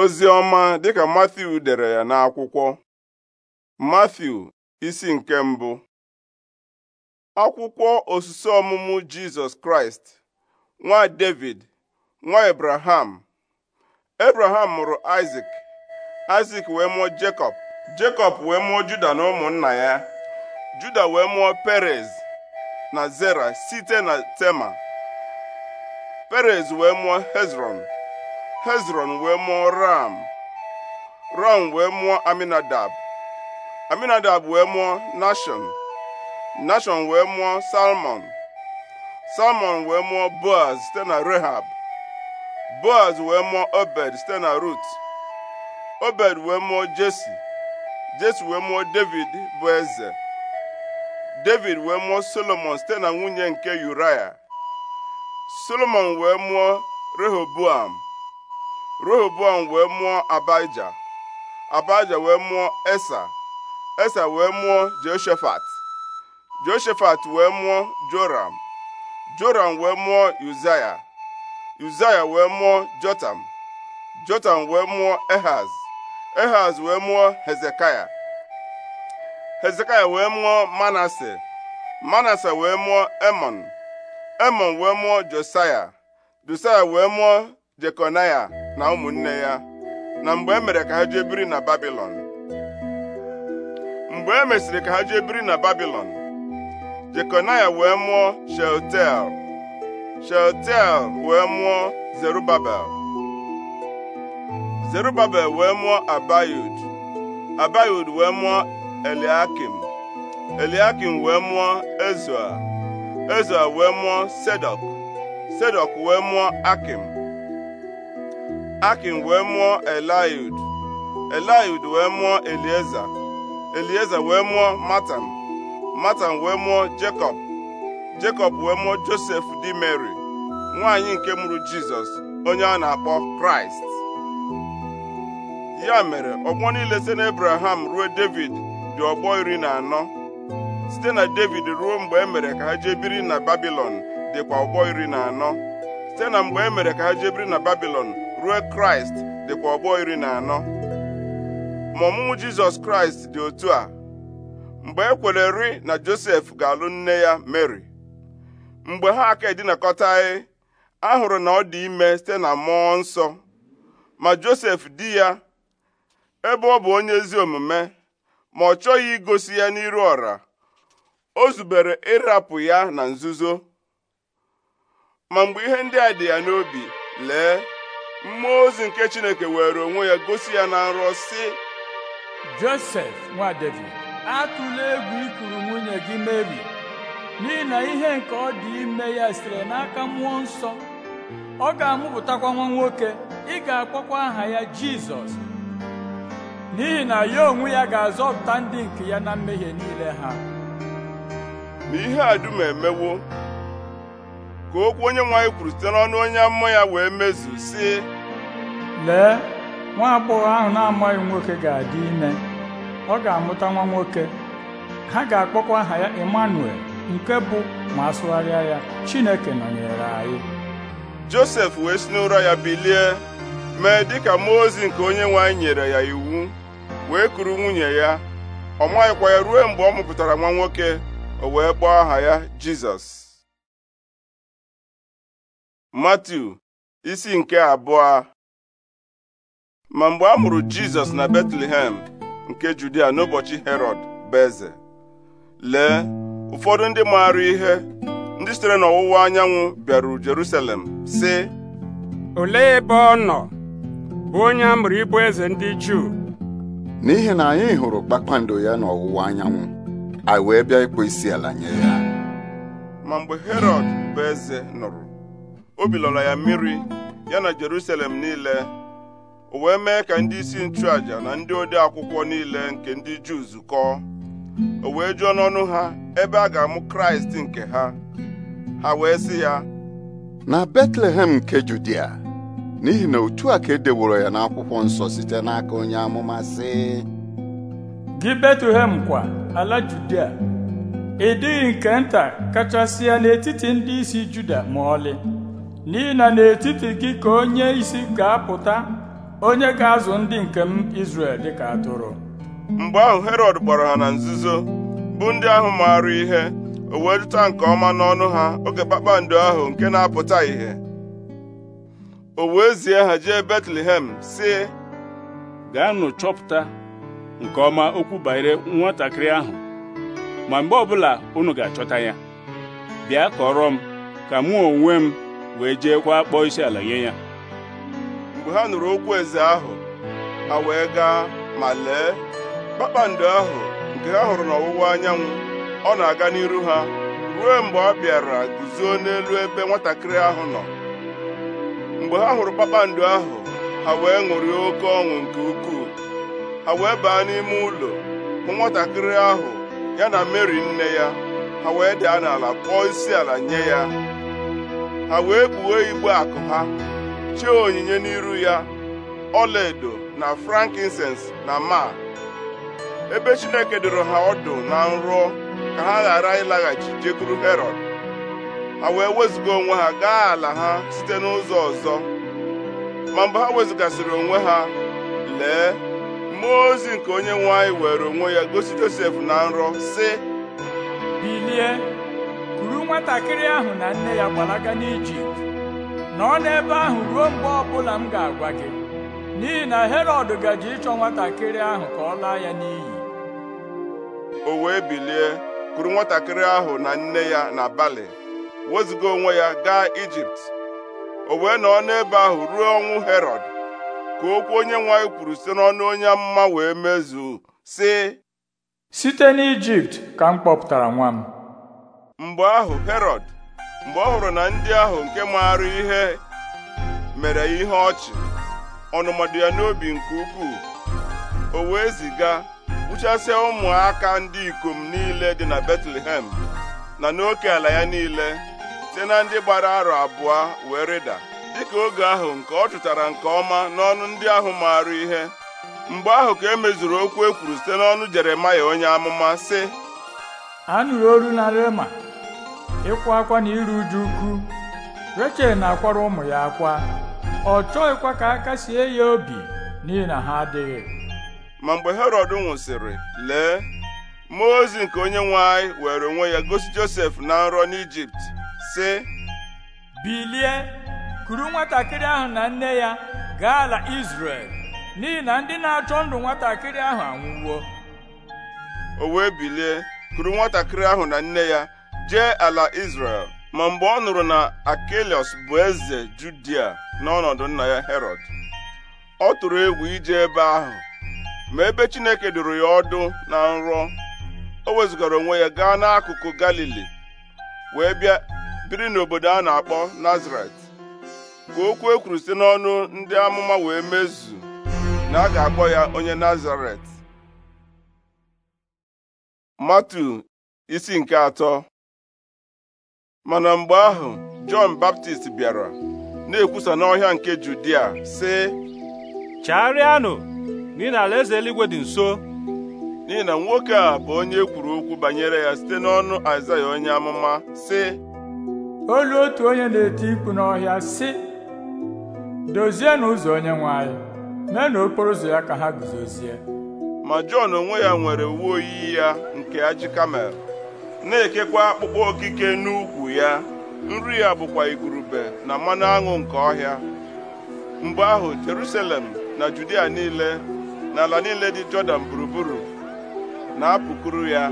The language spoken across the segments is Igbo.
ozi ọma dịka Matthew dere ya n'akwụkwọ Matthew isi nke mbụ akwụkwọ osisi ọmụmụ Jizọs Kraịst nwa David nwa Abraham Abraham mụrụ isak Isaac wee mụọ Jacob Jacob wee mụọ Juda na ụmụnna ya Juda wee mụọ Perez na Zera site na Tema Perez wee mụọ Hezron hezron wee mụọ ram ram wee mụọ aminadab aminadab wee mụọ nashon nashon wee mụọ salmon salmon wee mụọ boaz site na rehab boaz wee mụọ obed site na rut obed wee mụọ jesi jesi wee mụọ david bụ eze david wee mụọ solomon site na nwunye nke uraya solomon wee mụọ rehoboam Rehoboam wee mụọ Abaija Abaija wee mụọ Esa Esa wee mụọ Jehoshaphat Jehoshaphat wee mụọ Joram Joram wee mụọ Uzaya Uzaya wee mụọ Jotam Jotam wee mụọ Ehaz Ehaz wee mụọ Hezekaya Hezekaya wee mụọ Manase Manase wee mụọ Emon Emon wee mụọ Josaya Josaya wee mụọ Jekonaya na ụmụnne ya na mgbe e mere ka ha jee biri na Babilọn mgbe e mesịrị ka ha jee biri na Babilọn Jekonaya wee mụọ Shealtiel Shealtiel wee mụọ Zerubabel Zerubabel wee mụọ Abayud Abayud wee mụọ Eliakim Eliakim wee mụọ Ezua Ezua wee mụọ Sedok Sedok wee mụọ Akim Akin wee mụọ Eliud Eliud wee mụọ Elieza Elieza wee mụọ Matan Matan wee mụọ Jekọb Jekọb wee mụọ Josef di Mary nwaanyị nke mụrụ Jizọs onye a na-akpọ Kraịst ya mere ọgbọ niile site Abraham ruo David dị ọgbọ iri na anọ site na David ruo mgbe e mere ka ha jee na Babilọn dịkwa ọgbọ iri na anọ site na mgbe e mere ka ha jee na Babilọn ruo kraịst dịkwa ọgbọ iri na anọ ma ọmụmụ jizọs kraịst dị otu a mgbe e ri na josef ga-alụ nne ya mary mgbe ha aka edinakọtaghị a hụrụ na ọ dị ime site na mmụọ nsọ ma josef di ya ebe ọ bụ onye ezi omume ma ọ chọghị igosi ya n'iru ọra o zubere ịrapụ ya na nzuzo ma mgbe ihe ndị a dị ya n'obi lee mmụọ ozi nke chineke were onwe ya gosi ya na nrọ sị josef nwa david atụla egwu ikuru nwunye gị meri n'ihi na ihe nke ọ dị ime ya sitere n'aka mmụọ nsọ ọ ga-amụpụtakwa nwa nwoke ị ga-akpọkwa aha ya jizọs n'ihi na ya onwe ya ga-azọpụta ndị nke ya na mmehie niile ha ma ihe a dum emewo ka okwu onye nwanyị kwuru site n'ọnụ onye amụma ya wee mezu si lee nwa agbọghọ ahụ na-amaghị nwoke ga-adị ime ọ ga-amụta nwa nwoke ha ga-akpọkwa aha ya Emmanuel nke bụ ma asụgharịa ya Chineke nọnyere anyị Josef wee si n'ụra ya bilie mee dịka mmụọ ozi nke onye nwanyị nyere ya iwu wee kuru nwunye ya ọ maghịkwa ya ruo mgbe ọ mụpụtara nwa nwoke o wee kpọọ aha ya Jizọs Matiu isi nke abụọ ma mgbe a mụrụ Jizọs na Betlehem nke Judia n'ụbọchị herod bụ eze lee ụfọdụ ndị maara ihe ndị sitere n'ọwụwa anyanwụ bịaruru Jerusalem sị olee ebe ọ nọ bụ onye a mụrụ ịbụ eze ndị Juu n'ihi na anyị hụrụ kpakpando ya n'ọwụwa anyanwụ anyị wee bịa ịkpọ isi ala nye ya ma mgbe Herọd bụ eze nụrụ obi lọrọ ya mmiri ya na Jerusalem niile o wee mee ka ndị isi nchụaja na ndị ode akwụkwọ niile nke ndị Juu zukọọ o wee jụọ n'ọnụ ha ebe a ga-amụ Kraịst nke ha ha wee sị ya na Betlehem nke Judia n'ihi na otu a ka e ya n'akwụkwọ nsọ site n'aka onye amụma sị gị Betlehem kwa ala Judia ị dịghị nke nta kachasị ya n'etiti ndị isi Juda ma ọlị n'ihi na n'etiti gị ka onye isi ga-apụta onye ga-azụ ndị nke m Izrel dịka atụrụ mgbe ahụ Herọd gbara ha na nzuzo bụ ndị ahụ maara ihe o wee nke ọma n'ọnụ ha oge kpakpando ahụ nke na-apụta ìhè o wee zie ha jee Betlehem sị gaanụ chọpụta nke ọma okwu banyere nwatakịrị ahụ ma mgbe ọbụla unu ga-achọta ya bịa kọrọ m ka mụ onwe m wee jeekwa kpọọ isi ala nye ya mgbe ha nụrụ okwu eze ahụ ha wee gaa ma lee kpakpando ahụ nke ha hụrụ n'ọwụwa anyanwụ ọ na-aga n'iru ha ruo mgbe ọ bịara guzo n'elu ebe nwatakịrị ahụ nọ mgbe ha hụrụ kpakpando ahụ ha wee ṅụrie oke ọṅụ nke ukwuu ha wee baa n'ime ụlọ hụ nwatakịrị ahụ ya na Meri nne ya ha wee daa n'ala kpọọ isi ala nye ya ha wee kpuo igbo akụ ha chee onyinye n'iru ya ọlaedo na frankincense na ma ebe Chineke dụrụ ha ọdụ na nrọ ka ha ghara ịlaghachi jekuru herod ha wee wezụga onwe ha gaa ala ha site n'ụzọ ọzọ ma mgbe ha wezụgasịrị onwe ha lee mmụọ ozi nke onye nwe anyị were onwe ya gosi Josef na nrọ si nwatakịrị ahụ na nne ya gbalaga n'ijipt nọọ n'ebe ahụ ruo mgbe ọbụla m ga-agwa gị n'ihi na herọd gaji ịchọ nwatakịrị ahụ ka ọ laa ya n'iyi o wee bilie kuru nwatakịrị ahụ na nne ya na bali wezụga onwe ya gaa ijipt o wee nọọ n'ebe ahụ ruo ọnwụ herọd ka okwu onye nwanyị kwuru site n'ọnụ onye mma wee mezuo sị site n'ijipt ka m kpọpụtara nwa m mgbe ahụ Herọd mgbe ọ hụrụ na ndị ahụ nke maara ihe mere ihe ọchị ọnụmadụ ya n'obi nke ukwuu o wee ziga gbuchasịa ụmụaka ndị ikom niile dị na Betlehem na n'oke ala ya niile site na ndị gbara arọ abụọ wee rịda dịka oge ahụ nke ọ chụtara nke ọma n'ọnụ ndị ahụ maara ihe mgbe ahụ ka e mezuru okwu e kwuru site n'ọnụ Jeremaya onye amụma sị anụrụ olu na Rema ịkwa akwa na iru uju ukwu rechel na-akwara ụmụ ya akwa ọ chọghịkwa ka aka sie ya obi n'ihi na ha adịghị ma mgbe herod nwụsịrị lee mmụọ ozi nke onye nwe anyị were onwe ya gosi josef na nrọ n'ijipt sị bilie kuru nwatakịrị ahụ na nne ya gaa ala izrel n'ihi na ndị na-achọ ndụ nwatakịrị ahụ anwụwo o wee bilie kuru nwatakịrị ahụ na nne ya jee ala israel ma mgbe ọ nụrụ na Akelios bụ eze Judia n'ọnọdụ nna ya Herod ọ tụrụ egwu ije ebe ahụ ma ebe Chineke dụrụ ya ọdụ na nrọ o wezụgara onwe ya gaa n'akụkụ Galili wee bịa biri n'obodo a na-akpọ Nazaret ka okwu e kwuru site n'ọnụ ndị amụma wee mezu na a ga-akpọ ya onye Nazaret Matu isi nke atọ mana mgbe ahụ Jọn Baptist bịara na-ekwusa n'ọhịa nke Judia sị chagharịanụ n'ihi na alaeze eluigwe dị nso n'ihi na nwoke a bụ onye e kwuru okwu banyere ya site n'ọnụ Aịzaya onye amụma sị olu otu onye na-eti mkpu n'ọhịa sị Dozie ụzọ onye nwanyị, mee na okporo ụzọ ya ka ha guzozie ma Jọn onwe ya nwere uwe oyiyi ya nke ajị kamel na-ekekwa akpụkpọ okike n'ukwu ya nri ya bụkwa igurube na mmanụ aṅụ nke ọhịa mgbe ahụ Jerusalem na Judia niile na ala niile dị Jọdan gburugburu na-apụkuru ya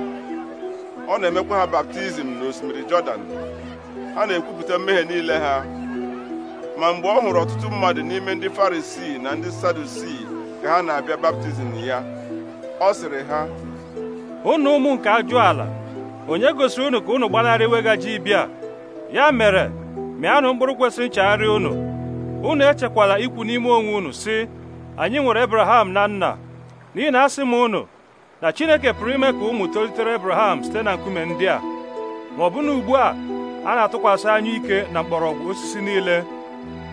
ọ na-emekwa ha baptizim n'osimiri Jọdan ha na-ekwupụta mmehie niile ha ma mgbe ọ hụrụ ọtụtụ mmadụ n'ime ndị Farisii na ndị Sadusii ka ha na-abịa baptizim ya ọ sịrị ha Ụnụ ụmụ nke ajụ ala onye gosiri unu ka unu gbanarị iwega ibia ya mere mịanụ mkpụrụ kwesịrị nchegharị unu unu echekwala ikwu n'ime onwe unu si anyị nwere Abraham na nna n'ihi na asị m unu na Chineke pụrụ ime ka ụmụ tolitere Abraham site na nkume ndị a ma ọ bụ na ugbu a a na-atụkwasị anya ike na mgbọrọgwụ osisi niile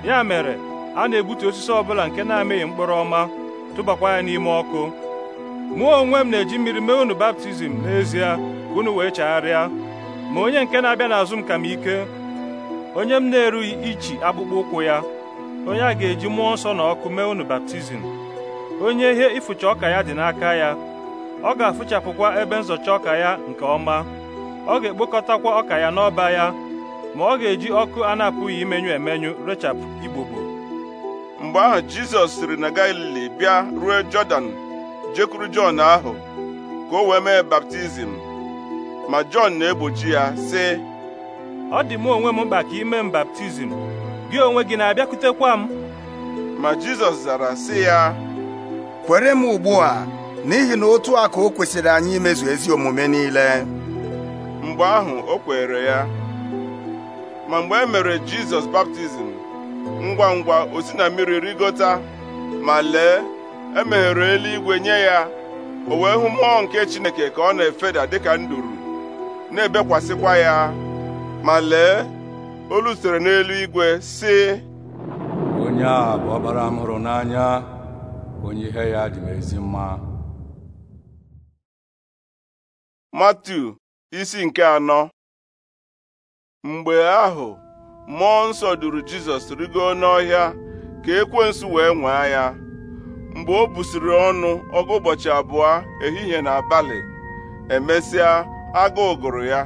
ya mere a na-egbutu osisi ọbụla nke na-amịghị mkpụrụ ọma tụbakwa ya n'ime ọkụ mụ onwe m na-eji mmiri mee unu baptizim n'ezie unu wee chegharịa ma onye nke na-abịa n'azụ m ka m ike onye m na-erughị ichi akpụkpọ ụkwụ ya onye a ga-eji mmụọ nsọ na ọkụ mee unu baptizim onye ihe ịfụcha ọka ya dị n'aka ya ọ ga-afụchapụkwa ebe nzọcha ọka ya nke ọma ọ ga-ekpokọtakwa ọka ya n'ọba ya ma ọ ga-eji ọkụ a na-apụghị imenyu emenyu rechapụ igbogbo mgbe ahụ Jizọs siri na Galili bịa ruo Jọdan jekwuru Jọn ahụ ka o wee mee baptizim ma Jọn na-egbochi ya sị ọ dị m onwe m mkpa ka ime m baptizim gị onwe gị na-abịakwutekwa m ma Jizọs zara sị ya kwere m ugbu a n'ihi na otu a ka o kwesịrị anyị imezu ezi omume niile mgbe ahụ o kwere ya ma mgbe e mere Jizọs baptizim ngwa ngwa o si na mmiri rigota ma lee emeghere eluigwe nye ya o wee hụ mmụọ nke Chineke ka ọ na-efeda dịka nduru na-ebekwasịkwa ya ma lee olu sitere n'elu igwe si onye a bụ ọkpara m hụrụ n'anya onye ihe ya dị m ezi mma Matthew isi nke anọ mgbe ahụ mmụọ nsọ duru Jizọs rigo n'ọhịa ka ekwensu wee nwee ya mgbe o busiri ọnụ ọgụ ụbọchị abụọ ehihie na abalị emesịa agụụ gụrụ ya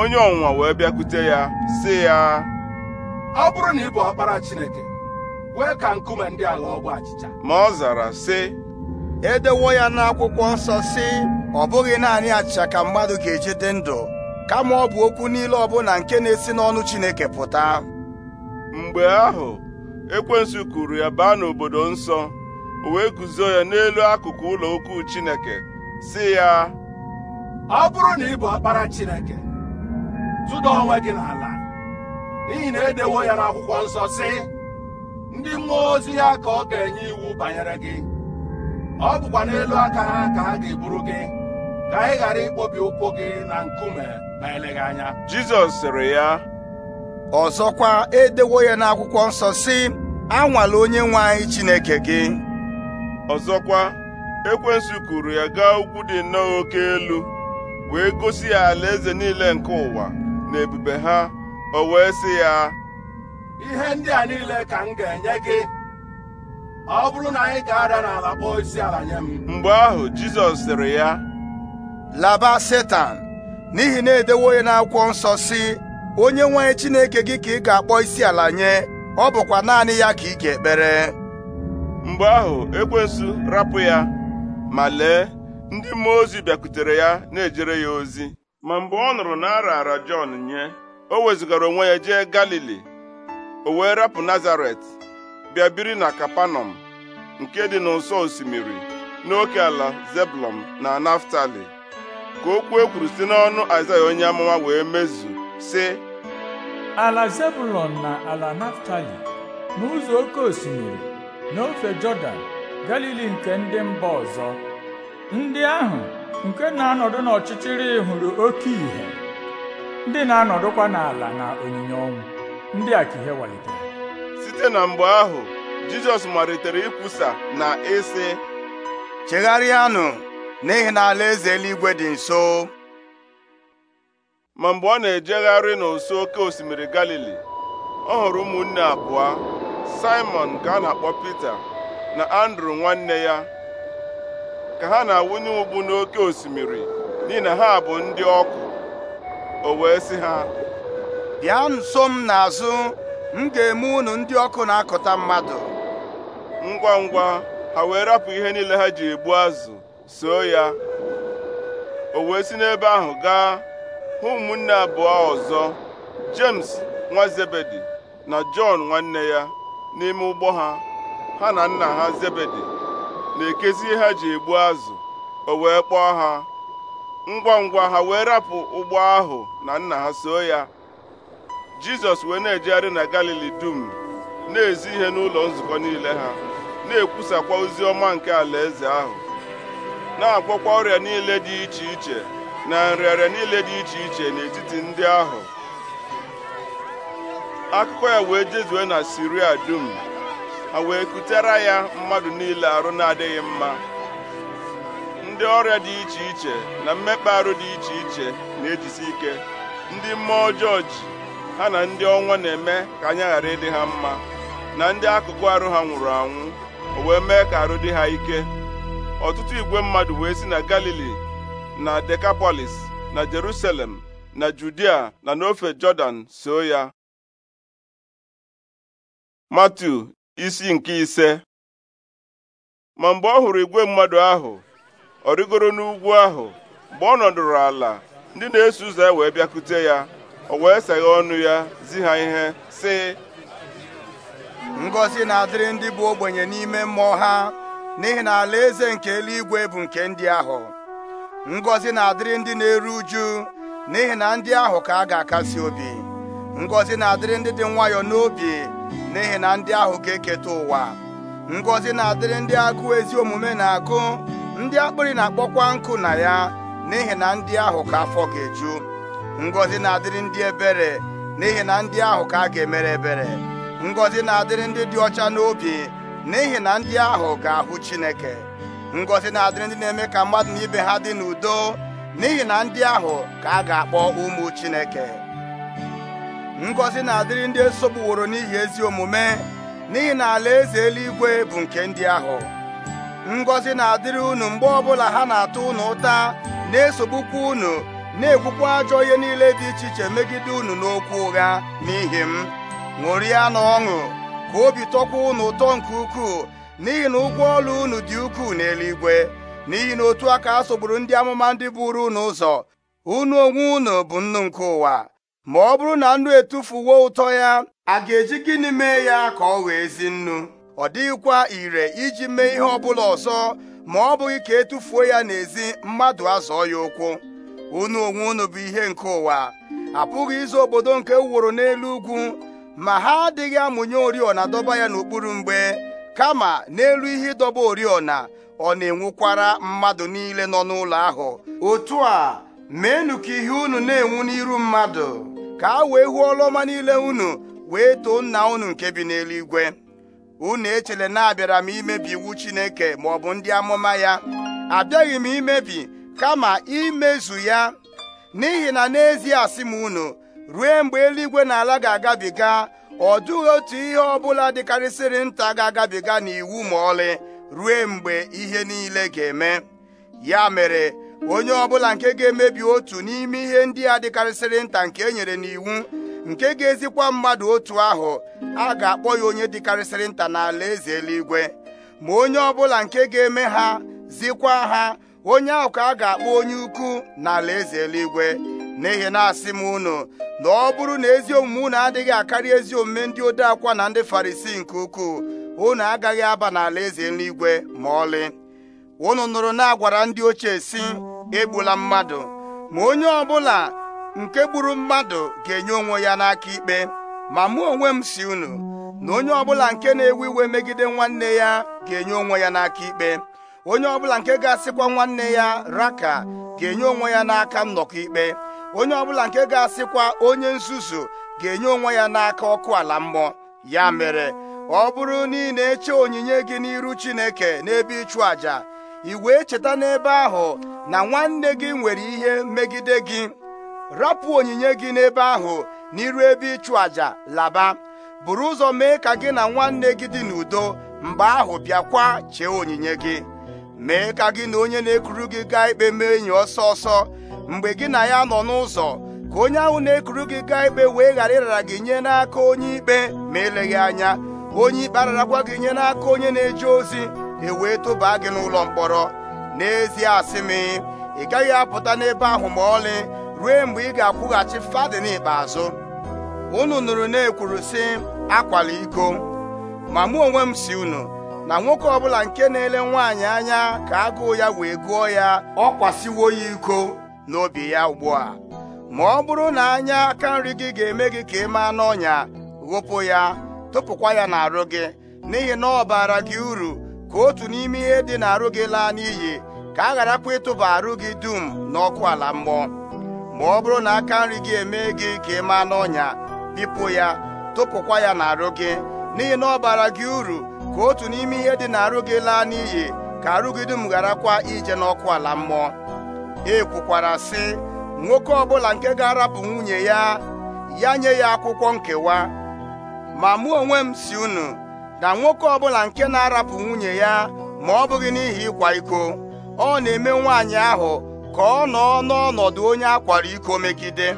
onye ọnwụnwa wee bịakwute ya sị ya ọ bụrụ na ị bụ ọkpara Chineke wee ka nkume ndị ala ọgwụ achịcha ma ọ zara sị edewo ya n'akwụkwọ nsọ sị ọ bụghị naanị achịcha ka mmadụ ga-eji dị ndụ kama ọ bụ okwu niile ọbụla nke na-esi n'ọnụ Chineke pụta mgbe ahụ ekwensu kuru ya baa n'obodo nsọ o wee guzo ya n'elu akụkụ ụlọ ukwu Chineke sị ya ọ bụrụ na ị bụ ọkpara chineke tụda onwe gị n'ala n'ihi na edewo ya n'akwụkwọ nsọ si, ndị mmụọ ozi ya ka ọ ga-enye iwu banyere gị ọ bụkwa n'elu aka ha ka ha ga-eburu gị ka ị ghara ikpobi ụkwụ gị na nkume ma eleghị anya Jizọs sịrị ya ọzọkwa edewo ya n'akwụkwọ nsọ sị anwala onye nwe anyị Chineke gị ọzọkwa ekwensu kuru ya gaa ugwu dị nnọọ oke elu wee gosi ya alaeze niile nke ụwa na ebube ha o wee sị ya ihe ndị a niile ka m ga-enye gị ọ bụrụ na anyị ga-ada n'ala kpọọ isi ala nye m mgbe ahụ Jizọs sịrị ya laba Setan n'ihi na edewo ya n'akwụkwọ nsọ si onye nwe Chineke gị ka ị ga-akpọ isi ala nye ọ bụkwa naanị ya ka ị ga-ekpere mgbe ahụ ekwensu rapụ ya ma lee ndị mmụọ ozi bịakwutere ya na-ejere ya ozi ma mgbe ọ nụrụ na ara Jọn nye o wezụgara onwe ya jee Galili o wee rapụ Nazaret bịa na Kapanọm nke dị n'ụsọ osimiri n'oke ala Zebulọn na Naftali ka okwu ekwuru kwuru site n'ọnụ Aịzaya onye amụma wee mezu sị ala Zebulọn na ala Naftali n'ụzọ oke osimiri n'ofe Jọdan Galili nke ndị mba ọzọ ndị ahụ nke na-anọdụ n'ọchịchịrị hụrụ oke ìhè ndị na-anọdụkwa n'ala na onyinye ọnwụ ndị a ka ihe walitere site na mgbe ahụ jizọs malitere ikwusa na ịsị chegharịanụ n'ihi na alaeze eluigwe dị nso ma mgbe ọ na-ejegharị n'ụsọ oke osimiri galili ọ hụrụ ụmụnne abụọ simon nke a na-akpọ pita na andrew nwanne ya ka ha na-awụnye ụgbụ n'oke osimiri n'ihi na ha bụ ndị ọkụ o wee sị ha bịa nso m n'azụ m ga-eme unu ndị ọkụ na-akụta mmadụ ngwa ngwa ha wee rapụ ihe niile ha ji egbu azụ soo ya o wee si n'ebe ahụ gaa hụ ụmụnne abụọ ọzọ James nwa Zebedi na Jọn nwanne ya n'ime ụgbọ ha ha na nna ha Zebedi na-ekezi ihe ha ji egbu azụ o wee kpọọ ha ngwa ngwa ha wee rapụ ụgbọ ahụ na nna ha so ya jizọs wee na-ejegharị na galili dum na-ezi ihe n'ụlọ nzukọ niile ha na-ekwusakwa ozi ọma nke alaeze ahụ na-agwọkwa ọrịa niile dị iche iche na nrịarịa niile dị iche iche n'etiti ndị ahụ akụkọ ya wee jezue na siria dum A wee kutere ya mmadụ niile arụ na-adịghị mma ndị ọrịa dị iche iche na mmekpa arụ dị iche iche na-ejisi ike ndị mmụọ ọjọọ ha na ndị ọnwa na-eme ka anya ghara ịdị ha mma na ndị akụkụ arụ ha nwụrụ anwụ o wee mee ka arụ dị ha ike ọtụtụ igwe mmadụ wee si na Galili na Dekapolis na Jerusalem na Judia na n'ofe Jọdan so ya Matu isi nke ise ma mgbe ọ hụrụ igwe mmadụ ahụ ọ rịgoro n'ugwu ahụ mgbe ọ nọdụrụ ala ndị na-eso ụzọ wee bịakute ya o wee seghe ọnụ ya zi ha ihe sị ngozi na-adịrị ndị bụ ogbenye n'ime mmụọ ha n'ihi na eze nke eluigwe bụ nke ndị ahụ ngozi na-adịrị ndị na-eru uju n'ihi na ndị ahụ ka a ga-akasi obi ngozi na-adịrị ndị dị nwayọọ n'obi n'ihi na ndị ahụ ga-eketa ụwa ngọzi na-adịrị ndị agụụ ezi omume na-agụ ndị akpịrị na-akpọkwa nkụ na ya n'ihi na ndị ahụ ka afọ ga-eju ngọzi na-adịrị ndị ebere n'ihi na ndị ahụ ka a ga-emere ebere ngọzi na-adịrị ndị dị ọcha n'obi n'ihi na ndị ahụ ga-ahụ Chineke ngọzi na-adịrị ndị na-eme ka mmadụ na ibe ha dị n'udo n'ihi na ndị ahụ ka a ga-akpọ ụmụ Chineke ngọzi na-adịrị ndị esogbuworo n'ihi ezi omume n'ihi na ala eze eluigwe bụ nke ndị ahụ ngọzi na-adịrị unu mgbe ọbụla ha na-atụ unu ụta na-esogbukwa unu na-ekwukwa ajọ ihe niile dị iche iche megide unu n'okwu ụgha n'ihi m ṅụrịa na ọṅụ ka obi tọkwa unu ụtọ nke ukwuu n'ihi na ụgwọ ọrụ unu dị ukwuu n'eluigwe n'ihi na otu aka a sogburu ndị amụma ndị buru unu ụzọ unu onwe unu bụ nnu nke ụwa ma ọ bụrụ na nnu etufuwo ụtọ ya a ga-eji gịnị mee ya ka ọ wee ezi nnu ọ dịghịkwa ire iji mee ihe ọbụla ọzọ ma ọ bụghị ka etufuo ya n'ezi mmadụ azọọ ya ụkwụ unu onwe unu bụ ihe nke ụwa apụghị ịzụ obodo nke e wụrụ n'elu ugwu ma ha adịghị amụnye oriọna dọba ya n'okpuru mgbe kama n'elu ihe ịdọba oriọna ọ na-enwukwara mmadụ niile nọ n'ụlọ ahụ otu a meenụ ka ihe unu na-enwu n'iru mmadụ ka a wee hụ ọrụ niile unu wee too nna unu nke bi n'eluigwe unu echele na abịara m imebi iwu Chineke ma ọ bụ ndị amụma ya abịaghị m imebi kama imezu ya n'ihi na n'ezie asị m unu ruo mgbe eluigwe na ala ga-agabiga ọ dụghị otu ihe ọ bụla dịkarịsịrị nta ga-agabiga n'iwu ma ọlị ruo mgbe ihe niile ga-eme ya mere onye ọbụla nke ga-emebi otu n'ime ihe ndị a dịkarịsịrị nta nke e nyere n'iwu nke ga-ezikwa mmadụ otu ahụ a ga-akpọ ya onye dịkarịsịrị nta n'ala eze eluigwe ma onye ọbụla nke ga-eme ha zikwa ha onye ahụ ka a ga-akpọ onye ukwu n'ala eze eluigwe n'ihi na-asị m unu na ọ bụrụ na ezi omume unu adịghị akarị ezi omume ndị ode na ndị farisi nke ukwuu unu agaghị aba n'ala eze eluigwe ma ọlị ụnụ nụrụ na-agwara ndị ochie si egbula mmadụ ma onye ọbụla nke gburu mmadụ ga-enye onwe ya n'aka ikpe ma mụ onwe m si unu na onye ọbụla nke na-ewe iwe megide nwanne ya ga-enye onwe ya n'aka ikpe onye ọbụla nke ga-asịkwa nwanne ya raka ga-enye onwe ya n'aka nnọkọ ikpe onye ọbụla nke ga-asịkwa onye nzuzu ga-enye onwe ya n'aka ọkụ ala mmụọ ya mere ọ bụrụ na ị na-eche onyinye gị n'iru Chineke n'ebe ịchụ àjà ị wee cheta n'ebe ahụ na nwanne gị nwere ihe megide gị rapụ onyinye gị n'ebe ahụ n'iru ebe ịchụ àjà laba buru ụzọ mee ka gị na nwanne gị dị n'udo mgbe ahụ bịakwa chee onyinye gị mee ka gị na onye na-ekuru gị gaa ikpe mee enyi ọsọ ọsọ mgbe gị na ya nọ n'ụzọ ka onye ahụ na-ekuru gị gaa ikpe wee ghara ịrara gị nye n'aka onye ikpe ma eleghị anya onye ikpe ararakwa gị nye n'aka onye na-eje ozi e wee tobaa gị n'ụlọ mkpọrọ n'ezie asị m ị gaghị apụta n'ebe ahụ ma ọlị ruo mgbe ị ga-akwụghachi fadin ikpeazụ unu nụrụ na-ekwuru sị akwala iko ma mụ onwe m si unu na nwoke ọbụla nke na-ele nwaanyị anya ka agụụ ya wee gụọ ya ọ kwasịwo ya iko n'obi ya ugbu a ma ọ bụrụ na anya aka nri gị ga-eme gị ka ị maa n'ọnya ghopụ ya tụpụkwa ya n'arụ gị n'ihi na ọ baara gị uru ka otu n'ime ihe dị n'arụ gị laa n'iyi ka a gharakwa ịtụba arụ gị dum n'ọkụ ala mmụọ ma ọ bụrụ na aka nri gị emee gị ka ị maa n'ọnya bipụ ya tụpụkwa ya n'arụ gị n'ihi na ọ bara gị uru ka otu n'ime ihe dị n'arụ gị laa n'iyi ka arụ gị dum gharakwa ije n'ọkụ ala mmụọ e kwukwara sị nwoke ọbụla nke ga-arapụ nwunye ya ya nye ya akwụkwọ nkewa ma mụ onwe m si unu na nwoke ọbụla nke na-arapụ nwunye ya ma ọ bụghị n'ihi ịkwa iko ọ na-eme nwaanyị ahụ ka ọ nọ n'ọnọdụ onye akwara iko megide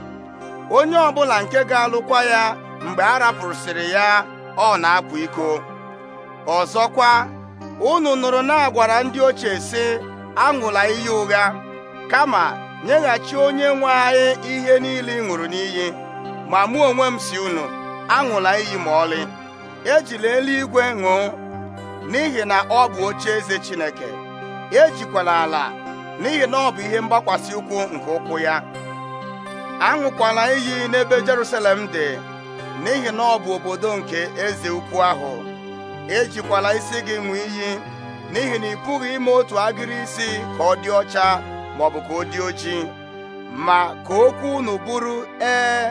onye ọbụla nke ga-alụkwa ya mgbe a rapụsịrị ya ọ na-akwa iko ọzọkwa unu nụrụ na-agwara ndị ochie sị aṅụla iyi ụgha kama nyeghachi onye nwe anyị ihe niile ị ṅụrụ n'iyi ma mụ onwe m si unu aṅụla iyi ma ọlị ejila eluigwe ṅụọ n'ihi na ọ bụ oche eze Chineke ejikwala ala n'ihi na ọ bụ ihe mgbakwasi ụkwụ nke ụkwụ ya aṅụkwala iyi n'ebe Jerusalem dị n'ihi na ọ bụ obodo nke eze ukwu ahụ ejikwala isi gị ṅụọ iyi n'ihi na ị pụghị ime otu agịrị isi ka ọ dị ọcha maọbụ ka ọ dị ojii ma ka okwu unu bụrụ ee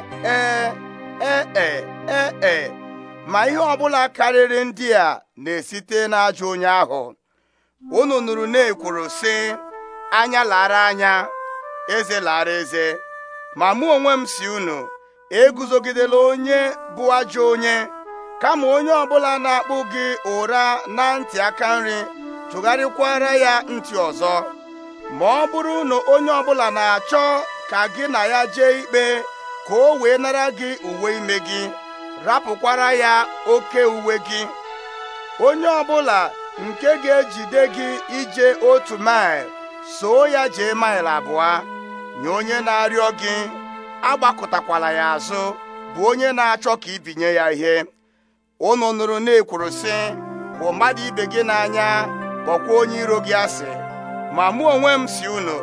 ee ee e. ma ihe ọbụla karịrị ndị a na-esite n'ajọ onye ahụ unu nụrụ na-ekwuru sị anya lara anya eze lara eze ma mụ onwe m si unu eguzogidela onye bụ ajọ onye kama onye ọbụla na-akpụ gị ụra na ntị aka nri tụgharịkwara ya ntị ọzọ ma ọ bụrụ na onye ọbụla na-achọ ka gị na ya jee ikpe ka o wee nara gị uwe ime gị rapụkwara ya oke uwe gị onye ọbụla nke ga-ejide gị ije otu maịl soo ya jee mail abụọ nye onye na-arịọ gị agbakọtakwala ya azụ bụ onye na-achọ ka ibinye ya ihe unu nụrụ na-ekwuru sị hụ mmadụ ibe gị n'anya kpọkwa onye iro gị asị ma mụ onwe m si unu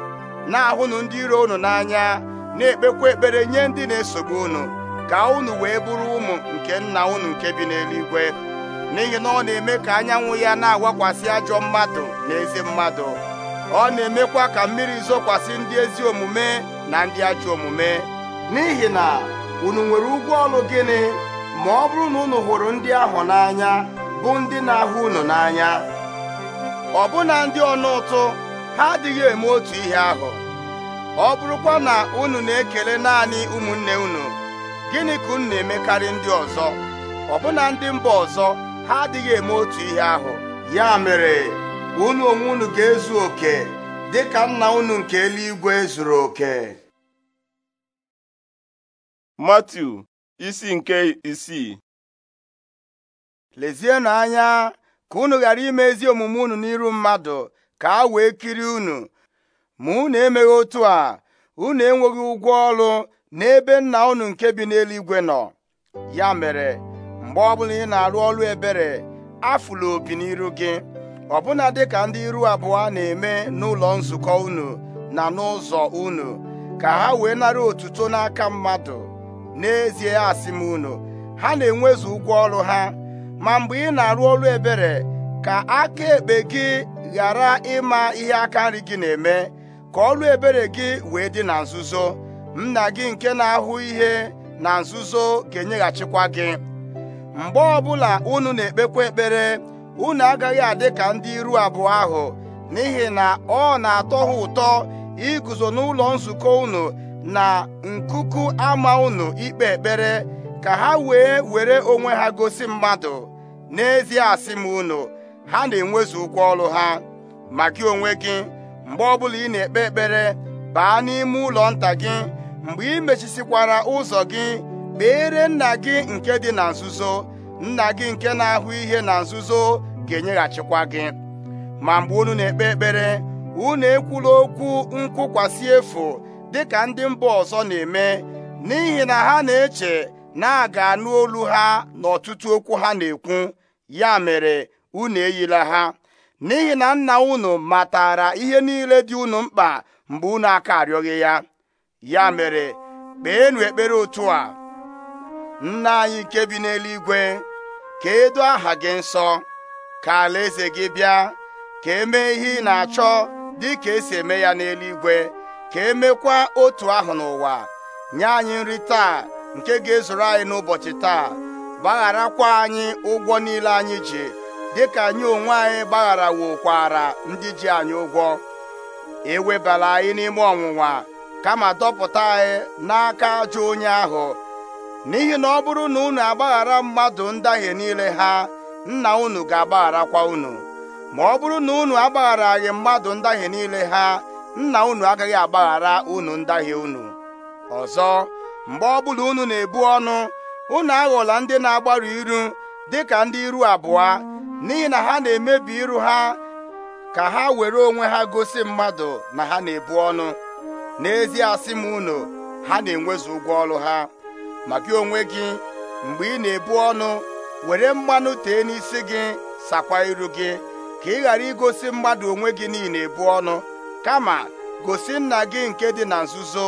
na-ahụnụ ndị iro unu n'anya na-ekpekwa ekpere nye ndị na-esogbu unu ka unu wee bụrụ ụmụ nke nna unu nke bi n'eluigwe n'ihi na ọ na-eme ka anyanwụ ya na-agwakwasị ajọ mmadụ na ezi mmadụ ọ na-emekwa ka mmiri zokwasị ndị ezi omume na ndị ajọ omume n'ihi na unu nwere ụgwọ ọlụ gịnị ma ọ bụrụ na unu hụrụ ndị ahụ n'anya bụ ndị na-ahụ unu n'anya ọbụna ndị ọnụ ụtụ ha adịghị eme otu ihe ahụ ọ bụrụkwa na unu na-ekele naanị ụmụnne unu gịnị ka unu na-emekarị ndị ọzọ ọbụna ndị mba ọzọ ha adịghị eme otu ihe ahụ ya mere unu onwe unu ga-ezu oke dị ka nna unu nke eluigwe zuru oke matu isi nke isii lezienụ anya ka unu ghara ime ezi omume unu n'iru mmadụ ka a wee kiri unu ma unu emeghị otu a unu enweghị ụgwọ ọrụ n'ebe nna unu nke bi n'eluigwe nọ ya mere mgbe ọbụla ị na-arụ ọrụ ebere afụla obi n'iru gị ọbụna dịka ndị iru abụọ na-eme n'ụlọ nzukọ unu na n'ụzọ unu ka ha wee nara otuto n'aka mmadụ n'ezie asị m unu ha na-enwezu ụgwọ ọrụ ha ma mgbe ị na-arụ ọrụ ebere ka aka ekpe gị ghara ịma ihe aka nri gị na-eme ka ọrụ ebere gị wee dị na nzuzo nna gị nke na-ahụ ihe na nzuzo ga-enyeghachikwa gị mgbe ọbụla unu na-ekpekwa ekpere unu agaghị adị ka ndị iru abụọ ahụ n'ihi na ọ na-atọ ha ụtọ iguzo n'ụlọ nzukọ unu na nkuku ama unu ikpe ekpere ka ha wee were onwe ha gosi mmadụ n'ezie asị m unu ha na-enwezu ụgwọ ọrụ ha ma gị onwe gị mgbe ọbụla ị na-ekpe ekpere baa n'ime ụlọ nta gị mgbe ị mechisikwara ụzọ gị kpeere nna gị nke dị na nzuzo nna gị nke na-ahụ ihe na nzuzo ga-enyeghachikwa gị ma mgbe unu na-ekpe ekpere unu ekwula okwu nkwụkwasị efu dịka ndị mba ọzọ na-eme n'ihi na ha na-eche na a ga-anụ olu ha n'ọtụtụ okwu ha na-ekwu ya mere unu eyila ha n'ihi na nna unu matara ihe niile dị unu mkpa mgbe unu aka arịọghị ya ya mere kpeenụ ekpere otu a nna anyị nke bi n'eluigwe ka edo aha gị nsọ ka alaeze gị bịa ka emee ihe ị na-achọ dị ka esi eme ya n'eluigwe ka emekwa otu ahụ n'ụwa nye anyị nri taa nke ga-ezuru anyị n'ụbọchị taa gbagharakwa anyị ụgwọ niile anyị ji dịka anyị onwe anyị gbagharawokwara ndị ji anyị ụgwọ ewebala anyị n'ime ọnwụnwa kama dọpụta anyị e n'aka ajọ onye ahụ n'ihi na ọ bụrụ na unu agbaghara mmadụ ndahie niile ha nna unu ga-agbagharakwa unu ma ọ bụrụ na unu agbagharaghị mmadụ ndahie niile ha nna unu agaghị agbaghara unu ndahie unu ọzọ mgbe ọbụla unu na-ebu ọnụ unu aghọla ndị na-agbarụ iru dịka ndị iru abụọ n'ihi na ha na-emebi iru ha ka ha were onwe ha gosi mmadụ na ha na-ebu ọnụ n'ezie asị m unu ha na-enwezu ụgwọ ọrụ ha ma gị onwe gị mgbe ị na-ebu ọnụ were mmanụ tee n'isi gị sakwa iru gị ka ị ghara igosi mmadụ onwe gị niile ebu ọnụ kama gosi nna gị nke dị na nzuzo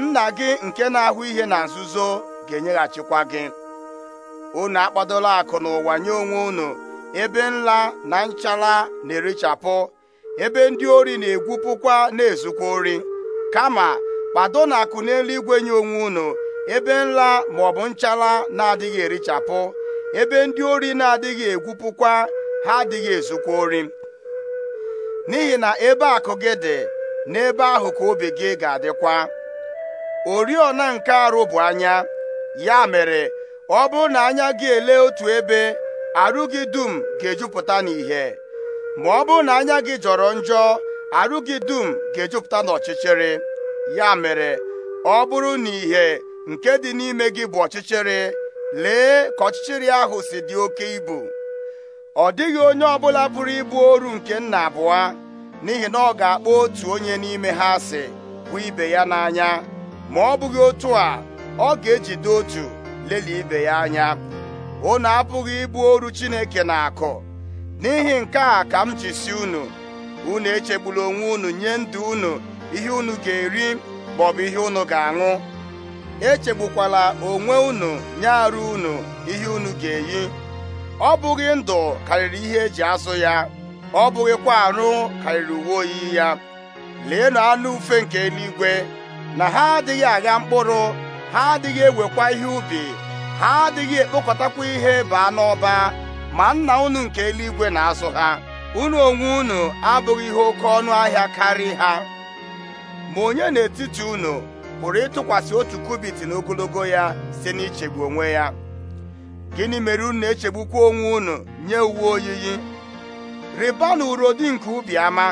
nna gị nke na-ahụ ihe na nzuzo ga-enyeghachikwa gị unu akpadola akụ n'ụwa nye onwe unu ebe nla na nchara na-erichapụ ebe ndị ori na-egwupụkwa na-ezukwa ori kama kpado na akụ igwe nye onwe unu ebe nla bụ nchala na-adịghị erichapụ ebe ndị ori na-adịghị egwupụkwa ha adịghị ezukwa ori n'ihi na ebe akụ gị dị n'ebe ahụ ka obi gị ga-adịkwa oriọna nke arụ bụ anya ya mere ọ bụrụ na anya gị ele otu ebe arụ gị dum ga-ejupụta n'ìhè ma ọ bụrụ na anya gị jọrọ njọ arụ gị dum ga-ejupụta n'ọchịchịrị ya mere ọ bụrụ na ìhè nke dị n'ime gị bụ ọchịchịrị lee ka ọchịchịrị ahụ si dị oke ibu ọ dịghị onye ọbụla pụrụ ịbụ oru nke nna abụọ n'ihi na ọ ga-akpọ otu onye n'ime ha asị bụ ibe ya n'anya ma ọ bụghị otu a ọ ga-ejide otu lelie ibe ya anya unu apụghị ịbụ oru Chineke na akụ n'ihi nke a ka m ji si unu unu echegbula onwe unu nye ndụ unu ihe unu ga-eri maọbụ ihe unu ga-aṅụ echegbukwala onwe unu nye arụ unu ihe unu ga-eyi ọ bụghị ndụ karịrị ihe eji azụ ya ọ bụghịkwa arụ karịrị uwe oyiyi ya leenu anụ ufe nke eluigwe na ha adịghị agha mkpụrụ ha adịghị ewekwa ihe ubi ha adịghị ekpokọtakwa ihe baa n'ọba ma nna unu nke eluigwe na-azụ ha unu onwe unu abụghị ihe oke ọnụ ahịa karị ha ma onye n'etiti unu pụrụ ịtụkwasị otu kubit n'ogologo ya si n'ichegbu onwe ya gịnị mere unu na-echegbukwa onwe unu nye uwe oyiyi rịbanụ urodi nke ubi ama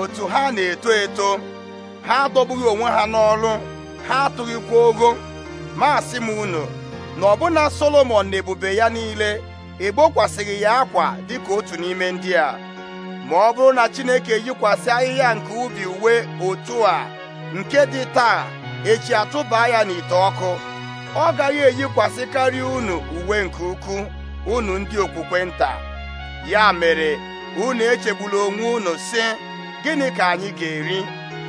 otu ha na-eto eto ha adọbughị onwe ha n'ọrụ ha atụghịkwa ogo masị m unu na ọbụna Solomọn na ebube ya niile ị gbokwasịghị ya akwa dịka otu n'ime ndị a ma ọ bụrụ na Chineke yikwasị ahịhịa nke ubi uwe otu a nke dị taa echi atụba ya n'ite ọkụ ọ gaghị eyikwasị karịa unu uwe nke ukwuu unu ndị okwukwe nta ya mere unu echegbula onwe unu si gịnị ka anyị ga-eri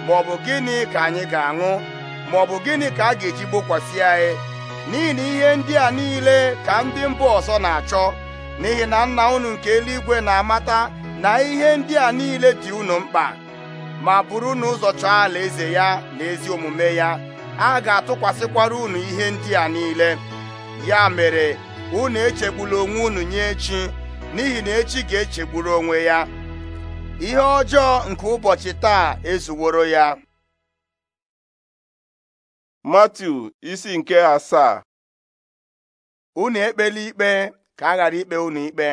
maọbụ gịnị ka anyị ga-aṅụ maọbụ gịnị ka a ga-eji gbokwasị anyị n'ihi na ihe ndị a niile ka ndị mba ọzọ na-achọ n'ihi na nna unu nke eluigwe na-amata na ihe ndị a niile dị unu mkpa ma bụrụ na ụzọ chọọ eze ya na ezi omume ya a ga-atụkwasịkwara unu ihe ndị a niile ya mere unu echegbula onwe unu nye echi n'ihi na echi ga-echegburu onwe ya ihe ọjọọ nke ụbọchị taa ezuworo ya Matiu isi nke asaa unu ekpela ikpe ka a ghara ikpe unu ikpe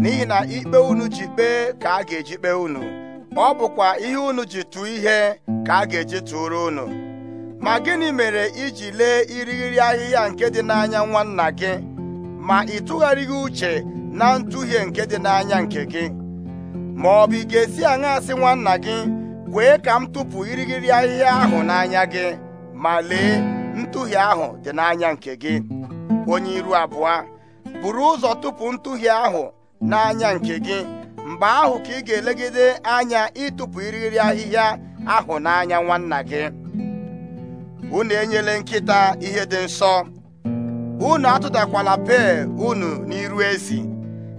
n'ihi na ikpe unu ji kpee ka a ga-eji kpee unu ọ bụkwa ihe unu ji tụọ ihe ka a ga-eji tụrụ unu ma gịnị mere iji lee irighiri ahịhịa nke dị n'anya nwanna gị ma ị tụgharịghị uche na ntụhie nke dị n'anya nke gị ma ọ bụ ị ga-esi aṅa asị nwanna gị kwee ka m tụpụ irighiri ahịhịa ahụ n'anya gị ma lee ntụhie ahụ dị n'anya nke gị onye iru abụọ buru ụzọ tupu ntụhie ahụ n'anya nke gị mgbe ahụ ka ị ga-elegide anya ịtụpụ iriri ahịhịa ahụ n'anya nwanna gị unu enyela nkịta ihe dị nsọ unu atụdakwala pee unu n'iru ezi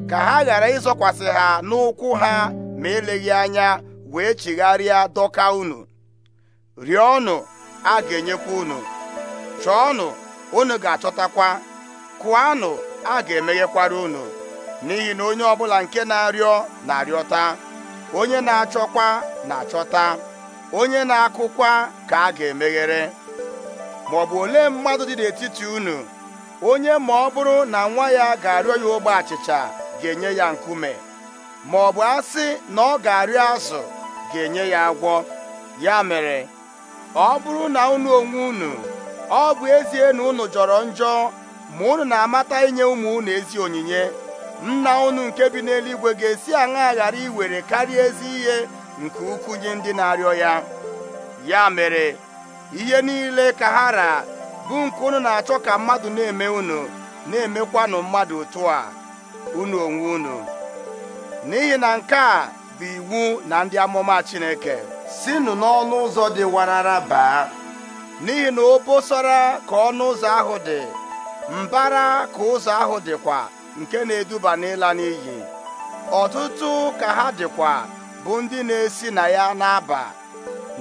ka ha ghara ịzọkwasị ha n'ụkwụ ha ma eleghị anya wee chigharịa dọka unu rịọnụ a ga-enyekwa unu chọọnụ unu ga-achọtakwa kụanụ a ga-emeghekwara unu n'ihi na onye ọbụla nke na-arịọ na-arịọta onye na-achọkwa na-achọta onye na-akụkwa ka a ga-emeghere ma ọ bụ olee mmadụ dị n'etiti unu onye ma ọ bụrụ na nwa ya ga-arịọ ya ogbe achịcha ga-enye ya nkume ma ọ bụ asị na ọ ga-arịọ azụ ga-enye ya agwọ ya mere ọ bụrụ na unu onwe unu ọ bụ ezie na unu jọrọ njọ ma unu na-amata inye ụmụ unu ezi onyinye nna unu nke bi n'eluigwe ga-esi aṅa ghara iwere karịa ezi ihe nke ukwu nye ndị na-arịọ ya ya mere ihe niile ka ha ra bụ nke unu na-achọ ka mmadụ na-eme unu na-emekwanụ mmadụ otu a unu onwe unu n'ihi na nke a bụ iwu na ndị amụma Chineke sinụ n'ọnụ ụzọ dị warara baa n'ihi na obosara ka ọnụ ụzọ ahụ dị mbara ka ụzọ ahụ dịkwa nke na-eduba n'ịla n'iyi ọtụtụ ka ha dịkwa bụ ndị na-esi na ya na-aba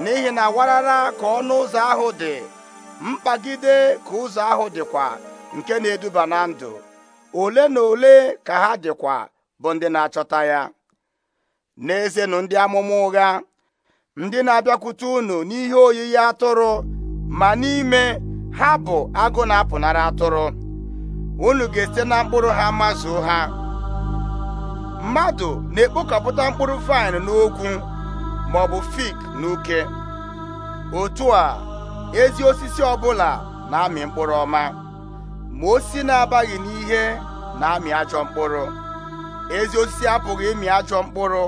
n'ihi na warara ka ọnụ ụzọ ahụ dị mkpagide ka ụzọ ahụ dịkwa nke na-eduba na ndụ ole na ole ka ha dịkwa bụ ndị na-achọta ya n'ezenụ ndị amụma ụgha ndị na-abịakwute unu n'ihe oyiyi atụrụ ma n'ime ha bụ agụ na-apụnara atụrụ unu ga-esite na mkpụrụ ha mazuo ha mmadụ na-ekpokọpụta mkpụrụ vaịn n'ogwu ma ọ bụ fik n'uke otu a ezi osisi ọbụla na-amị mkpụrụ ọma ma osisi na-abaghị n'ihe na-amị ajọ mkpụrụ ezi osisi apụghị ịmị ajọ mkpụrụ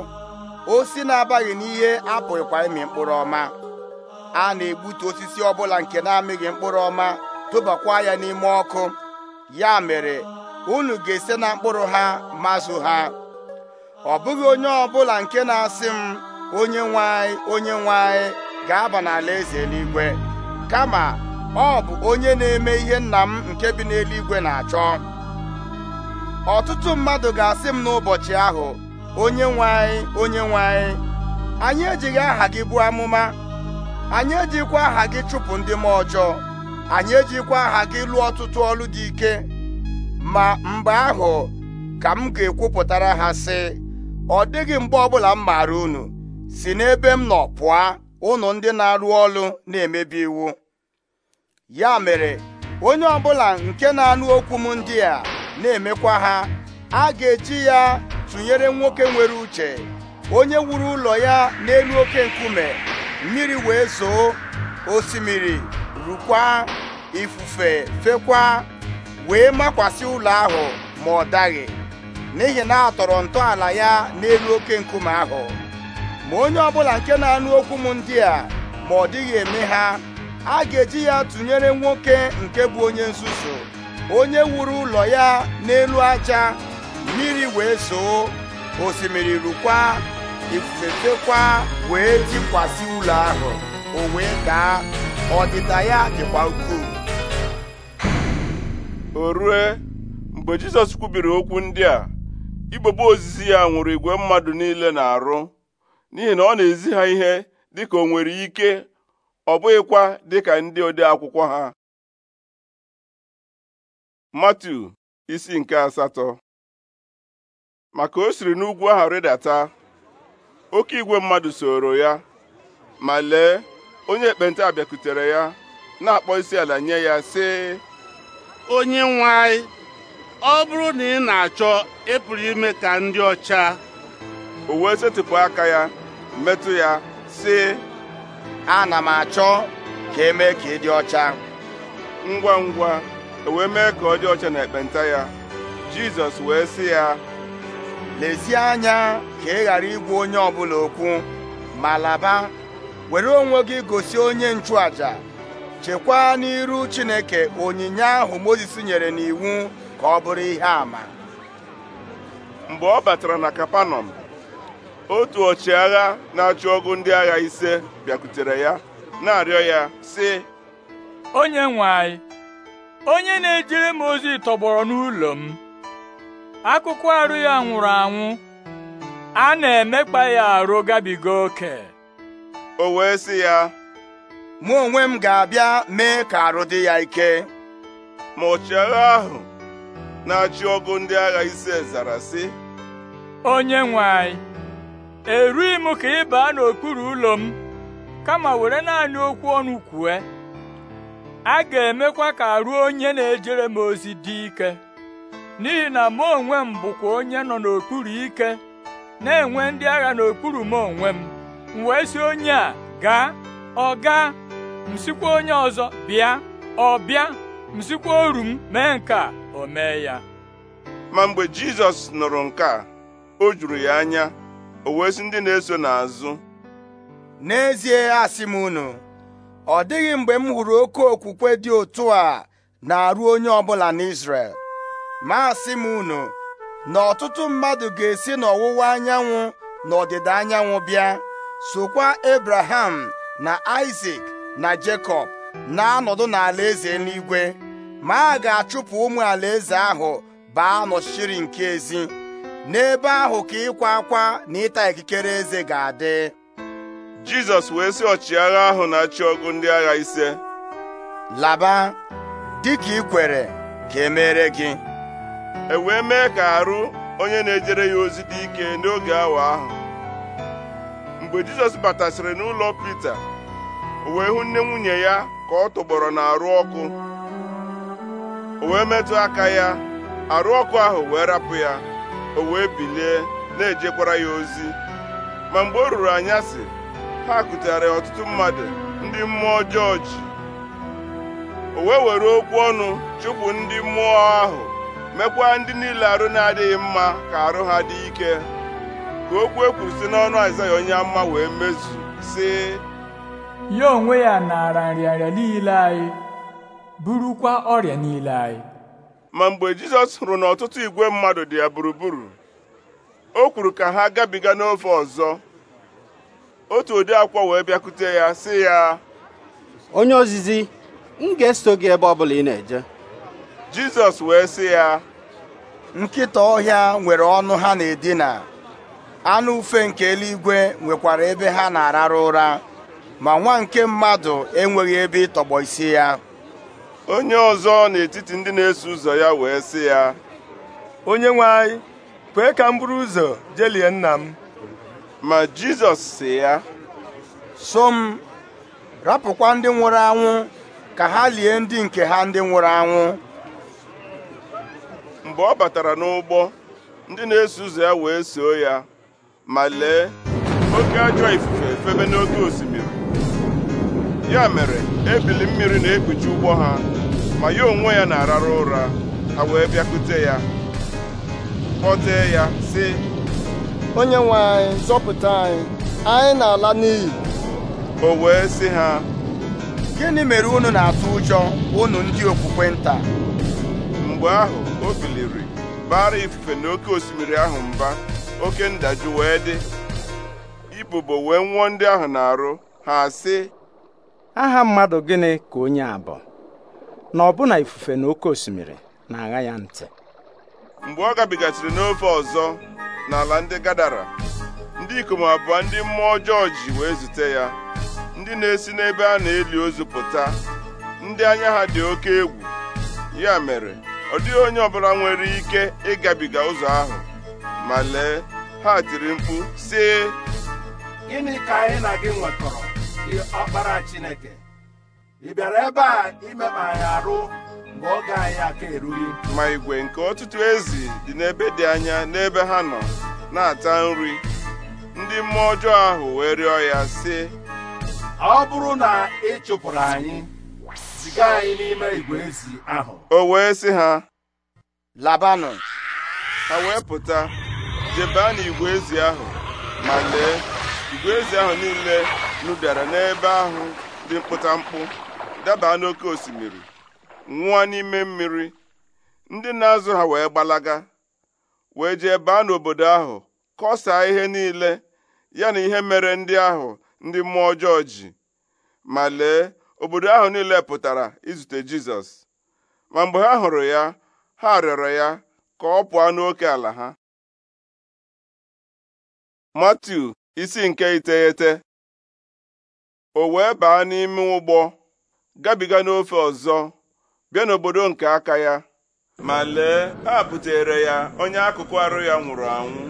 osi na-abaghị n'ihe apụghịkwa ịmị mkpụrụ ọma a na-egbutu osisi ọbụla nke na-amịghị mkpụrụ ọma tụbakwa ya n'ime ọkụ ya mere unu ga-ese na mkpụrụ ha mazụ ha ọ bụghị onye ọbụla nke na-asị m onye nwanyị onye nwanyị ga-aba n'ala eze eluigwe kama ọ bụ onye na-eme ihe nna m nke bi n'eluigwe na-achọ ọtụtụ mmadụ ga-asị m n'ụbọchị ahụ onye nwe anyị onye nwe anyị anyị ejighị aha gị bụ amụma anyị ejikwa aha gị chụpụ ndị m ọjọọ anyị ejikwa aha gị lụọ ọtụtụ ọlụ dị ike ma mgbe ahụ ka m ga-ekwupụtara ha sị ọ dịghị mgbe ọbụla m maara unu si n'ebe m nọ pụọ unu ndị na-arụ ọrụ na-emebi iwu ya mere onye ọbụla nke na-anụ okwu m ndị a na-emekwa ha a ga-eji ya tụnyere nwoke nwere uche onye wuru ụlọ ya n'elu oke nkume mmiri wee zoo osimiri rukwa ifufe fekwa wee makwasị ụlọ ahụ ma ọ daghị n'ihi na a tọrọ ntọala ya n'elu oke nkume ahụ ma onye ọbụla nke na-anụ okwu m ndị a ma ọ dịghị eme ha a ga-eji ya tụnyere nwoke nke bụ onye nzuzu onye wuru ụlọ ya n'elu aja mmiri wee soo osimiri rukwa ifufe fekwa wee jikwasị ụlọ ahụ o wee daa ọdịda ya dịkwa ukwuu o rue mgbe jizọs kwubiri okwu ndị a igbogbo ozizi ya nwụrụ igwe mmadụ niile na-arụ n'ihi na ọ na-ezi ha ihe dịka o nwere ike ọ bụghịkwa dịka ndị ode akwụkwọ ha Matu isi nke asatọ maka o siri n'ugwu ahụ rịdata oke igwe mmadụ soro ya ma lee onye ekpenta bịakutere ya na-akpọ isi ala nye ya si onye nwanyị ọ bụrụ na ị na-achọ ịpụrụ ime ka ndị ọcha o wee setịpụ aka ya metụ ya sị ana m achọ ka emee ka ị dị ọcha ngwa ngwa e wee mee ka ọ dị ọcha na ekpenta ya Jizọs wee sị ya lezie anya ka ị ghara igwu onye ọbụla okwu ma laba were onwe gị gosi onye nchụaja chekwaa n'iru Chineke onyinye ahụ Mozis nyere n'iwu ka ọ bụrụ ihe àmà mgbe ọ batara na Kapanọm otu ọchịagha na-achụ ọgụ ndị agha ise bịakwutere ya na-arịọ ya sị onye nwe anyị onye na-ejere m ozi tọgbọrọ n'ụlọ m akụkụ arụ ya nwụrụ anwụ a na-emekpa ya arụ gabiga oke o wee sị ya mụ onwe m ga-abịa mee ka arụ dị ya ike ma ọchịagha ahụ na-achị ọgụ ndị agha ise zara sị onye nwe anyị erughị m ka ị baa n'okpuru ụlọ m kama were naanị okwu ọnụ kwue a ga-emekwa ka arụ onye na-ejere m ozi dị ike n'ihi na mụ onwe m bụkwa onye nọ n'okpuru ike na-enwe ndị agha n'okpuru m onwe m m wee si onye a gaa ọ gaa m sikwa onye ọzọ bịa ọ bịa m sikwa oru m mee nke a o mee ya ma mgbe Jizọs nụrụ nke a o juru ya anya o wee ndị na-eso n'azụ n'ezie asị m unu ọ dịghị mgbe m hụrụ oke okwukwe dị otu a na-arụ onye ọbụla n'Izrel ma asị m unu na ọtụtụ mmadụ ga-esi n'ọwụwa anyanwụ na ọdịda anyanwụ bịa sokwa Abraham na Isaac na Jekọb na-anọdụ n'ala eze n'igwe ma a ga-achụpụ ụmụ eze ahụ baa nọchiri nke ezi n'ebe ahụ ka ịkwa akwa na ịta ikikere eze ga-adị Jizọs wee sị ọchịagha ahụ na-achị ọgụ ndị agha ise laba dịka ikwere kwere ka e gị e wee mee ka arụ onye na-ejere ya ozi dị ike n'oge awa ahụ mgbe Jizọs batasịrị n'ụlọ Pita o wee hụ nne nwunye ya ka ọ na arụ ọkụ o wee metụ aka ya arụ ọkụ ahụ wee rapụ ya o wee bilie na-ejekwara ya ozi ma mgbe o ruru anyasị ha ya ọtụtụ mmadụ ndị mmụọ ọjọọ o wee were okwu ọnụ chụpụ ndị mmụọ ahụ mekwa ndị niile arụ na-adịghị mma ka arụ ha dị ike ka okwu e kwuru si n'ọnụ Aịzaya onye amụma wee mezu si ya onwe ya naara nrịanrịa niile anyị burukwa ọrịa niile anyị ma mgbe Jizọs hụrụ na ọtụtụ igwe mmadụ dị ya gburugburu o kwuru ka ha gabiga n'ofe ọzọ otu ụdị akwa wee bịakwute ya sị ya onye ozizi m ga-eso gị ebe ọ bụla ị na-eje jizọs wee sị ya nkịta ọhịa nwere ọnụ ha na-edina anụ ufe nke eluigwe nwekwara ebe ha na-arara ụra ma nwa nke mmadụ enweghị ebe ịtọgbọ isi ya onye ọzọ n'etiti ndị na-eso ụzọ ya wee sị ya onye nwe anyị kwee ka m buru ụzọ jelie nna m ma jizọs si ya so m rapụkwa ndị nwụrụ anwụ ka ha lie ndị nke ha ndị nwụrụ anwụ mgbe ọ batara n'ụgbọ ndị na-eso ụzọ ya wee soo ya ma lee oke ajọ ifufe efebe n'oke osimiri ya mere ebili mmiri na-ekpuchi ụgbọ ha ma ya onwe ya na-arara ụra ha wee bịakute ya kpọtee ya si onye nwe anyị zọpụta anyị anyị na-ala n'iyi o wee sị ha gịnị mere unu na-atụ ụjọ unu ndị okwukwe nta mgbe ahụ o biliri bara ifufe na osimiri ahụ mba oke ndajụ wee dị ibubo wee nwụọ ndị ahụ na-arụ ha sị aha mmadụ gịnị ka onye a bụ na ọbụna ifufe na oké osimiri na-agha ya ntị mgbe ọ gabigasịrị n'ofe ọzọ n'ala ndị gadara ndị ikom abụọ ndị mmụọ ọjọọ ji wee zute ya ndị na-esi n'ebe a na-eli ozu pụta ndị anya ha dị oke egwu ya mere ọ dịghị onye ọbụla nwere ike ịgabiga ụzọ ahụ ma lee ha tiri mkpu sị gịnị ka anyị na gị nwetọrọ gị ọkpara Chineke ị bịara ebe a imekpa anyị arụ mgbe oge anyị aka erughị ma igwe nke ọtụtụ ezi dị n'ebe dị anya n'ebe ha nọ na-ata nri ndị mmụọ ọjọọ ahụ wee rịọ ya sị ọ bụrụ na ị chụpụrụ anyị ziga anyị n'ime igwe ezi ahụ o wee sị ha labanụ ha wee pụta a n'igwe ezi ahụ ma lee igwe ezi ahụ niile nụbịara n'ebe ahụ dị mkpụtamkpụ daba n'oké osimiri nwụọ n'ime mmiri ndị na-azụ ha wee gbalaga wee jee baa n'obodo ahụ kọsaa ihe niile ya na ihe mere ndị ahụ ndị mmụọ ọjọọ ji ma lee obodo ahụ niile pụtara izute Jizọs ma mgbe ha hụrụ ya ha rịọrọ ya ka ọ pụọ n'oke ala ha Matiu isi nke iteghete o wee baa n'ime ụgbọ gabiga n'ofe ọzọ bịa n'obodo nke aka ya ma lee ha butere ya onye akụkụ arụ ya nwụrụ anwụ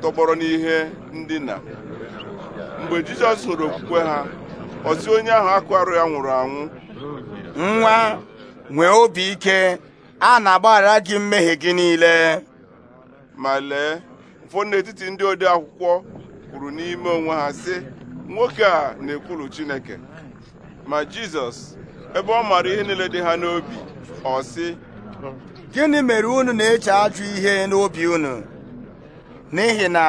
tọgbọrọ n'ihe ndina mgbe Jizọs hụrụ okwukwe ha ọzi onye ahụ akwarụ ya nwụrụ anwụ nwa nwee obi ike a na-agbaghara gị mmehie gị niile ma lee ụfọdụ n'etiti ndị ode akwụkwọ kwuru n'ime onwe ha sị nwoke a na-ekwulu Chineke ma Jizọs ebe ọ maara ihe niile dị ha n'obi ọ sị gịnị mere unu na-eche ajụ ihe n'obi unu n'ihi na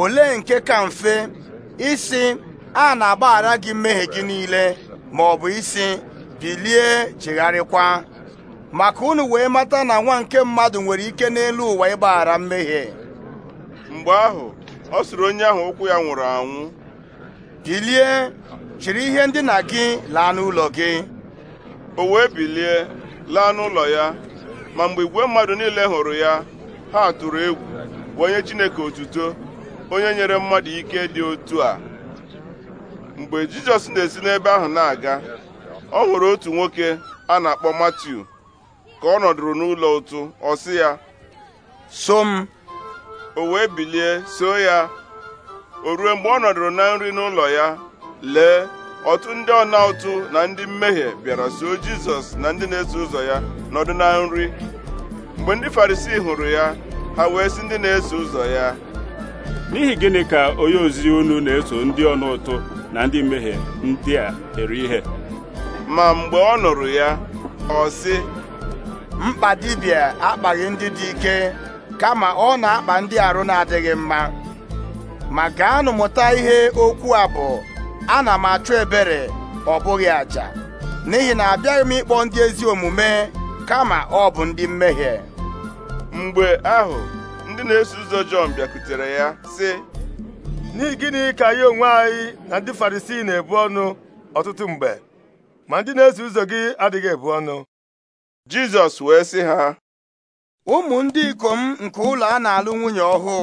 ole nke ka mfe isi a na-agbaghara gị mmehie gị niile ma ọ bụ isi bilie chigharịkwa maka unu wee mata na nwa nke mmadụ nwere ike n'elu ụwa ịgbaghara mmehie mgbe ahụ ọ sụrụ onye ahụ ụkwụ ya nwụrụ anwụ bilie chịrị ihe ndina gị laa n'ụlọ gị o wee bilie laa n'ụlọ ya ma mgbe igwe mmadụ niile hụrụ ya ha tụrụ egwu bụ onye Chineke otuto onye nyere mmadụ ike dị otu a mgbe jizọs na-esi n'ebe ahụ na-aga ọ nwere otu nwoke a na-akpọ matiu ka ọ nọdụrụ n'ụlọ ụtụ ọ sị ya so m o wee bilie so ya o ruo mgbe ọ nọdụrụ na nri n'ụlọ ya lee ọtụ ndị ọna ụtụ na ndị mmehie bịara so jizọs na ndị na-eso ụzọ ya nọdụ na nri mgbe ndị farisii hụrụ ya ha wee sị ndị na-eso ụzọ ya n'ihi gịnị ka onye ozizi unu na-eso ndị ọna ụtụ na ndị mmehie ndị a eri ihe ma mgbe ọ nụrụ ya ọ sị mkpa dibịa akpaghị ndị dị ike kama ọ na-akpa ndị arụ na-adịghị mma ma gaanụ mụta ihe okwu a bụ ana m achọ ebere ọ bụghị aja n'ihi na abịaghị m ịkpọ ndị ezi omume kama ọ bụ ndị mmehie mgbe ahụ ndị na-eso ụzọ Jọn bịakutere ya sị n'ihi gịnị ka anyị onwe anyị na ndị farisii na-ebu ọnụ ọtụtụ mgbe ma ndị na-eso ụzọ gị adịghị ebu ọnụ Jizọs wee sị ha ụmụ ndị ikom nke ụlọ a na-alụ nwunye ọhụụ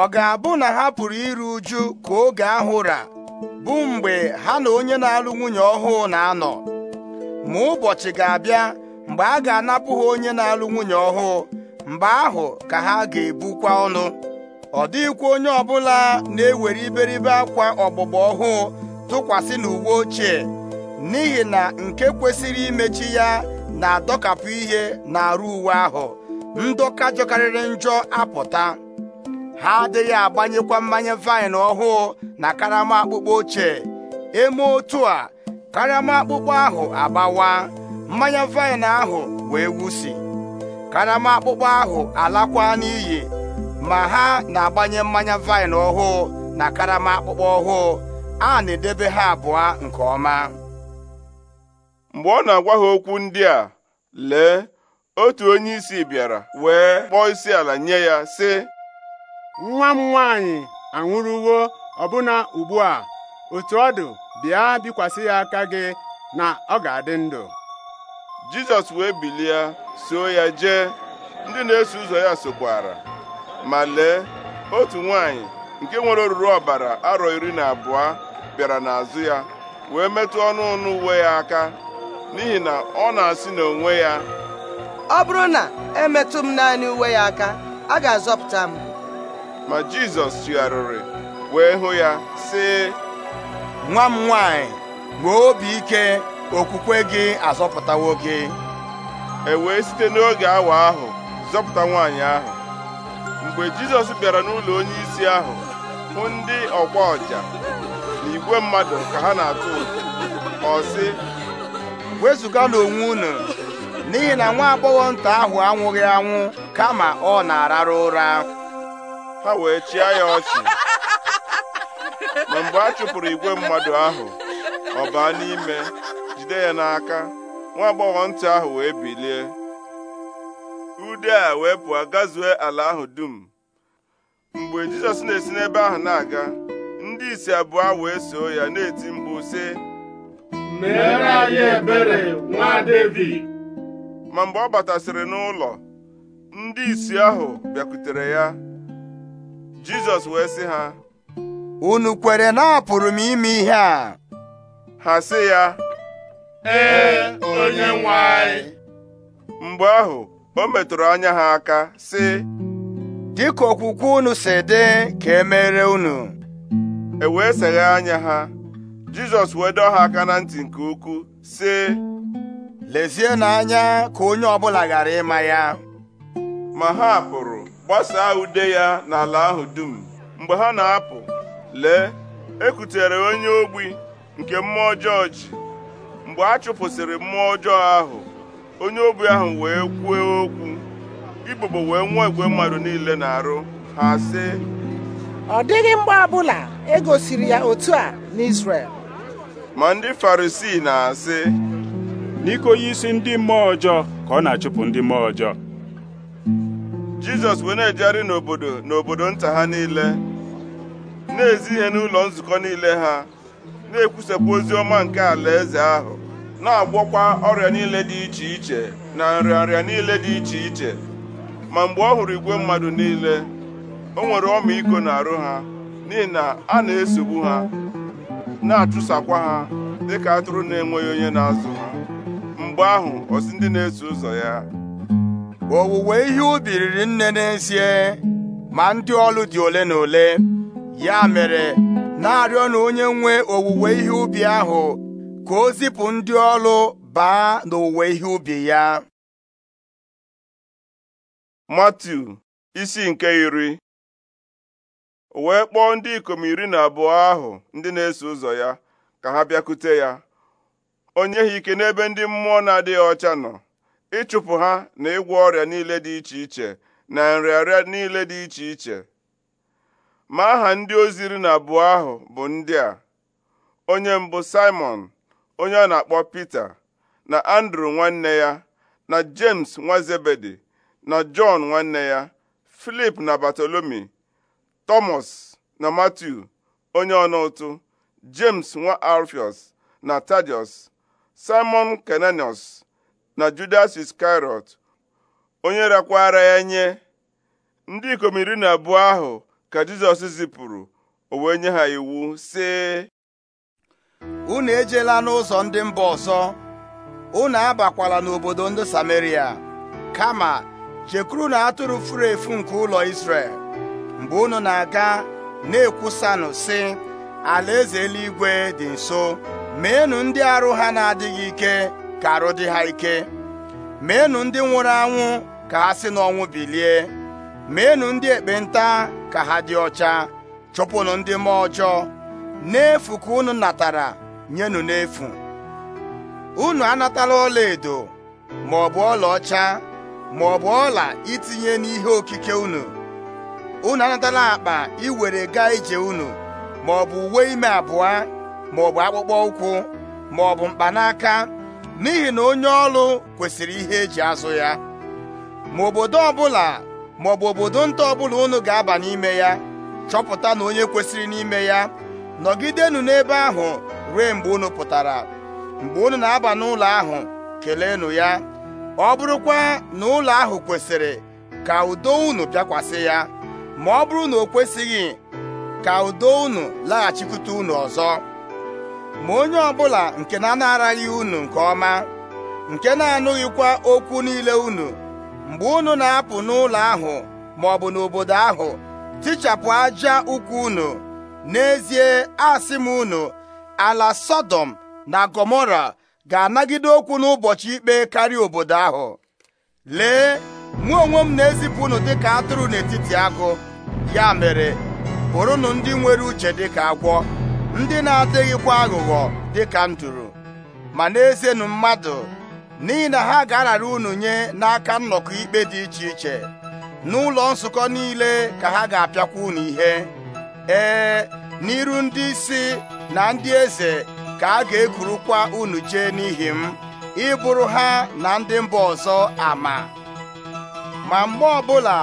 ọ ga-abụ na ha pụrụ iru uju ka oge ahụ ra bụ mgbe ha na onye na-alụ nwunye ọhụụ na-anọ ma ụbọchị ga-abịa mgbe a ga-anapụ ha onye na-alụ nwunye ọhụụ mgbe ahụ ka ha ga-ebukwa ọnụ ọ dịghịkwa onye ọbụla na-ewere iberibe akwa ọgbụgba ọhụụ tụkwasị n'uwe ochie n'ihi na nke kwesịrị imechi ya na-adọkapụ ihe na-arụ uwe ahụ ndọka jọkarịrị njọ apụta ha adịghị agbanyekwa mmanya vaịn ọhụụ na karama akpụkpọ ochie eme otu a karama akpụkpọ ahụ agbawa mmanya vaịn ahụ wee wusi karama akpụkpọ ahụ alakwa n'iyi ma ha na-agbanye mmanya vaịn ọhụụ na karama akpụkpọ ọhụụ a na-edebe ha abụọ nke ọma mgbe ọ na-agwa ha okwu ndị a lee otu onye isi bịara wee kpọọ isi ala nye ya sị nwa m nwaanyị anwụrụwo ọbụna ugbu a otu ọ dụ bịa bikwasị ya aka gị na ọ ga-adị ndụ Jizọs wee bilie soo ya jee ndị na-eso ụzọ ya sokwara ma lee otu nwanyị nke nwere oruru ọbara arọ iri na abụọ bịara n'azụ ya wee metụ ọnụ ọnụ uwe ya aka n'ihi na ọ na-asị na onwe ya ọ bụrụ na emetụ m naanị uwe ya aka a ga-azọpụta m ma Jizọs tụgharịrị wee hụ ya sị nwa m nwaanyị, nwee obi ike okwukwe gị azọpụtawo gị e wee site n'oge awa ahụ zọpụta nwaanyị ahụ mgbe jizọs bịara n'ụlọ onyeisi ahụ hụ ndị ọkwa ọja na igwe mmadụ ka ha na-atụ ọ sị wezụgala onwe unu n'ihi na nwa agbọghọ nta ahụ anwụghị anwụ kama ọ na ararụ ụra ha wee chịa ya ọchị ma mgbe a chụpụrụ igwe mmadụ ahụ ọ baa n'ime jide ya n'aka nwa agbọghọ ntị ahụ wee bilie ude a wee pụọ gazue ala ahụ dum mgbe jizọs na-esi n'ebe ahụ na-aga ndị isi abụọ wee soo ya na-eti mkpu sị meere anyị ebere nwa David ma mgbe ọ batasịrị n'ụlọ ndị isi ahụ bịakwutere ya jizọs wee sị ha unu kwere na apụrụ m ime ihe a ha sị ya ee onye nwe anyị mgbe ahụ o metụrụ anya ha aka sị dịka okwukwe unu si dị ka emere unu e wee seghe anya ha Jizọs wee dọọ ha aka na ntị nke ukwuu sị lezie na anya ka onye ọbụla ghara ịma ya ma ha pụrụ gbasaa ude ya n'ala ahụ dum mgbe ha na-apụ lee ekutere onye ogbi nke mmụọ ọjọọ mgbe a chụpụsịrị mmụọ ọjọọ ahụ onye obi ahụ wee kwuo okwu ibobo wee nwụọ igwe mmadụ niile na-arụ ha si. ọ dịghị mgbe ọbụla e gosiri ya otu a n'Israel ma ndị Farisii na-asị n'iko onye isi ndị mmụọ ọjọọ ka ọ na-achụpụ ndị mmụọ ọjọọ Jizọs wee na-ejegharị n'obodo n'obodo nta ha niile na-ezi ihe n'ụlọ nzukọ niile ha na-ekwusapụ ozi ọma nke alaeze ahụ na-agwọkwa ọrịa niile dị iche iche na nrịanrịa niile dị iche iche ma mgbe ọ hụrụ igwe mmadụ niile o nwere ọmịiko arụ ha n'ihi na a na-esogbu ha na-achụsakwa ha dịka atụrụ na-enweghị onye na-azụ ha mgbe ahụ ọ ndị na-eso ụzọ ya owuwe ihe ubi riri nne n'ezie ma ndị ọlụ dị ole na ole ya mere na-arịọ na onye nwe owuwe ihe ubi ahụ ka o zipụ ndị ọlụ baa n'owuwe ihe ubi ya matu isi nke iri wee kpọọ ndị ikom iri na abụọ ahụ ndị na-eso ụzọ ya ka ha bịakute ya onye ha ike n'ebe ndị mmụọ na-adịghị ọcha nọ ịchụpụ ha na ịgwọ ọrịa niile dị iche iche na nrịarịa niile dị iche iche ma aha ndị ozi iri na abụọ ahụ bụ ndị a onye mbụ Simon onye a na-akpọ Pita na Andrew nwanne ya na James nwa Zebedi na john nwanne ya Filip na Batolomi Thomas na matthew onye ọna ụtụ James nwa Alfios na Tadius Simon Kenanius na Judas Iscariot onye rakwara ya nye ndị ikom iri na abụọ ahụ ka Jizọs zipụrụ o wee nye ha iwu sị unu ejela n'ụzọ ndị mba ọzọ unu abakwala n'obodo ndị Sameria kama jekwuru na atụrụ furu efu nke ụlọ isrel mgbe unu na-aga na-ekwusanụ sị alaeze eluigwe dị nso meenụ ndị arụ ha na-adịghị ike ka arụ dị ha ike meenụ ndị nwụrụ anwụ ka ha si n'ọnwụ bilie meenụ ndị ekpenta ka ha dị ọcha chụpụnụ ndị mmụọ ọjọọ n'efu ka unu natara nyenụ n'efu unu anatala ọla ma ọ bụ ọlaọcha ma ọ bụ ọla itinye n'ihe okike unu unu anatala akpa iwere gaa ije unu ma ọ bụ uwe ime abụọ ma ọ bụ akpụkpọ ụkwụ ma ọ bụ mkpanaka n'ihi na onye ọrụ kwesịrị ihe eji azụ ya ma obodo ọbụla ma ọ bụ obodo nta ọbụla unu ga-aba n'ime ya chọpụta na onye kwesịrị n'ime ya nọgidenụ n'ebe ahụ ruo mgbe unu pụtara mgbe unu na-aba n'ụlọ ahụ keleenụ ya ọ bụrụkwa na ụlọ ahụ kwesịrị ka udo unu bịakwasị ya ma ọ bụrụ na o kwesịghị ka udo unu laghachikwute unu ọzọ ma onye ọbụla nke na-anaraghị unu nke ọma nke na-anụghịkwa okwu niile unu mgbe unu na-apụ n'ụlọ ahụ ma ọ bụ n'obodo ahụ tichapụ aja ụkwụ unu n'ezie asị m unu ala sodom na gomora ga-anagide okwu n'ụbọchị ikpe karịa obodo ahụ lee mụ onwe m na-ezipụ unu dịka atụrụ n'etiti agụ ya mere bụrụnụ ndị nwere uche dịka agwọ ndị na-adịghịkwa aghụghọ dịka nduru ma na-ezenụ mmadụ n'ihi na ha ga-arara unu nye n'aka nnọkọ ikpe dị iche iche n'ụlọ nzukọ niile ka ha ga-apịakwa unu ihe ee n'iru ndị isi na ndị eze ka a ga-ekurukwa unu chee n'ihi m ịbụrụ ha na ndị mba ọzọ ama ma mgbe ọbụla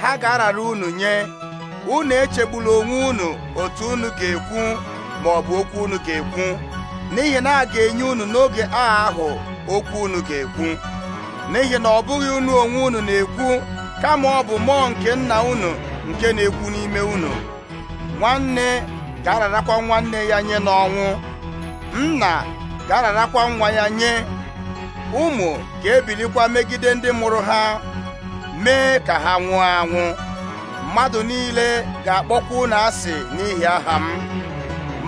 ha ga-arara unu nye unu echegbula onwe unu otu unu ga-ekwu ma ọ bụ okwu unu ga-ekwu n'ihi na a ga-enye unu n'oge agha ahụ okwu unu ga-ekwu n'ihi na ọ bụghị unu onwe unu na-ekwu kama ọ bụ mmụọ nke nna unu nke na-ekwu n'ime unu nwanne ga-ararakwa nwanne ya nye n'ọnwụ nna ga-ararakwa nwa ya nye ụmụ ga-ebilikwa megide ndị mụrụ ha mee ka ha nwụọ anwụ mmadụ niile ga-akpọkwa unu asị n'ihi aha m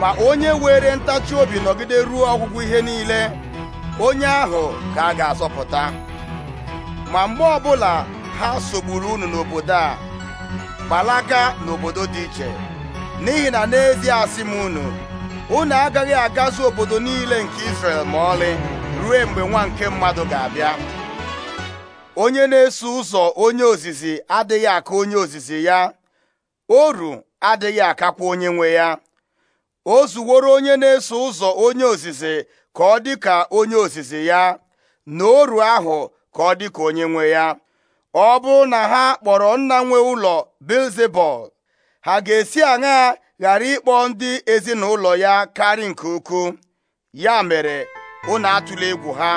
ma onye were ntachi obi nọgide ruo ọgwụgwụ ihe niile onye ahụ ka a ga-azọpụta ma mgbe ọbụla ha sogburu unu n'obodo a gbalaga n'obodo dị iche n'ihi na n'ezie asị m unu unu agaghị agazu obodo niile nke Israel ma ọlị ruo mgbe nwa nke mmadụ ga-abịa onye na-eso ụzọ onye ozizi adịghị aka onye ozizi ya oru adịghị akakwa onye nwe ya o zuworo onye na-eso ụzọ onye ozizi ka ọ dị ka onye ozizi ya na oru ahụ ka ọ dị ka onye nwe ya ọ bụrụ na ha kpọrọ nna nwe ụlọ Bilzebul ha ga-esi aṅaa ghara ịkpọ ndị ezinụlọ ya karị nke ukwu ya mere unu atụla egwu ha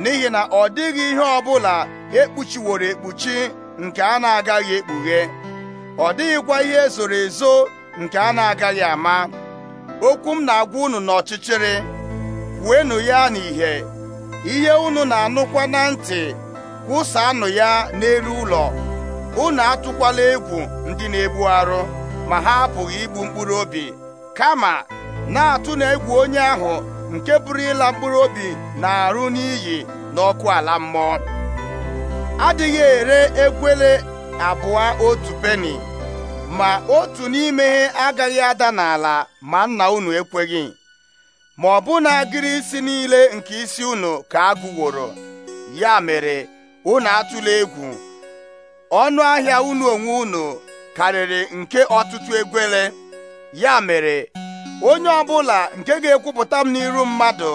n'ihi na ọ dịghị ihe ọ bụla ekpuchiworo ekpuchi nke a na-agaghị ekpughe ọ dịghịkwa ihe ezoro ezo nke a na-agaghị ama okwu m na-agwa unu n'ọchịchịrị kwuenụ ya n'ìhè ihe unu na-anụkwa na ntị kwụsaanụ ya n'elu ụlọ unu atụkwala egwu ndị na-egbu arụ ma ha apụghị igbu mkpụrụ obi kama na-atụ na egwu onye ahụ nke pụrụ ịla mkpụrụ obi na-arụ n'iyi n'ọkụ ala mmụọ adịghị ere egwele abụọ otu peni ma otu n'ime agaghị ada n'ala ma nna unu ekweghị ma ọ bụ na agịrị isi niile nke isi unu ka agụworo ya mere unu atụla egwu ọnụ ahịa unu onwe unu karịrị nke ọtụtụ egwele ya mere onye ọbụla nke ga-ekwupụta m n'iru mmadụ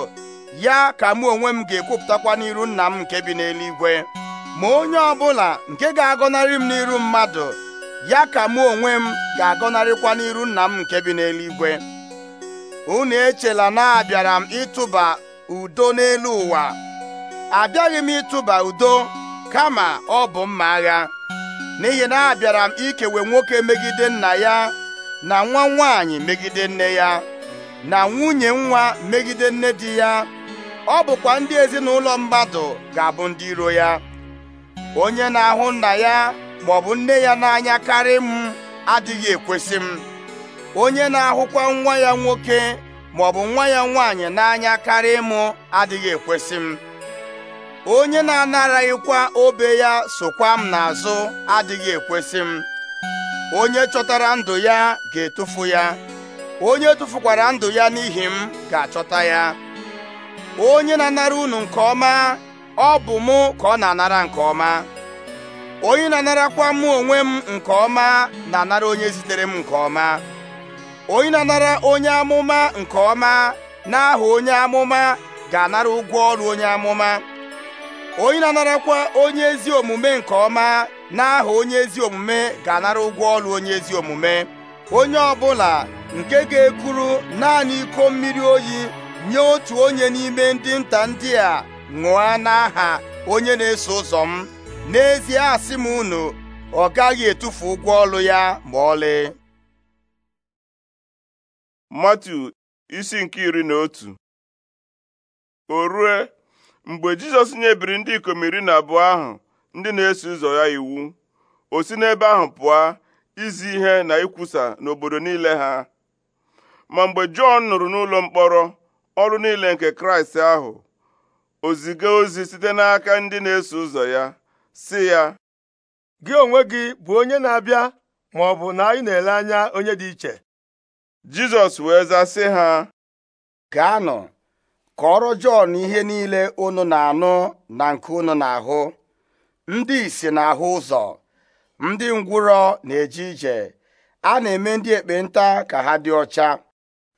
ya ka mụ onwe m ga-ekwupụtakwa n'iru nna m nke bi n'eluigwe ma onye ọbụla nke ga-agọnarị m n'iru mmadụ ya ka mụ onwe m ga-agọnarịkwa n'iru nna m nke bi n'eluigwe unu echela na abịara m ịtụba udo n'elu ụwa abịaghị m ịtụba udo kama ọ bụ mma agha n'ihi na abịara m ikewe nwoke megide nna ya na nwa nwaanyị megide nne ya na nwunye nwa megide nne di ya ọ bụkwa ndị ezinụlọ mmadụ ga-abụ ndị iro ya onye na-ahụ nna ya ma ọ bụ nne ya na-ahụkwa nwa ya nwoke maọbụ nwa ya nwaanyị n'anya karị m adịghị ekwesị m onye na-anaraghịkwa obe ya sokwa m n'azụ adịghị ekwesị m onye chọtara ndụ ya ga-etufu ya onye tụfukwara ndụ ya n'ihi m ga-achọta ya onye na-anara unu nke ọma ọ bụ mụ ka ọ na-anara nke ọma onye na-anarakwa mụ onwe m nke ọma na-anara onye zitere m nke ọma onye na-anara onye amụma nke ọma n'aha onye amụma ga-anara ụgwọ ọrụ onye amụma onye na-anarakwa onye ezi omume nke ọma n'aha onye ezi omume ga-anara ụgwọ ọrụ onye ezi omume onye ọ bụla nke ga-ekuru naanị iko mmiri oyi nye otu onye n'ime ndị nta ndị a ṅụọ n'aha onye na-eso ụzọ m n'ezie asị m unu ọ gaghị etufu ụgwọ ọrụ ya ma ọlị Matu isi nke iri na otu o rue mgbe jizọs nyebiri ndị ikom iri na abụọ ahụ ndị na-eso ụzọ ya iwu o si n'ebe ahụ pụọ izi ihe na ikwusa n'obodo niile ha ma mgbe jọn nụrụ n'ụlọ mkpọrọ ọrụ niile nke kraịst ahụ o ziga ozi site n'aka ndị na-eso ụzọ ya si ya gị onwe gị bụ onye na-abịa ma ọ bụ na anyị na-ele anya onye dị iche jizọs wee zaa sị ha nọ kọrọ Jọn ihe niile unu na-anụ na nke unu na-ahụ ndị isi na-ahụ ụzọ ndị ngwụrọ na-eje ije a na-eme ndị ekpenta ka ha dị ọcha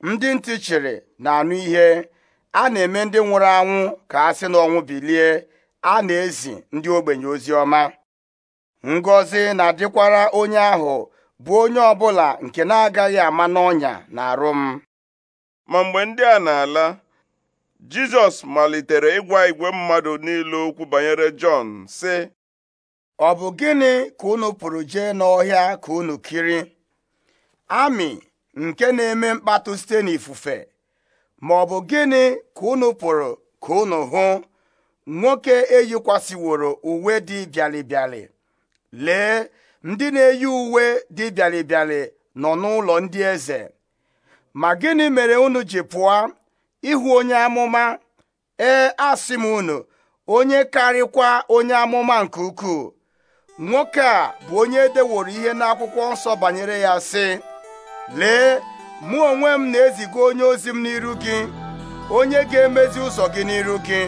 ndị ntị chịrị na-anụ ihe a na-eme ndị nwụrụ anwụ ka sị si n'ọnwụ bilie a na-ezi ndị ogbenye ozi ọma ngọzi na-adịkwara onye ahụ bụ onye ọbụla nke na-agaghị ama n'ọnya na arụ m ma mgbe ndị a na-ala Jizọs malitere ịgwa igwe mmadụ niile okwu banyere Jọn sị ọ bụ gịnị ka unu pụrụ jee n'ọhịa ka unu kiri amị nke na-eme mkpatụ site n'ifufe ma ọ bụ gịnị ka unu pụrụ ka unu hụ nwoke eyikwasịworo uwe dị bịalịbịalị lee ndị na-eyi uwe dị bịalịbịalị nọ n'ụlọ ndị eze ma gịnị mere unu ji pụọ ịhụ onye amụma ee asị m unu onye karịkwa onye amụma nke ukwuu nwoke a bụ onye edeworo ihe n'akwụkwọ nsọ banyere ya sị lee mụ onwe m na-eziga onye ozi m n'iru gị onye ga-emezi ụzọ gị n'iru gị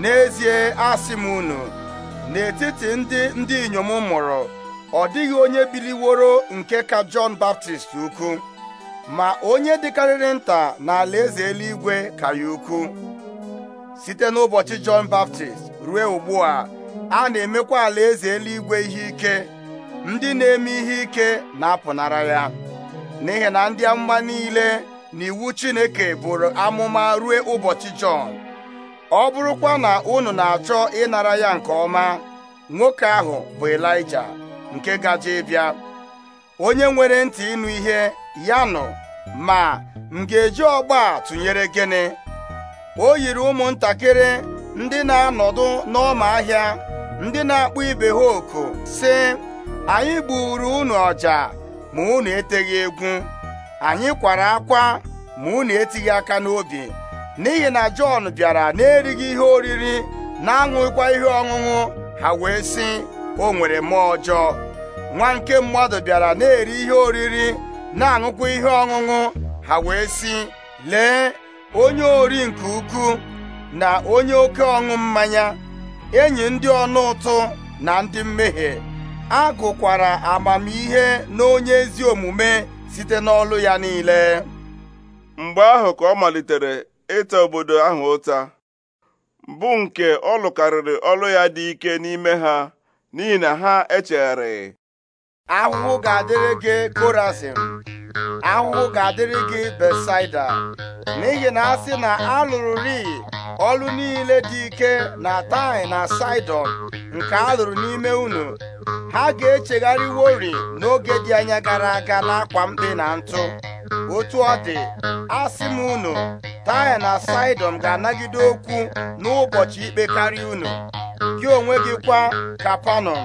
n'ezie asị m unu n'etiti ndị ndị inyom mụrụ ọ dịghị onye biliworo nke ka Jọn Baptist ukwu ma onye dịkarịrị nta n'ala eze eluigwe karịa ukwu site n'ụbọchị Jọn Baptist ruo ugbu a a na-emekwa ala eze eluigwe ihe ike ndị na-eme ihe ike na-apụnara ya n'ihi na ndị amụma niile na iwu Chineke bụrụ amụma ruo ụbọchị Jọn ọ bụrụkwa na unu na-achọ ịnara ya nke ọma nwoke ahụ bụ Elija nke gaje ịbịa onye nwere ntị ịnụ ihe ya nụ ma m ga-eji ọgba tụnyere gịnị o yiri ụmụntakịrị ndị na-anọdụ n'ọma ahịa ndị na-akpụ ibe ha oku sị anyị gburu unu ọja ma unu eteghị egwu anyị kwara akwa ma unu etighị aka n'obi n'ihi na Jọn bịara na-erighị ihe oriri na-aṅụkwa ihe ọṅụṅụ ha wee sị o nwere mmụọ ọjọọ nwa nke mmadụ bịara na-eri ihe oriri na-aṅụkwa ihe ọṅụṅụ ha wee si: lee onye ori nke ukwuu na onye oke ọṅụ mmanya enyi ndị ọnụ ụtụ na ndị mmehie a gụkwara amamihe na onye ezi omume site n'ọlụ ya niile mgbe ahụ ka ọ malitere ịta obodo ahụ ụta bụ nke ọ lụkarịrị ọlụ ya dị ike n'ime ha n'ihi na ha echegharị ahụhụ ga-adịrị gị korasin ahụhụ ga-adịrị gị Besaida n'ihi na a sị na a lụrụ ri ọlụ niile dị ike na tai na Saịdọn nke a lụrụ n'ime unu ha ga-echegharịwori echegharị n'oge dị anya gara aga n'akwa mkpe na ntụ otu ọ dị asị m unu Taịn na Saịdọn ga-anagide okwu n'ụbọchị ikpe karịa unu gị onwe gị kwa Kapanọm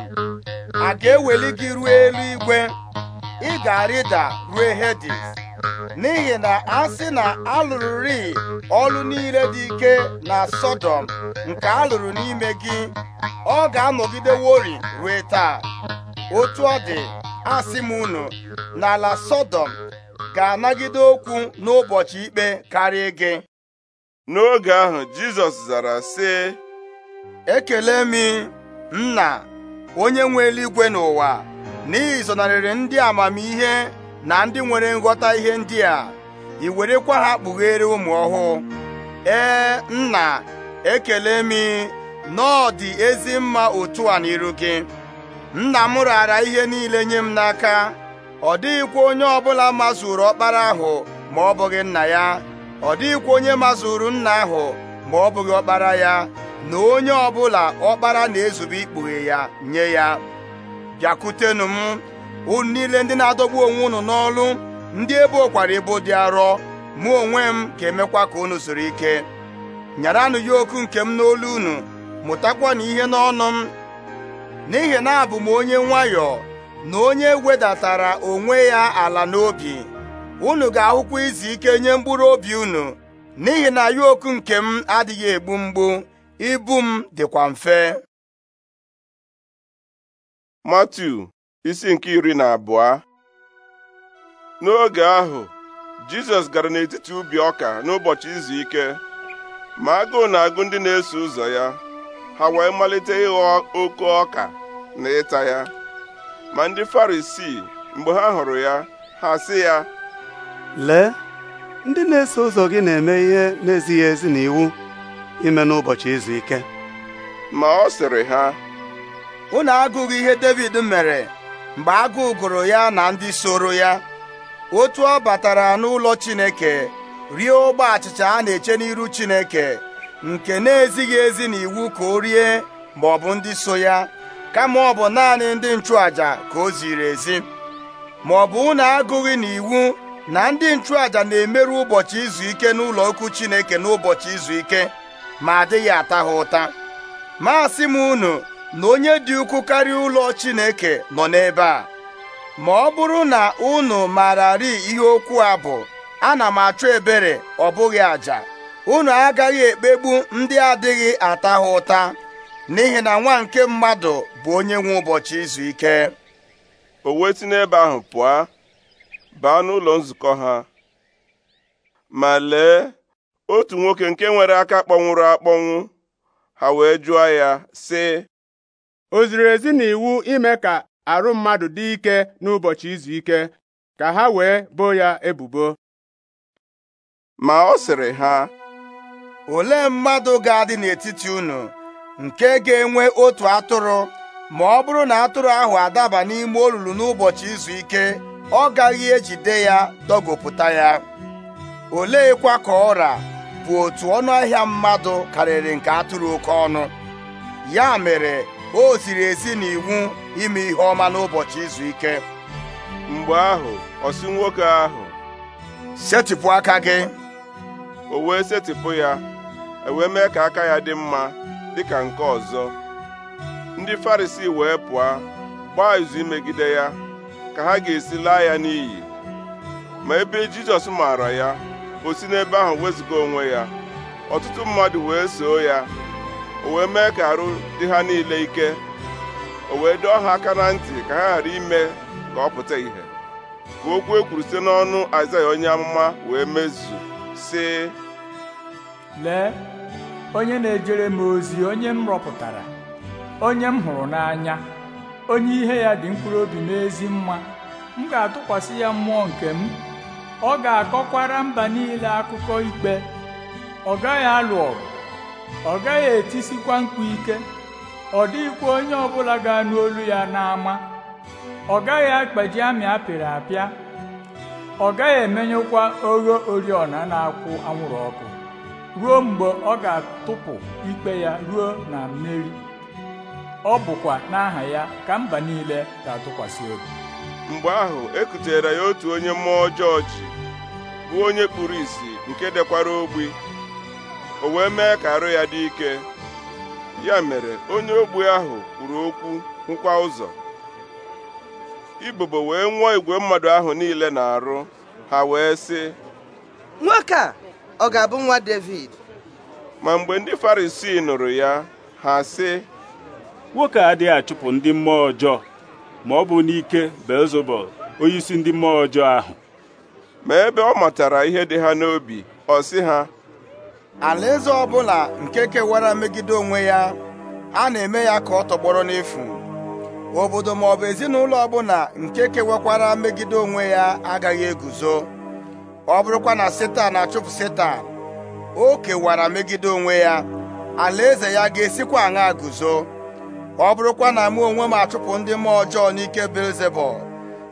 a ga-eweli gị ruo eluigwe ị ga-arịda rue Hedis n'ihi na a sị na alụrụrị ọlụ niile dị ike na Sọdọm nke alụrụ n'ime gị ọ ga-anọgidewori rue taa otu ọ dị asị m unu na ala Sọdọm ga-anagide okwu n'ụbọchị ikpe karịa gị n'oge ahụ Jizọs zara sị ekele m nna onye nwe eluigwe n'ụwa na ịzọnarịrị ndị amamihe na ndị nwere nghọta ihe ndị a ị werekwa ha kpughere ụmụ ọhụụ ee nna ekele m na dị ezi mma otu a n'iru gị nna m raara ihe niile nye m n'aka ọ dịghịkwa onye ọbụla mazuru ọkpara ahụ ma ọ bụghị nna ya ọ dịghịkwa onye mazuru nna ahụ ma ọ bụghị ọkpara ya na onye ọbụla ọkpara na-ezube ikpughe ya nye ya bịakwutenụ m unu niile ndị na-adọgbu onwe unu n'ọlụ ndị ebe okwara ibu dị arọ mụ onwe m ga-emekwa ka unu zuru ike nyaranụ ya okwu nke m n'olu unu mụtakwanụ ihe n'ọnụ m n'ihi na abụ m onye nwayọọ na onye wedatara onwe ya ala n'obi unu ga-ahụkwa izu ike nye mkpụrụ obi unu n'ihi na ya okwu nke m adịghị egbu mgbu ibu m dịkwa mfe Matiu isi nke iri na abụọ n'oge ahụ Jizọs gara n'etiti ubi ọka n'ụbọchị izu ike ma agụụ na-agụ ndị na-eso ụzọ ya ha wee malite ịghọ oke ọka na ịta ya ma ndị Farisii mgbe ha hụrụ ya ha sị ya lee ndị na-eso ụzọ gị na-eme ihe na-ezighị ezi na iwu ime n'ụbọchị izu ike ma ọ sịrị ha unu agụghị ihe David mere mgbe agụụ gụrụ ya na ndị soro ya otu ọ batara n'ụlọ Chineke rie ụgbọ achịcha a na-eche n'iru Chineke nke na-ezighị ezi n'iwu ka o rie ma ọ bụ ndị so ya kama ọ bụ naanị ndị nchụàja ka o ziri ezi ma ọ bụ unu agụghị n'iwu na ndị nchụàja na-emerụ ụbọchị izu ike n'ụlọ okwu Chineke n'ụbọchị izu ike ma adịghị ata ha ụta ma asị m unu na onye dị ukwu karịa ụlọ Chineke nọ n'ebe a ma ọ bụrụ na unu maararị ihe okwu a bụ ana m achọ ebere ọ bụghị àjà unu agaghị ekpegbu ndị adịghị ata ha ụta n'ihi na nwa nke mmadụ bụ onye nwe ụbọchị izu ike o wee n'ebe ahụ pụọ baa n'ụlọ nzukọ ha ma lee otu nwoke nke nwere aka kpọnwụrụ akpọnwụ ha wee jụọ ya sị o ziri ezi na iwu ime ka arụ mmadụ dị ike n'ụbọchị izu ike ka ha wee boo ya ebubo ma ọ sịrị ha olee mmadụ ga-adị n'etiti unu nke ga-enwe otu atụrụ ma ọ bụrụ na atụrụ ahụ adaba n'ime olulu n'ụbọchị izu ike ọ gaghị ejide ya dọgopụta ya oleekwa ka ọra bụ otu ọnụ ahịa mmadụ karịrị nke atụrụ oke ọnụ ya mere o ziri ezi na iwu ime ihe ọma n'ụbọchị izu ike mgbe ahụ ọ nwoke ahụ setịpụ aka gị o wee setịpụ ya e mee ka aka ya dị mma dị ka nke ọzọ ndị Farisii wee pụọ gbaa izu imegide ya ka ha ga-esi laa ya n'iyi ma ebe Jizọs maara ya o si n'ebe ahụ wezụga onwe ya ọtụtụ mmadụ wee soo ya o wee mee ka arụ dị ha niile ike o wee dọọ ha aka na ntị ka ha ghara ime ka ọ pụta ìhè ka okwu e kwuru site n'ọnụ Aịzaya onye amụma wee mezu sị lee onye na-ejere m ozi onye m rọpụtara onye m hụrụ n'anya onye ihe ya dị mkpụrụ obi n'ezi mma m ga-atụkwasị ya mmụọ nke m ọ ga-akọkwara mba niile akụkọ ikpe ọ gaghị alụ ọgụ ọ gaghị etisikwa mkpu ike ọ dịghịkwa onye ọbụla ga-anụ olu ya n'ama ọ gaghị akpaji amị apịrị apịa ọ gaghị emenyekwa ogho oriọna na-akwụ anwụrụ ọkụ ruo mgbe ọ ga-atụpụ ikpe ya ruo na mmeri ọ bụkwa n'aha ya ka mba niile ga-atụkwasị obi mgbe ahụ ekutere ya otu onye mmụọ ọjọọ ji onye kpuru ìsì nke dekwara ogbi o wee mee ka arụ ya dị ike ya mere onye ogbu ahụ kwuru okwu hụkwa ụzọ ibobo wee nwụọ igwe mmadụ ahụ niile na-arụ ha wee sị nwoke a ọ ga-abụ nwa David ma mgbe ndị Farisii nụrụ ya ha sị nwoke adịghị achụpụ ndị mmụọ ọjọọ ma ọ bụ n'ike Belzebul onyeisi ndị mmụọ ọjọọ ahụ ma ebe ọ matara ihe dị ha n'obi ọ sị ha alaeze ọbụla nke kewara megide onwe ya a na-eme ya ka ọ tọgbọrọ n'efu obodo maọbụ ezinụlọ ọbụla nke kewakwara megide onwe ya agaghị eguzo ọ bụrụkwa na setan achụpụ setan o kewara megide onwe ya alaeze ya ga-esikwa aṅa guzo ọ bụrụkwa na mụ onwe m achụpụ ndị mmụọ ọjọọ n'ike belzebul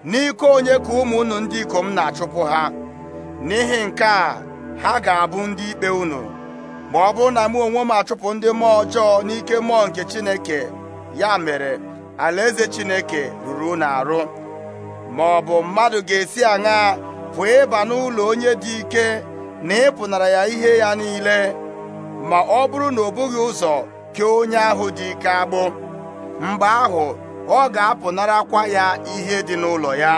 n'ike onye ka ụmụ unu ndị ikom na-achụpụ ha n'ihi nke a ha ga-abụ ndị ikpe unu ma ọ bụrụ na mụ onwe m achụpụ ndị mmụọ ọjọọ n'ike mmụọ nke Chineke ya mere alaeze Chineke ruru unu arụ ma ọ bụ mmadụ ga-esi aṅa pụọ ịba n'ụlọ onye dị ike na ịpụnara ya ihe ya niile ma ọ bụrụ na ọ bụghị ụzọ kee onye ahụ dị ike agbụ mgbe ahụ ọ ga-apụnarakwa ya ihe dị n'ụlọ ya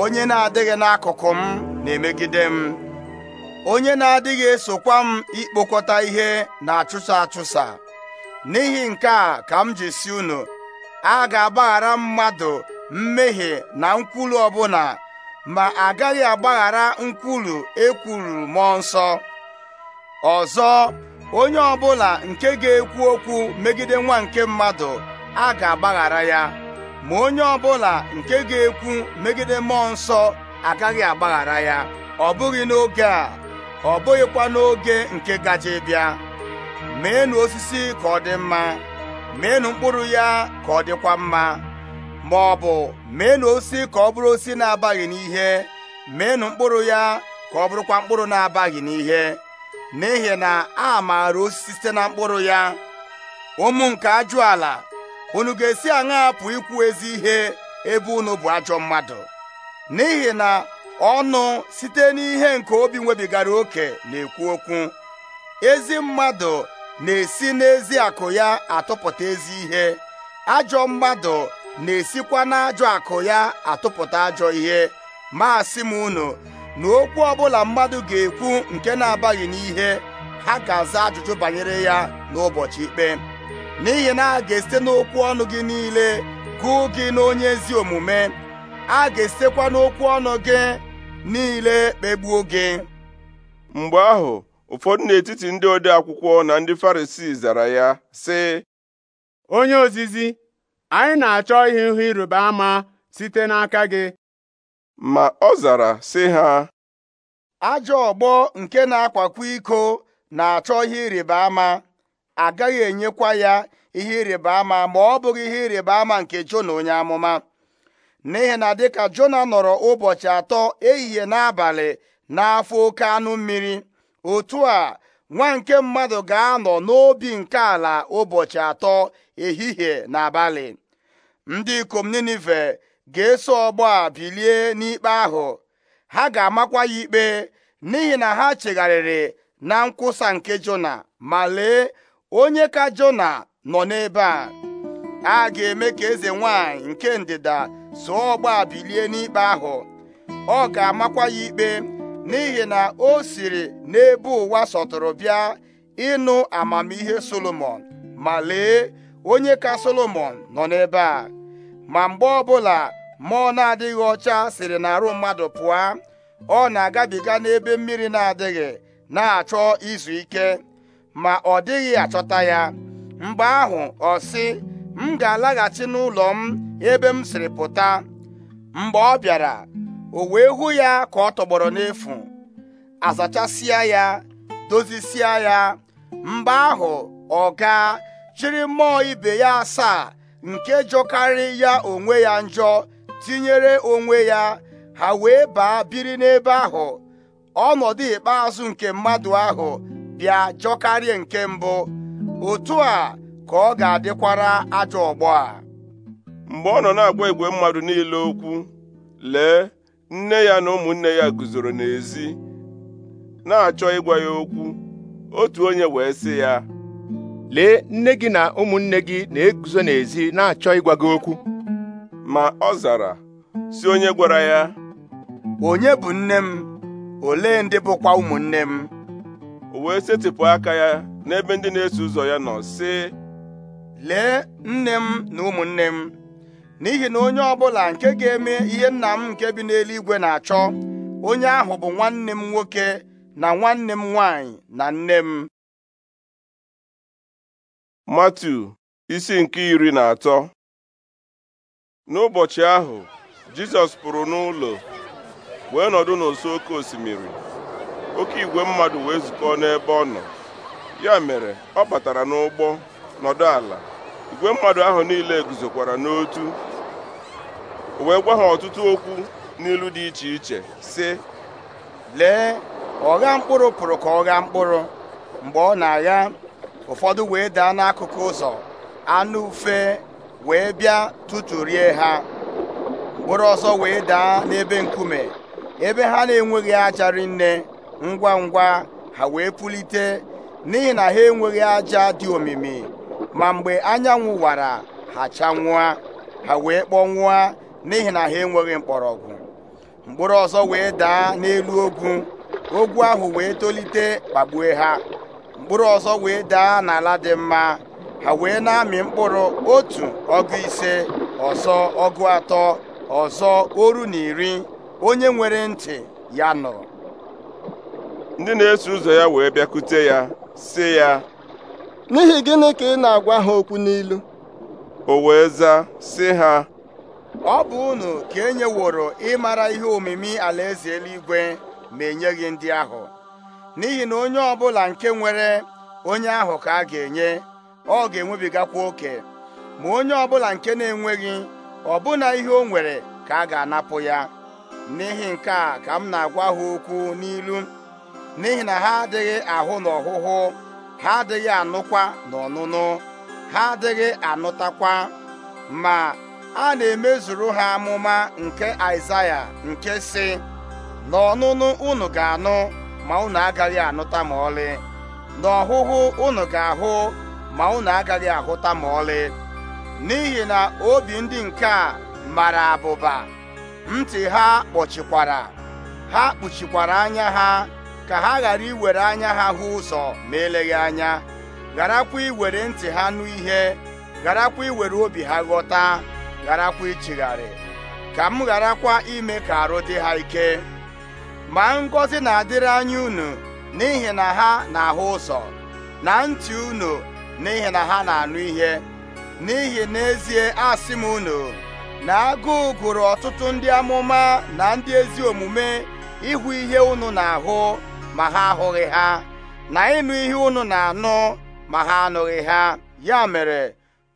onye na-adịghị n'akụkụ m na-emegide m onye na-adịghị esokwa m ikpokọta ihe na-achụsa achụsa n'ihi nke a ka m ji si unu a ga-agbaghara mmadụ mmehie na nkwulu ọbụla ma agaghị agbaghara nkwulu ekwuru mmụọ nsọ ọzọ onye ọbụla nke ga-ekwu okwu megide nwa nke mmadụ a ga-agbaghara ya ma onye ọbụla nke ga-ekwu megide mmụọ nsọ agaghị agbaghara ya ọ bụghị n'oge a ọ bụghịkwa n'oge nke gaje bịa meenụ osisi ka ọ dị mma meenụ mkpụrụ ya ka ọ dịkwa mma ma ọ bụ meenụ osisi ka ọ bụrụ osisi na-abaghị n'ihe meenụ mkpụrụ ya ka ọ bụrụkwa mkpụrụ na-abaghị n'ihe n'ihi na a maara osisi site na mkpụrụ ya ụmụ nke ajụ ala unu ga-esi aṅa apụ ikwu ezi ihe ebe unu bụ ajọ mmadụ n'ihi na ọnụ site n'ihe nke obi nwebigara oke na-ekwu okwu ezi mmadụ na-esi n'ezi akụ ya atụpụta ezi ihe ajọ mmadụ na-esikwa n'ajọ akụ ya atụpụta ajọ ihe ma m unu na okwu ọbụla mmadụ ga-ekwu nke na-abaghị n'ihe ha ga-aza ajụjụ banyere ya n'ụbọchị ikpe n'ihi na a ga-esite n'okwu ọnụ gị niile gụọ gị n'onye ezi omume a ga-esitekwa n'okwu ọnụ gị niile kpegbuo gị mgbe ahụ ụfọdụ n'etiti ndị ode akwụkwọ na ndị Farisii zara ya sị onye ozizi anyị na-achọ ihe ihu ịrịba ama site n'aka gị ma ọ zara sị ha ajọ ọgbọ nke na-akwakwa iko na-achọ ihe ịrịba ama agaghị enyekwa ya ihe ịrịba ama ma ọ bụghị ihe ịrịba ama nke Jona onye amụma n'ihi na dịka Jona nọrọ ụbọchị atọ ehihie n'abalị n'afọ oke anụ mmiri otu a nwa nke mmadụ ga-anọ n'obi nke ala ụbọchị atọ ehihie na abalị ndị ikom Ninive ga-eso ọgbọ a bilie n'ikpe ahụ ha ga-amakwa ya ikpe n'ihi na ha chegharịrị na nkwụsa nke Jona ma lee onye ka Jona nọ n'ebe a a ga-eme ka eze nwanyị nke ndịda zụọ ọgba bilie n'ikpe ahụ ọ ga-amakwa ya ikpe n'ihi na o siri n'ebe ụwa sọtụrụ bịa ịnụ amamihe solomon ma lee onye ka solomon nọ n'ebe a ma mgbe ọbụla mmụọ na-adịghị ọcha siri n'arụ mmadụ pụọ ọ na-agabiga n'ebe mmiri na-adịghị na-achọ izu ike ma ọ dịghị achọta ya mgbe ahụ ọ sị m ga-alaghachi n'ụlọ m ebe m siri pụta mgbe ọ bịara o wee hụ ya ka ọ tọgbọrọ n'efu azachasịa ya dozisịa ya mgbe ahụ ọ gaa chịrị mmụọ ibe ya asaa nke jọkarị ya onwe ya njọ tinyere onwe ya ha wee baa biri n'ebe ahụ ọnọdụ ikpeazụ nke mmadụ ahụ bịa jọkarịa nke mbụ otu a ka ọ ga-adịkwara ajọ ọgbọ a mgbe ọ nọ na-agwa igwe mmadụ niile okwu lee nne ya na ụmụnne ya guzoro n'ezi na-achọ ịgwa ya okwu otu onye wee sị ya lee nne gị na ụmụnne gị na-eguzo n'ezi na-achọ ịgwa gị okwu ma ọ zara si onye gwara ya onye bụ nne m olee ndị bụkwa ụmụnne m o wee setịpụ aka ya n'ebe ndị na-eso ụzọ ya nọ sị lee nne m na ụmụnne m n'ihi na onye ọbụla nke ga-eme ihe nna m nke bi n'eluigwe na-achọ onye ahụ bụ nwanne m nwoke na nwanne m nwanyị na nne m Matu isi nke iri na atọ n'ụbọchị ahụ Jizọs pụrụ n'ụlọ wee nọdụ n'ụsọ oke osimiri oke igwe mmadụ wee zukọọ n'ebe ọ nọ ya mere ọ batara n'ụgbọ nọdụ ala igwe mmadụ ahụ niile guzokwara n'otu wee gwa ha ọtụtụ okwu n'ilu dị iche iche sị lee ọgha mkpụrụ pụrụ ka ọ mkpụrụ mgbe ọ na-agha ụfọdụ wee daa n'akụkụ ụzọ anụ ufe wee bịa rie ha mkpụrụ ọzọ wee daa n'ebe nkume ebe ha na-enweghị aja rinne ngwa ngwa ha wee pulite n'ihi na ha enweghị aja dị omimi ma mgbe anyanwụ wara ha chanwụa ha wee kpọnwụa n'ihi na ha enweghị mkpọrọgwụ mkpụrụ ọzọ wee daa n'elu ogwu ogwu ahụ wee tolite kpagbue ha mkpụrụ ọzọ wee daa n'ala dị mma ha wee na-amị mkpụrụ otu ọgụ ise ọzọ ọgụ atọ ọzọ oru na iri onye nwere ntị ya nụrụ ndị na-eso ụzọ ya wee bịakute ya sị ya n'ihi gịnị ka ị na-agwa ha okwu n'ilu o wee zaa sị ha ọ bụ unu ka e nyeworo ịmara ihe omimi alaeze eluigwe ma enyeghị ndị ahụ n'ihi na onye ọbụla nke nwere onye ahụ ka a ga-enye ọ ga-enwebigakwa oke ma onye ọbụla nke na-enweghị ọbụna ihe o nwere ka a ga-anapụ ya n'ihi nke a ka m na-agwa ha okwu n'ilu n'ihi na ha adịghị ahụ n'ọhụhụ ha adịghị anụkwa n'ọnụnụ ha adịghị anụtakwa ma a na-emezuru ha amụma nke Aịzaya nke si n'ọnụnụ unu ga-anụ ma unu agaghị anụta ma ọlị n'ọhụhụ unu ga-ahụ ma unu agaghị ahụta ma ọlị n'ihi na obi ndị nke a mara abụba ntị ha kpọchikwara ha kpuchikwara anya ha ka ha ghara iwere anya ha hụ ụzọ ma eleghị anya gharakwa iwere ntị ha nụ ihe gharakwa iwere obi ha ghọta gharakwa ichigharị ka m gharakwa ime ka arụ dị ha ike ma ngọzi na-adịrị anya unu n'ihi na ha na-ahụ ụzọ na ntị unu n'ihi na ha na-anụ ihe n'ihi n'ezie asị m unu na agụụ gụrụ ọtụtụ ndị amụma na ndị ezi omume ịhụ ihe unu na-ahụ ma ha ahụghị ha na ịnụ ihe unu na-anụ ma ha anụghị ha ya mere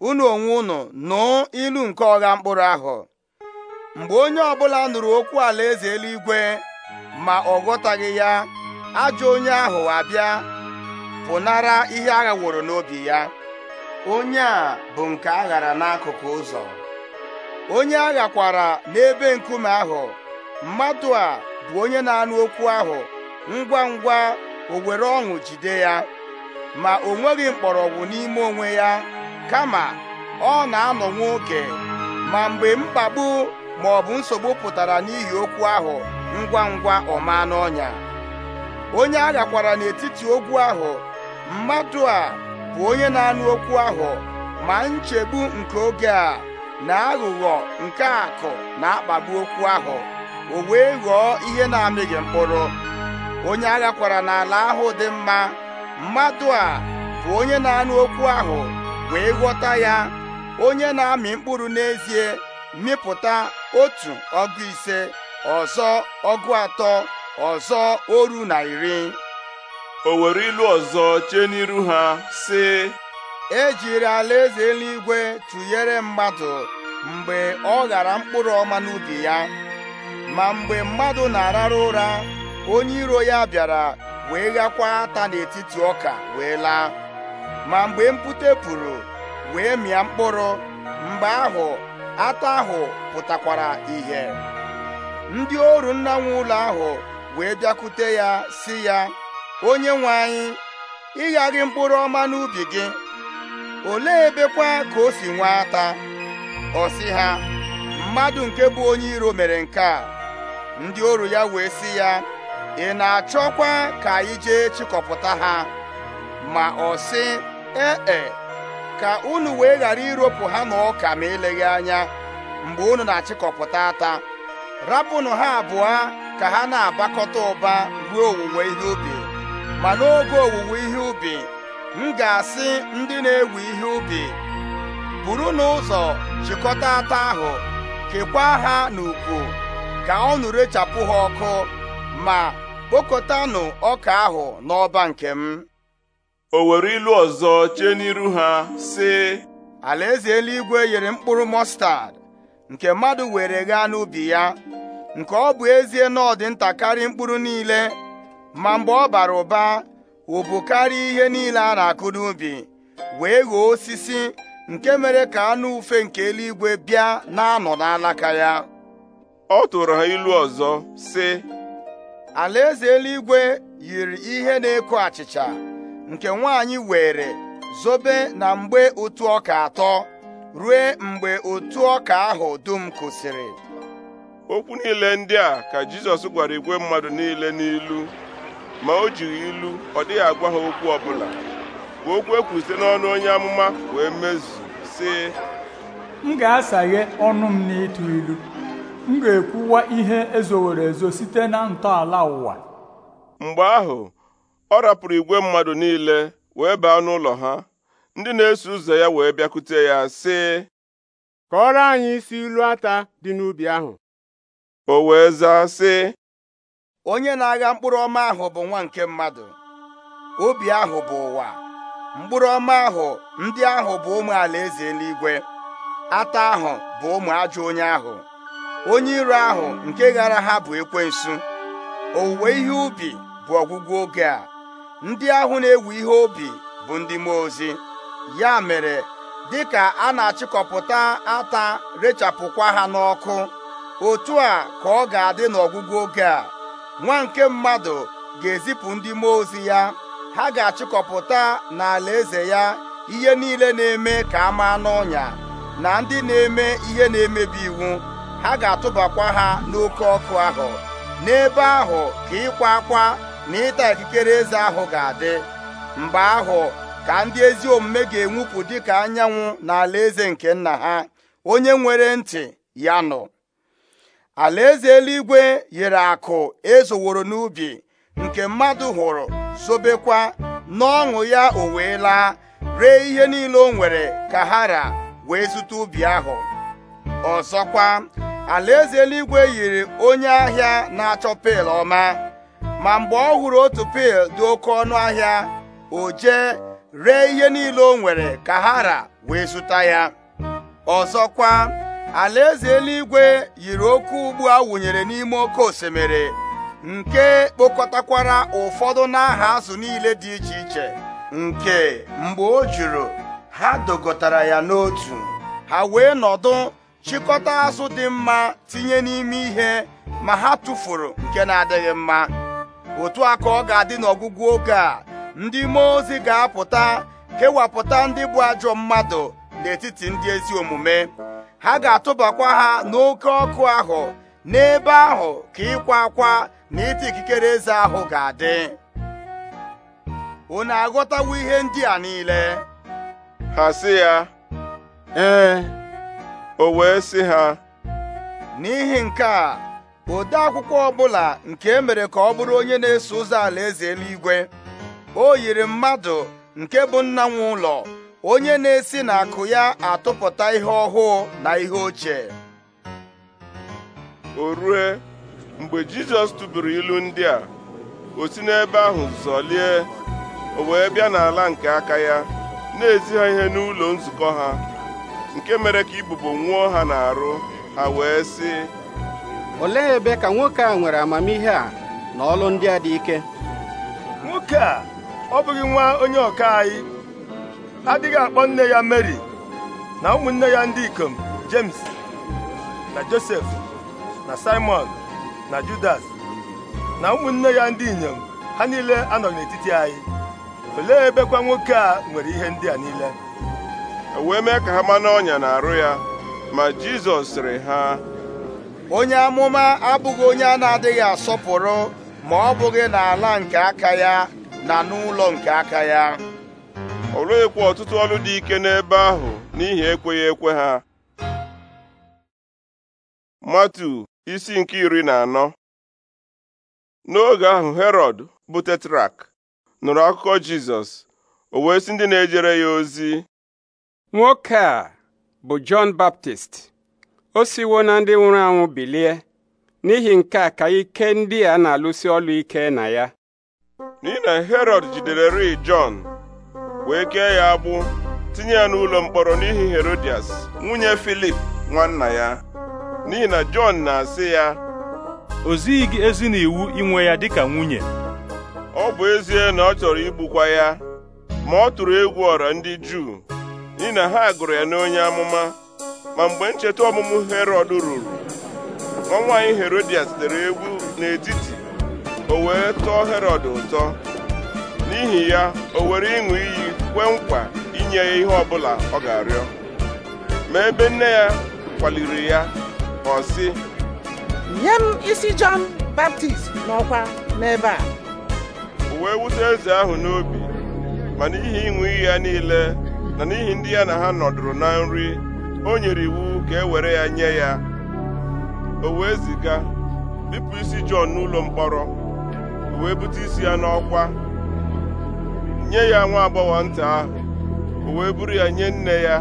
unu onwe unu nụ ilu nke ọgha mkpụrụ ahụ mgbe onye ọbụla nụrụ okwu alaeze eluigwe ma ọ ghọtaghị ya ajọ onye ahụ abịa pụnara ihe aghaworo n'obi ya onye a bụ nke aghara n'akụkụ ụzọ onye aghakwara n'ebe nkume ahụ mmadụ a bụ onye na-anụ okwu ahụ ngwa ngwa o were ọṅụ jide ya ma o nweghị mkpọrọgwụ n'ime onwe ya kama ọ na-anọ nwoke ma mgbe mkpagbu ma ọ bụ nsogbu pụtara n'ihi okwu ahụ ngwa ngwa ọma n'ọnya onye arịakwara n'etiti ogwu ahụ mmadụ a bụ onye na-anụ okwu ahụ ma nchegbu nke oge a na aghụghọ nke akụ na-akpagbu okwu ahụ o wee ghọọ ihe na-amịghị mkpụrụ onye agha kwara n'ala ahụ dị mma mmadụ a bụ onye na-anụ okwu ahụ wee ghọta ya onye na-amị mkpụrụ n'ezie mịpụta otu ọgụ ise ọzọ ọgụ atọ ọzọ oru na iri o were ilu ọzọ chee n'iru ha sị ejiri alaeze eluigwe tụnyere mmadụ mgbe ọ ghara mkpụrụ ọma n'ubi ya ma mgbe mmadụ na-arara ụra onye iro ya bịara wee ghakwa ata n'etiti ọka wee laa ma mgbe mpute pụrụ wee mịa mkpụrụ mgbe ahụ ata ahụ pụtakwara ihe ndị oru nna nwe ụlọ ahụ wee bịakwute ya si ya onye nwe anyị ịghaghị mkpụrụ ọma n'ubi gị olee ebekwa ka o si nwe ata ọ sị ha mmadụ nke bụ onye iro mere nke a ndị oru ya wee si ya ị na-achọkwa ka anyị jee chịkọpụta ha ma ọ sị ee e, ka unu wee ghara iropụ ha na ọka ma eleghị anya mgbe unu na-achịkọpụta ata rapụnụ ha abụọ ka ha na-abakọta ụba ruo owuwe ihe ubi ma n'oge owuwe ihe ubi m ga-asị ndị na ewu ihe ubi buru n'ụzọ chịkọta ata ahụ kekwaa ha n'ukwu ka ọnụ rechapụ ha ọkụ ma kpokọtanụ ọka ahụ n'ọba nke m o were ilu ọzọ chee n'iru ha sị alaeze eluigwe yiri mkpụrụ mọstad nke mmadụ were ghaa n'ubi ya nke ọ bụ ezie na ọ dị karịa mkpụrụ niile ma mgbe ọ bara ụba ụbụ karịa ihe niile a na-akụ n'ubi wee ghọọ osisi nke mere ka anụ ufe nke eluigwe bịa na-anọ n'alaka ya ọ tụrụ ha ilu ọzọ sị alaeze eluigwe yiri ihe na eku achịcha nke nwaanyị were zobe na mgbe otu ọka atọ ruo mgbe otu ọka ahụ dum kwụsịrị okwu niile ndị a ka Jizọs gwara igwe mmadụ niile n'ilu ma o jighị ilu ọ dịghị agwa ha okwu ọbụla bụ okwu e n'ọnụ onye amụma wee mezu sị m ga-asaghe ọnụ m ịtụ ilu m ga-ekwuwa ihe ezowere ezo site na ntọala ụwa mgbe ahụ ọ rapụrụ igwe mmadụ niile wee baa n'ụlọ ha ndị na-eso ụzọ ya wee bịakwute ya sị kọọrọ anyị isi ilu ata dị n'ubi ahụ o wee zaa sị onye na-agha mkpụrụ ọma ahụ bụ nwa nke mmadụ obi ahụ bụ ụwa mkpụrụ ọma ahụ ndị ahụ bụ ụmụ alaeze eluigwe ata ahụ bụ ụmụ ajọ onye ahụ onye iro ahụ nke ghara ha bụ ekwensu owuwe ihe ubi bụ ọgwụgwụ oge a ndị ahụ na-ewu ihe obi bụ ndị mmụọ ozi ya mere dịka a na-achịkọpụta ata rechapụkwa ha n'ọkụ otu a ka ọ ga-adị n'ọgwụgwụ oge a nwa nke mmadụ ga-ezipụ ndị mmụọ ozi ya ha ga-achịkọpụta n'ala eze ya ihe niile na-eme ka a maa n'ọnya na ndị na-eme ihe na-emebi iwu ha ga-atụbakwa ha n'oke ọkụ ahụ n'ebe ahụ ka ịkwa akwa na ịta ikikere eze ahụ ga-adị mgbe ahụ ka ndị ezi omume ga-enwupụ ka anyanwụ na alaeze nke nna ha onye nwere ntị ya nọ alaeze eluigwe yiri akụ ezoworo n'ubi nke mmadụ hụrụ zobekwa n'ọṅụ ya o wee laa ree ihe niile o nwere ka ha ra wee zụta ubi ahụ ọzọkwa alaeze eluigwe yiri onye ahịa na-achọ pil ọma ma mgbe ọ hụrụ otu pil dị oke ọnụ ahịa o jee ree ihe niile o nwere ka hara wee zụta ya ọzọkwa alaeze eluigwe yiri oke ugbu a wụnyere n'ime oke osimiri nke kpokọtakwara ụfọdụ n'aha azụ niile dị iche iche nke mgbe o juru ha dogotara ya n'otu ha wee nọdụ chịkọta azụ dị mma tinye n'ime ihe ma ha tụfuru nke na-adịghị mma otu a ọ ga-adị n'ọgwụgwụ oge a ndị mmụọ ozi ga-apụta kewapụta ndị bụ ajọ mmadụ n'etiti ndị ezi omume ha ga-atụbakwa ha n'oke ọkụ ahụ n'ebe ahụ ka ịkwa akwa na ịta ikikere eze ahụ ga-adị unu aghọtawo ihe ndị a niile ha sị ya ee o wee si ha n'ihi nke a ode akwụkwọ ọbụla nke e mere ka ọ bụrụ onye na-eso ụzọ alaeze eluigwe o yiri mmadụ nke bụ nna nwe ụlọ onye na-esi n'akụ ya atụpụta ihe ọhụụ na ihe ochie o rue mgbe jizọs tụburu ilu ndị a o si n'ebe ahụ zọlie o wee bịa n'ala nke aka ya na-ezi ihe n'ụlọ nzukọ ha nke mere ka ibubo nwụọ ha n'arụ ha wee sị olee ebe ka nwoke a nwere amamihe a na ọlụ ndị a dị ike nwoke a ọ bụghị nwa onye ọka anyị adịghị akpọ nne ya Mary na ụmụnne ya ndị ikom James na Josef na Simon na Judas na ụmụnne ya ndị inyom ha niile anọ n'etiti anyị olee ebekwa nwoke a nwere ihe ndị a niile wee mee ka ha ma n'ọnya na-arụ ya ma Jizọs sịrị ha onye amụma abụghị onye a na-adịghị asọpụrụ ma ọ bụghị n'ala nke aka ya na n'ụlọ nke aka ya o rughịkwa ọtụtụ ọrụ dị ike n'ebe ahụ n'ihi ekweghị ekwe ha matu isi nke iri na anọ n'oge ahụ herọd bụ tetrak nụrụ akụkọ jizọs o wee si ndị na-ejere ya ozi nwoke a bụ Jọn Baptist o siwo na ndị nwụrụ anwụ bilie n'ihi nke a ka ike ndị a na-alụsi ọlụ ike na ya n'ihi na Herọd jidere ri Jọn wee kee ya agbụ tinye ya n'ụlọ mkpọrọ n'ihi Herodias nwunye Filip nwanna ya n'ihi na Jọn na-asị ya o zighị gị ezi na iwu inwe ya dịka nwunye ọ bụ ezie na ọ chọrọ igbukwa ya ma ọ tụrụ egwu ọra ndị Juu n'ihi na ha gụrụ ya n'onye amụma ma mgbe ncheta ọmụmụ herod ruru nwa nwaanyị Herodias dere egwu n'etiti o wee tọọ herod ụtọ n'ihi ya o were ịṅụ iyi kwee nkwa inye ya ihe ọbụla ọ ga-arịọ ma ebe nne ya kwaliri ya ọ sị nye m isi jọn baptist n'ọkwa n'ebe a o wee wute eze ahụ n'obi ma n'ihi ịṅụ iyi ya niile na n'ihi ndị ya na ha nọdụrụ na nri o nyere iwu ka e were ya nye ya o wee ziga bipụ isi Jọn n'ụlọ mkpọrọ o wee bute isi ya n'ọkwa nye ya nwa agbọghọ nta ahụ o wee buru ya nye nne ya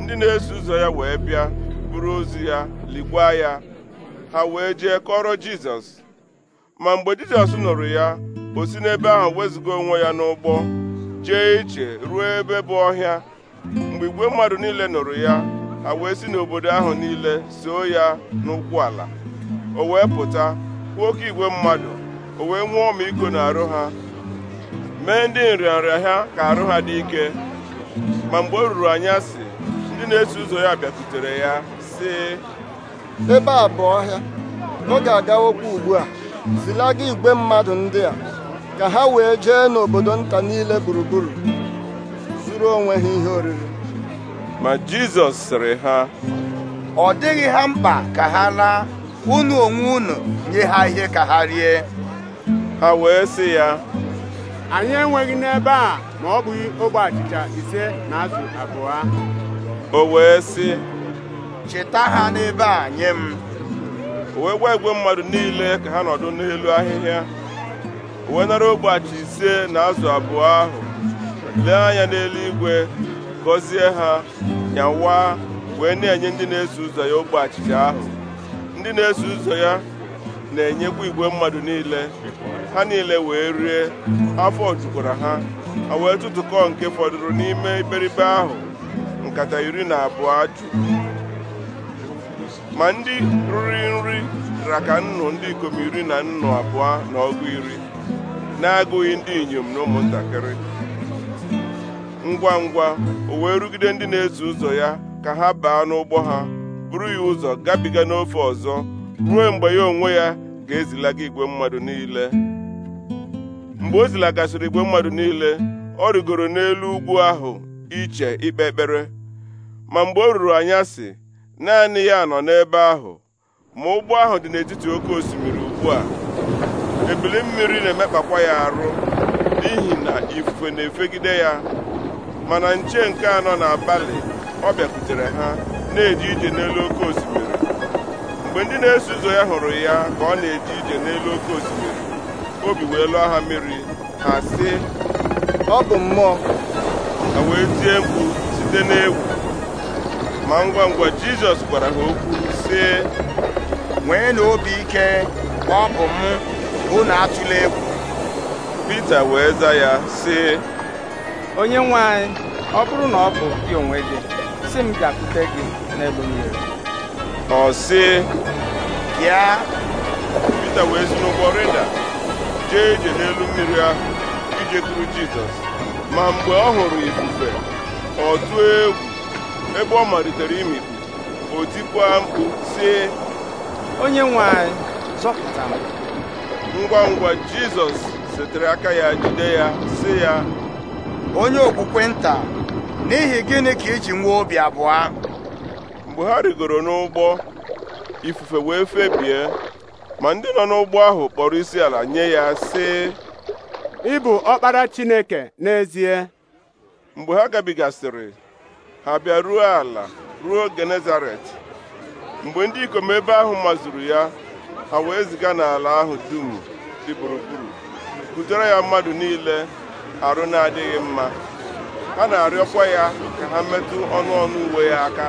ndị na-eso ụzọ ya wee bịa buru ozi ya ligwa ya ha wee jee kọrọ Jizọs ma mgbe Jizọs nụrụ ya o si n'ebe ahụ wezụga onwe ya n'ụgbọ jee ije ruo ebe bụ ọhịa mgbe igwe mmadụ niile nụrụ ya ha wee si n'obodo ahụ niile soo ya n'ụkwụ ala o wee pụta kwuo oke igwe mmadụ o wee nwee na arụ ha mee ndị nrịanrịa ha ka arụ ha dị ike ma mgbe o ruru anya si ndị na-eso ụzọ ya bịakwutere ya sị ebe a bụ ọhịa ọ ga okwu ugbu a zilaga igwe mmadụ ndị a ka ha wee jee n'obodo nta niile gburugburu zuru onwe ha ihe oriri ma Jizọs sịrị ha ọ dịghị ha mkpa ka ha laa unu onwe unu nye ha ihe ka ha rie ha wee sị ya anyị enweghị n'ebe a ma ọ bụghị ogbe achịcha ise na azụ abụọ o wee sị cheta ha n'ebe a nye m o wee gwa igwe mmadụ niile ka ha nọdụ n'elu ahịhịa wee nara ogbachi ise na azụ abụọ ahụ lee anya n'eluigwe gọzie ha nyawa wee na-enye ndị na-eso ụzọ ya ogbe achịcha ahụ ndị na-eso ụzọ ya na-enyekwa igwe mmadụ niile ha niile wee rie afọ jukwara ha ha wee tụtụkọ nke fọdụrụ n'ime iberibe ahụ nkata iri na abụọ jụ ma ndị riri nri raka nnụ ndị ikom iri na nnụ abụọ na ọgụ iri na-agụghị ndị inyom na ụmụntakịrị ngwa ngwa o wee rugide ndị na-eso ụzọ ya ka ha baa n'ụgbọ ha buru ya ụzọ gabiga n'ofe ọzọ ruo mgbe ya onwe ya ga-ezilaga igwe mmadụ niile mgbe o zilagasịrị igwe mmadụ niile ọ rigoro n'elu ugwu ahụ iche ikpe ekpere ma mgbe o ruru anyasị naanị ya nọ n'ebe ahụ ma ụgbọ ahụ dị n'etiti oke osimiri ugbu a ebili mmiri na-emekpakwa ya arụ n'ihi na ifufe na-efegide ya mana nche nke anọ n'abalị ọ bịakwutere ha na eji ije n'elu oke osimiri mgbe ndị na-eso ụzọ ya hụrụ ya ka ọ na eji ije n'elu oke osimiri obi wee lụọ ha mmiri ha sị ọ bụ mmụọ ha wee tie mkpu site n'egwu ma ngwa ngwa Jizọs gwara ha okwu sị nwee na ike ọ bụ m unu atụla egwu Pita wee za ya sị onye nwe anyị ọ bụrụ na ọ bụ gị onwe gị si m bịakwute gị n'elu mmiri ọ sị bịa Pita wee si n'ụgbọ rịda jee ije n'elu mmiri ahụ ije ijekwuru Jizọs ma mgbe ọ hụrụ ifufe ọ tụọ egwu ebe ọ malitere imikpu o mkpu sị onye nwe anyị m ngwa ngwa jizọs setere aka ya jide ya sị ya onye okpukpe nta n'ihi gịnị ka iji nwee obi abụọ mgbe ha rigoro n'ụgbọ ifufe wee febie ma ndị nọ n'ụgbọ ahụ kpọrọ isi ala nye ya sị ị bụ ọkpara chineke n'ezie mgbe ha gabigasịrị ha bịa ruo ala ruo genezaret mgbe ndị ikom ebe ahụ mazuru ya ha wee ziga n'ala ahụ dum dị gburugburu butere ya mmadụ niile arụ na-adịghị mma ha na-arịọkwa ya ka ha metụ ọnụ ọnụ uwe ya aka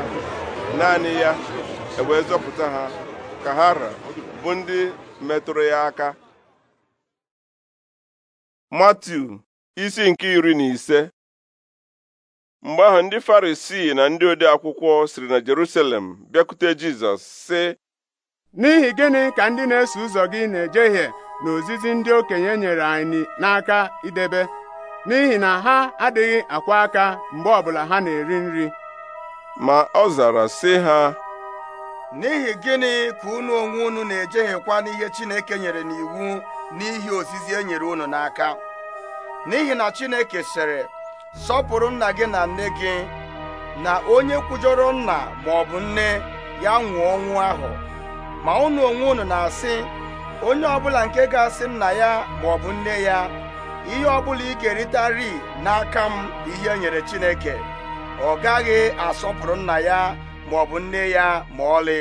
naanị ya ewee ha ka ha bụ ndị metụrụ ya aka Matiu isi nke iri na ise mgbe ahụ ndị Farisii na ndị ode akwụkwọ siri na Jerusalem bịakwute Jizọs sị n'ihi gịnị ka ndị na-eso ụzọ gị na-ejehie na ozizi ndị okenye nyere anyị n'aka idebe n'ihi na ha adịghị akwa aka mgbe ọbụla ha na-eri nri ma ọ zara sị ha n'ihi gịnị ka unu onwe unu na-ejehiekwa n'ihe Chineke nyere n'iwu n'ihi ozizi e nyere unu n'aka n'ihi na Chineke sịrị sọpụrụ nna gị na nne gị na onye kwujọrọ nna ma ọ bụ nne ya nwụọ ọnwụ ahụ ma unu onwe unu na-asị onye ọbụla nke ga-asị nna ya ma ọ bụ nne ya ihe ọbụla ị ga eritari n'aka m ihe e nyere Chineke ọ gaghị asọpụrụ nna ya ma ọ bụ nne ya ma ọlị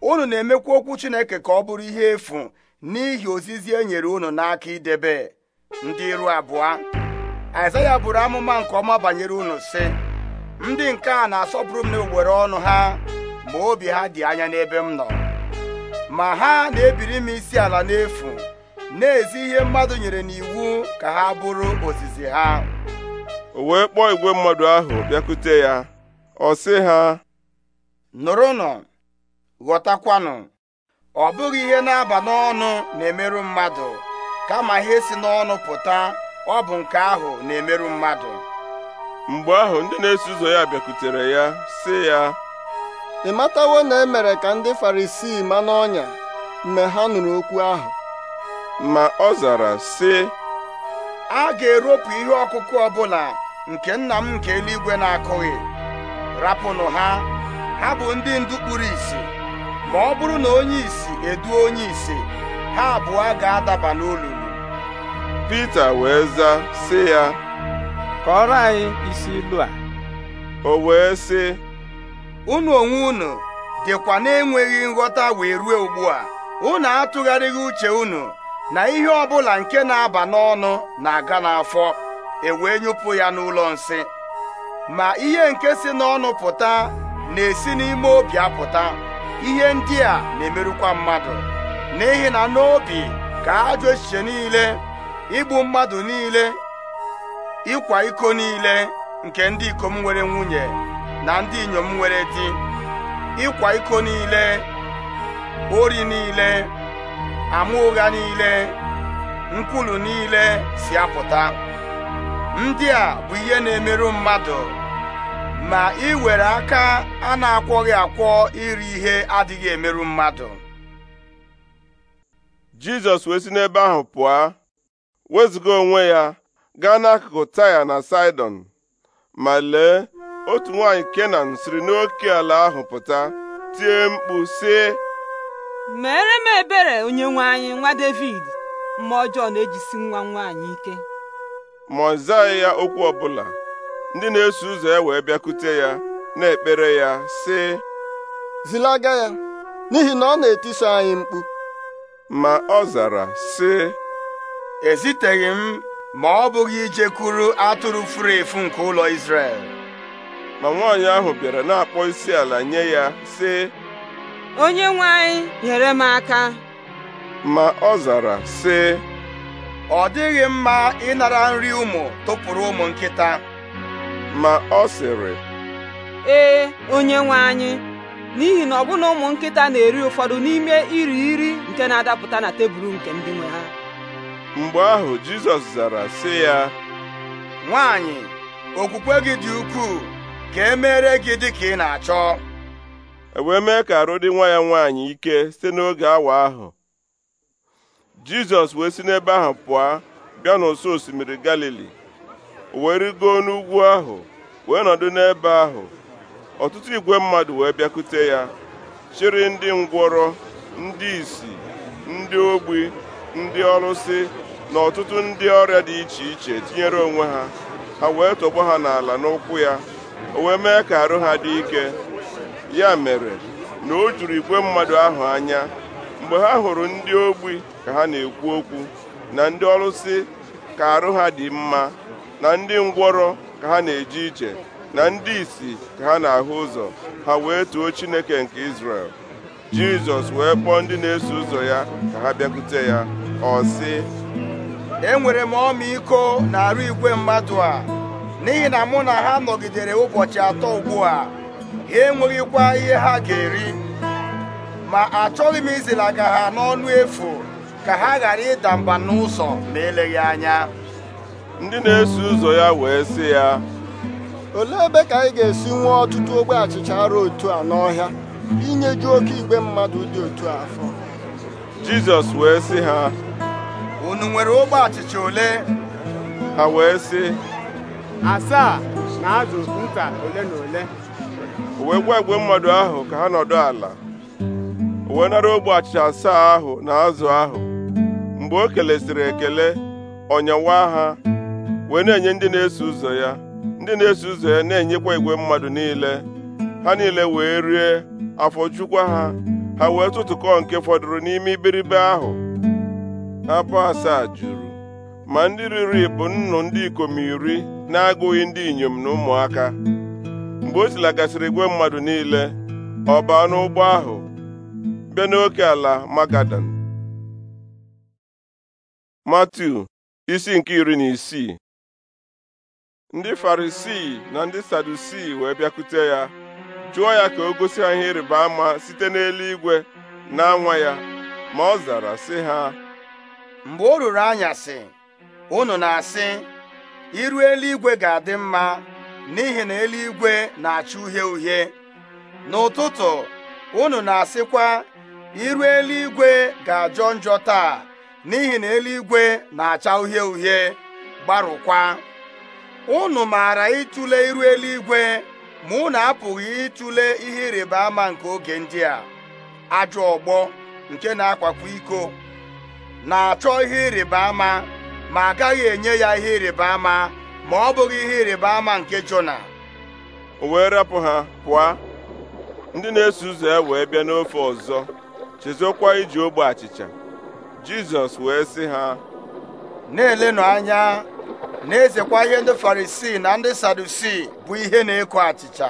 unu na emekwu okwu Chineke ka ọ bụrụ ihe efu n'ihi ozizi e nyere unu n'aka idebe ndị iru abụọ Aịzaya buru amụma nke ọma banyere unu sị ndị nke a na-asọpụrụ m na n'owere ọnụ ha ma obi ha dị anya n'ebe m nọ ma ha na-ebiri m isi ala n'efu na-ezi ihe mmadụ nyere n'iwu ka ha bụrụ ozizi ha o wee kpọọ igwe mmadụ ahụ bịakute ya ọ sị ha nụrụnụ ghọtakwanụ ọ bụghị ihe na-aba n'ọnụ na-emerụ mmadụ kama ihe si n'ọnụ pụta ọ bụ nke ahụ na-emerụ mmadụ mgbe ahụ ndị na-eso ụzọ ya bịakutere ya sị ya ị matawo na e mere ka ndị farisii ma n'ọnya mgbe ha nụrụ okwu ahụ ma ọ zara sị a ga-eropụ ihe ọkụkụ ọbụla nke nna m nke eluigwe na-akụghị rapụnụ ha ha bụ ndị ndu kpuru isi ma ọ bụrụ na onye isi eduo onye isi ha abụọ ga-adaba n'olulu Pita wee zaa sị ya kọrọ anyị isi ilu a o wee sị unu onwe unu dịkwa na-enweghị nghọta wee ruo ugbu a unu atụgharịghị uche unu na ihe ọbụla nke na-aba n'ọnụ na-aga n'afọ ewee nyụpụ ya n'ụlọ nsị ma ihe nke si n'ọnụ pụta na-esi n'ime obi apụta ihe ndị a na-emerụkwa mmadụ n'ihi na n'obi ka ajọ echiche niile igbu mmadụ niile ịkwa iko niile nke ndị ikom nwere nwunye na ndị inyom nwere di ịkwa iko niile ori niile ama ụgha niile nkwulu niile si apụta ndị a bụ ihe na-emerụ mmadụ ma ị iwere aka a na-akwọghị akwọ iri ihe adịghị emerụ mmadụ Jizọs wee si n'ebe ahụ pụọ wezụga onwe ya gaa n'akụkụ Taya na Saịdọn ma lee otu nwaanyị kenan siri n'oke ala ahụ pụta tie mkpu sị mere m ebere onye nwaanyị anyị nwa david mma ọjọọ na-ejisi nwa nwaanyị ike ma ya okwu ọbụla ndị na-eso ụzọ ya wee bịakute ya na-ekpere ya sị zilaga ya n'ihi na ọ na etiso anyị mkpu ma ọ zara sị eziteghị m ma ọ bụghị ijekwuru atụrụ furu efu nke ụlọ Izrel ma nwaanyị ahụ bịara na-akpọ isi ala nye ya sị onye nwe anyị nyere m aka ma ọ zara sị ọ dịghị mma ịnara nri ụmụ tụpụrụ ụmụ nkịta ma ọ sịrị ee onye nwe anyị n'ihi na ọbụna ụmụ nkịta na-eri ụfọdụ n'ime iri iri nke na-adapụta na tebụl nke ndị nwe ha mgbe ahụ Jizọs zara sị ya nwaanyị okwukwe gị dị ukwuu ka e mere gị dị ka ị na-achọ ewee mee ka arụ dị nwa ya nwaanyị ike site n'oge awa ahụ Jizọs wee si n'ebe ahụ pụọ bịa n'ụsọ osimiri Galili wee rigoo n'ugwu ahụ wee nọdụ n'ebe ahụ ọtụtụ igwe mmadụ wee bịakute ya chịrị ndị ngwọrọ ndị isi, ndị ogbi ndị ọlụsị na ọtụtụ ndị ọrịa dị iche iche tinyere onwe ha ha wee tọgbọ ha n'ala n'ụkwụ ya o wee ka arụ ha dị ike ya mere na o juru igwe mmadụ ahụ anya mgbe ha hụrụ ndị ogbi ka ha na-ekwu okwu na ndị ọlụsị ka arụ ha dị mma na ndị ngwọrọ ka ha na-eje ije na ndị isi ka ha na-ahụ ụzọ ha wee too Chineke nke Izrel Jizọs wee kpọọ ndị na-eso ụzọ ya ka ha bịakwute ya ọ sị enwere m ọmịiko na arụ igwe mmadụ a n'ihi na mụ na ha nọgidere ụbọchị atọ ugbu a ha enweghịkwa ihe ha ga-eri ma achọghị m izilaga ha n'ọnụ efu ka ha ghara ịda mba n'ụzọ ma eleghị anya ndị na-eso ụzọ ya wee sị ya olee ebe ka anyị ga-esi nwee ọtụtụ ogbe achịcha arụ otu a n'ọhịa inyeju oke igwe mmadụ dị otu afọ Jizọs wee sị ha unu nwere ogbe achịcha ole ha wee sị asaa na azụ nta ole na ole o wee gwa igwe mmadụ ahụ ka ha nọdụ ala o wee nara ogbe achịcha asaa ahụ na azụ ahụ mgbe o kelesịrị ekele ọnyawa ha wee na-enye ndị na-eso ụzọ ya ndị na-eso ụzọ ya na-enyekwa igwe mmadụ niile ha niile wee rie afọ chukwa ha ha wee tụtụkọ nke fọdụrụ n'ime iberibe ahụ abụ asaa juru ma ndị riri bụ nnụ ndị ikom iri na-agụghị ndị inyom na ụmụaka mgbe o silagasịrị igwe mmadụ niile ọ baa n'ụgbọ ahụ bịa n'oke ala magadan matiu isi nke iri na isii ndị farisii na ndị sadusii wee bịakwute ya jụọ ya ka o gosi ha ihe ịrịba ama site n'eluigwe na anwa ya ma ọ zara sị ha mgbe o ruru anyasị unu na-asị iru eluigwe ga-adị mma n'ihi na eluigwe na-acha uhie uhie n'ụtụtụ unu na-asịkwa iru eluigwe ga-ajọ njọ taa n'ihi na eluigwe na-acha uhie uhie gbarụkwa unu maara ịtụle iru eluigwe ma unu apụghị ịtụle ihe ịrịba ama nke oge ndị a ajọ ọgbọ nke na-akwakwa iko na-achọ ihe ịrịba ama ma agaghị enye ya ihe ịrịba ama ma ọ bụghị ihe ịrịba ama nke Jona o wee rapụ ha pụọ ndị na-eso ụzọ ya wee bịa n'ofe ọzọ chezokwa iji ogbe achịcha Jizọs wee sị ha na-elenụ anya na-ezekwa ihe ndị Farisii na ndị Sadusii bụ ihe na-eko achịcha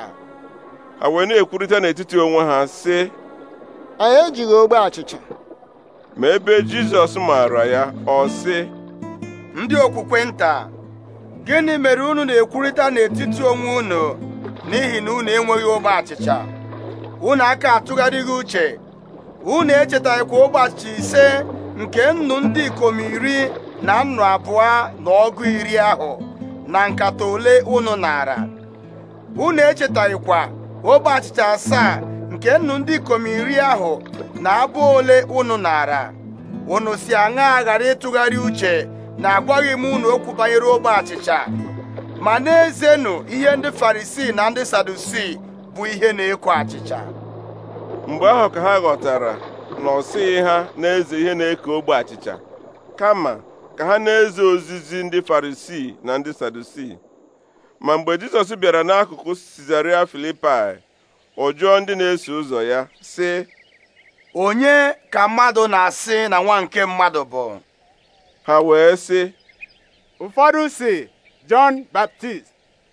ha wee na-ekwurịta n'etiti onwe ha sị anyị ejighị ogbe achịcha ma ebe Jizọs maara ya ọ sị ndị okwukwe nta gịnị mere unu na-ekwurịta n'etiti onwe unu n'ihi na unu enweghị ogbe achịcha unu aka atụgharịghị uche unu echetaghịkwa ogbe achịcha ise nke nnu ndị ikom iri na nnu abụọ na ọgụ iri ahụ na nkata ole unu nara unu echetaghịkwa ogbe achịcha asaa nke nnu ndị ikom iri ahụ na abụ ole unu nara unu si aṅa ghara ịtụgharị uche na-agwaghị m unu okwu banyere ogbe achịcha ma n'ezienụ ihe ndị farisii na ndị sadusii bụ ihe na ekwo achịcha mgbe ahụ ka ha ghọtara na ọ ha na-eze ihe na-eko ogbe achịcha kama ka ha na-eze ozizi ndị farisii na ndị sadusii ma mgbe jizọs bịara n'akụkụ sizaria filipai ọ ndị na-eso ụzọ ya sị onye ka mmadụ na-asị na nwa nke mmadụ bụ ha wee sị ụfọdụ si Jọn Baptist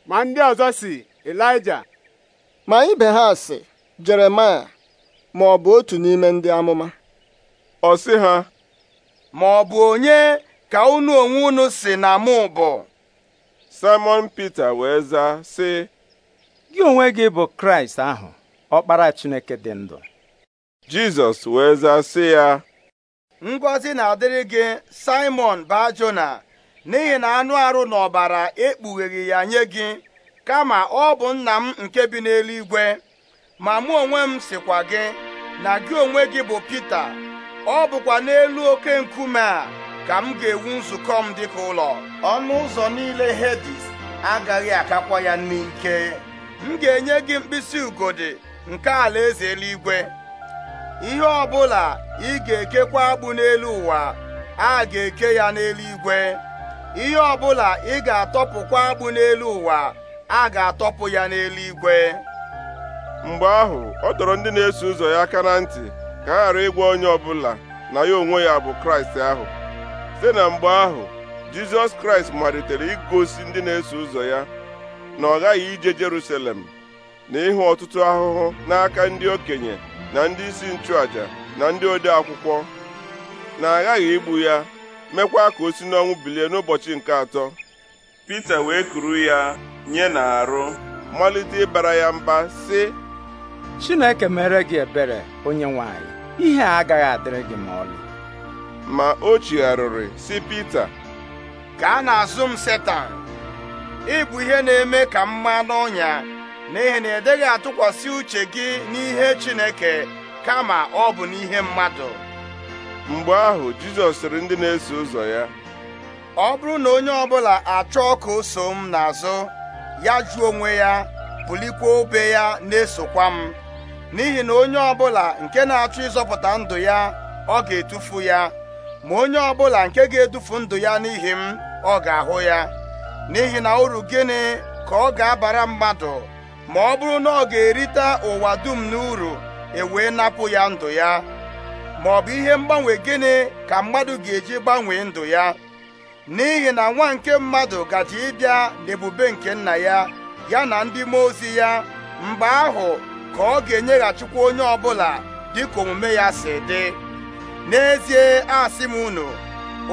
ma ndị ọzọ si Elija ma ibe ha si Jeremaya ma ọ bụ otu n'ime ndị amụma ọ sị ha ma ọ bụ onye ka unu onwe unu si na mụ bụ Simon Peter wee zaa sị gị onwe gị bụ Kraịst ahụ ọkpara Chineke dị ndụ Jizọs wee zaa sị ya ngọzi na-adịrị gị Simon Bajona n'ihi na anụ arụ na ọbara ekpugheghị ya nye gị kama ọ bụ nna m nke bi n'eluigwe ma mụ onwe m sịkwa gị na gị onwe gị bụ Pita ọ bụkwa n'elu oke nkume a ka m ga-ewu nzukọ m dịka ụlọ ọnụ ụzọ niile Hedis agaghị akakwa ya n'ike m ga-enye gị mkpịsị ugodi nke alaeze eluigwe ihe ọbụla ị ga-ekekwa agbụ n'elu ụwa a ga-eke ya n'eluigwe ihe ọbụla ị ga-atọpụkwa agbụ n'elu ụwa a ga-atọpụ ya n'eluigwe mgbe ahụ ọ dọrọ ndị na-eso ụzọ ya aka na ntị ka a ghara ịgwa onye ọbụla na ya onwe ya bụ kraịst ahụ site na mgbe ahụ jizọs kraịst malitere igosi ndị na-eso ụzọ ya na ọ ghaghị ije jerusalem na ịhụ ọtụtụ ahụhụ n'aka ndị okenye na ndị isi nchụaja na ndị ode akwụkwọ na-aghaghị igbu ya mekwa ka o si n'ọnwụ bilie n'ụbọchị nke atọ Pita wee kuru ya nye na arụ malite ịbara ya mba sị Chineke mere gị ebere onye nwanyị ihe a agaghị adịrị gị ma ọlị ma o chigharịrị sị Pita ka a na-azụ m Setan ịbụ ihe na-eme ka m maa n'ọnya n'ihi na ị dịghị atụkwasị uche gị n'ihe Chineke kama ọ bụ n'ihe mmadụ mgbe ahụ Jizọs sịrị ndị na-eso ụzọ ya ọ bụrụ na onye ọbụla achọọ ka o so m n'azụ ya jụọ onwe ya bulikwa obe ya na-esokwa m n'ihi na onye ọbụla nke na-achọ ịzọpụta ndụ ya ọ ga-etufu ya ma onye ọbụla nke ga-edufu ndụ ya n'ihi m ọ ga-ahụ ya n'ihi na uru gịnị ka ọ ga-abara mmadụ ma ọ bụrụ na ọ ga-erite ụwa dum n'uru ewee napụ ya ndụ ya ma ọ bụ ihe mgbanwe gịnị ka mmadụ ga-eji gbanwee ndụ ya n'ihi na nwa nke mmadụ gaji ịbịa n'ebube nke nna ya ya na ndị mmụọ ozi ya mgbe ahụ ka ọ ga-enyeghachikwa onye ọbụla dịka omume ya si dị n'ezie asị m unu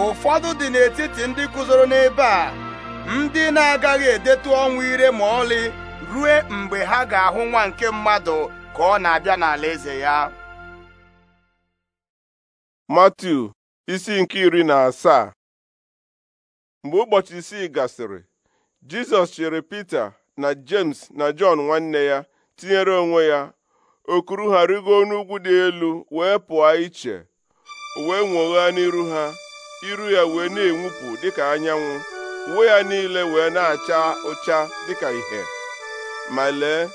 ụfọdụ dị n'etiti ndị guzoro n'ebe a ndị na-agaghị edetu ọnwụ ire ma ọlị rue mgbe ha ga-ahụ nwa nke mmadụ ka ọ na-abịa n'ala eze ya Mathew, isi nke iri na asaa mgbe ụbọchị isii gasịrị Jizọs chere Pita na James na Jọn nwanne ya tinyere onwe ya okuru ha rigo n'ugwu dị elu wee pụọ iche wee nwoghaa n'iru ha iru ya wee na-enwupụ dịka anyanwụ uwe ya niile wee na-acha ụcha dịka ìhè ma lee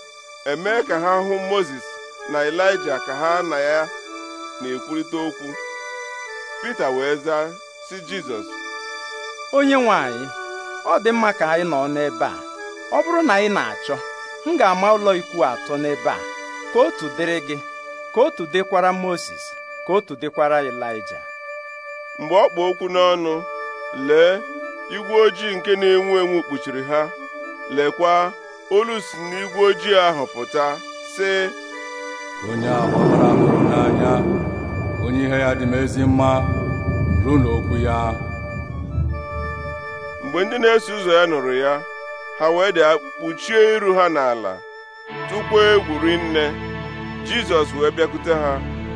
emee ka ha hụ moses na elijah ka ha na ya na-ekwurịta okwu Pita wee zaa si Jizọs onye nwanyị, ọ dị mma ka anyị nọ n'ebe a ọ bụrụ na anyị na-achọ m ga-ama ụlọ ikwu atọ n'ebe a ka otu dịrị gị ka otu dịkwara moses, ka otu dịkwara elijah. mgbe ọ kpụ okwu n'ọnụ lee igwe ojii nke na-enwu enwu kpuchiri ha lekwa olu si n'igwe ojii ahụ pụta sị onye a gbabara hụrụ n'anya onye ihe ya dị m ezi mma ruo n'okwu ya mgbe ndị na-eso ụzọ ya nụrụ ya ha wee dị kpuchie iru ha n'ala tupu egwuri nne. jizọs wee bịakwute ha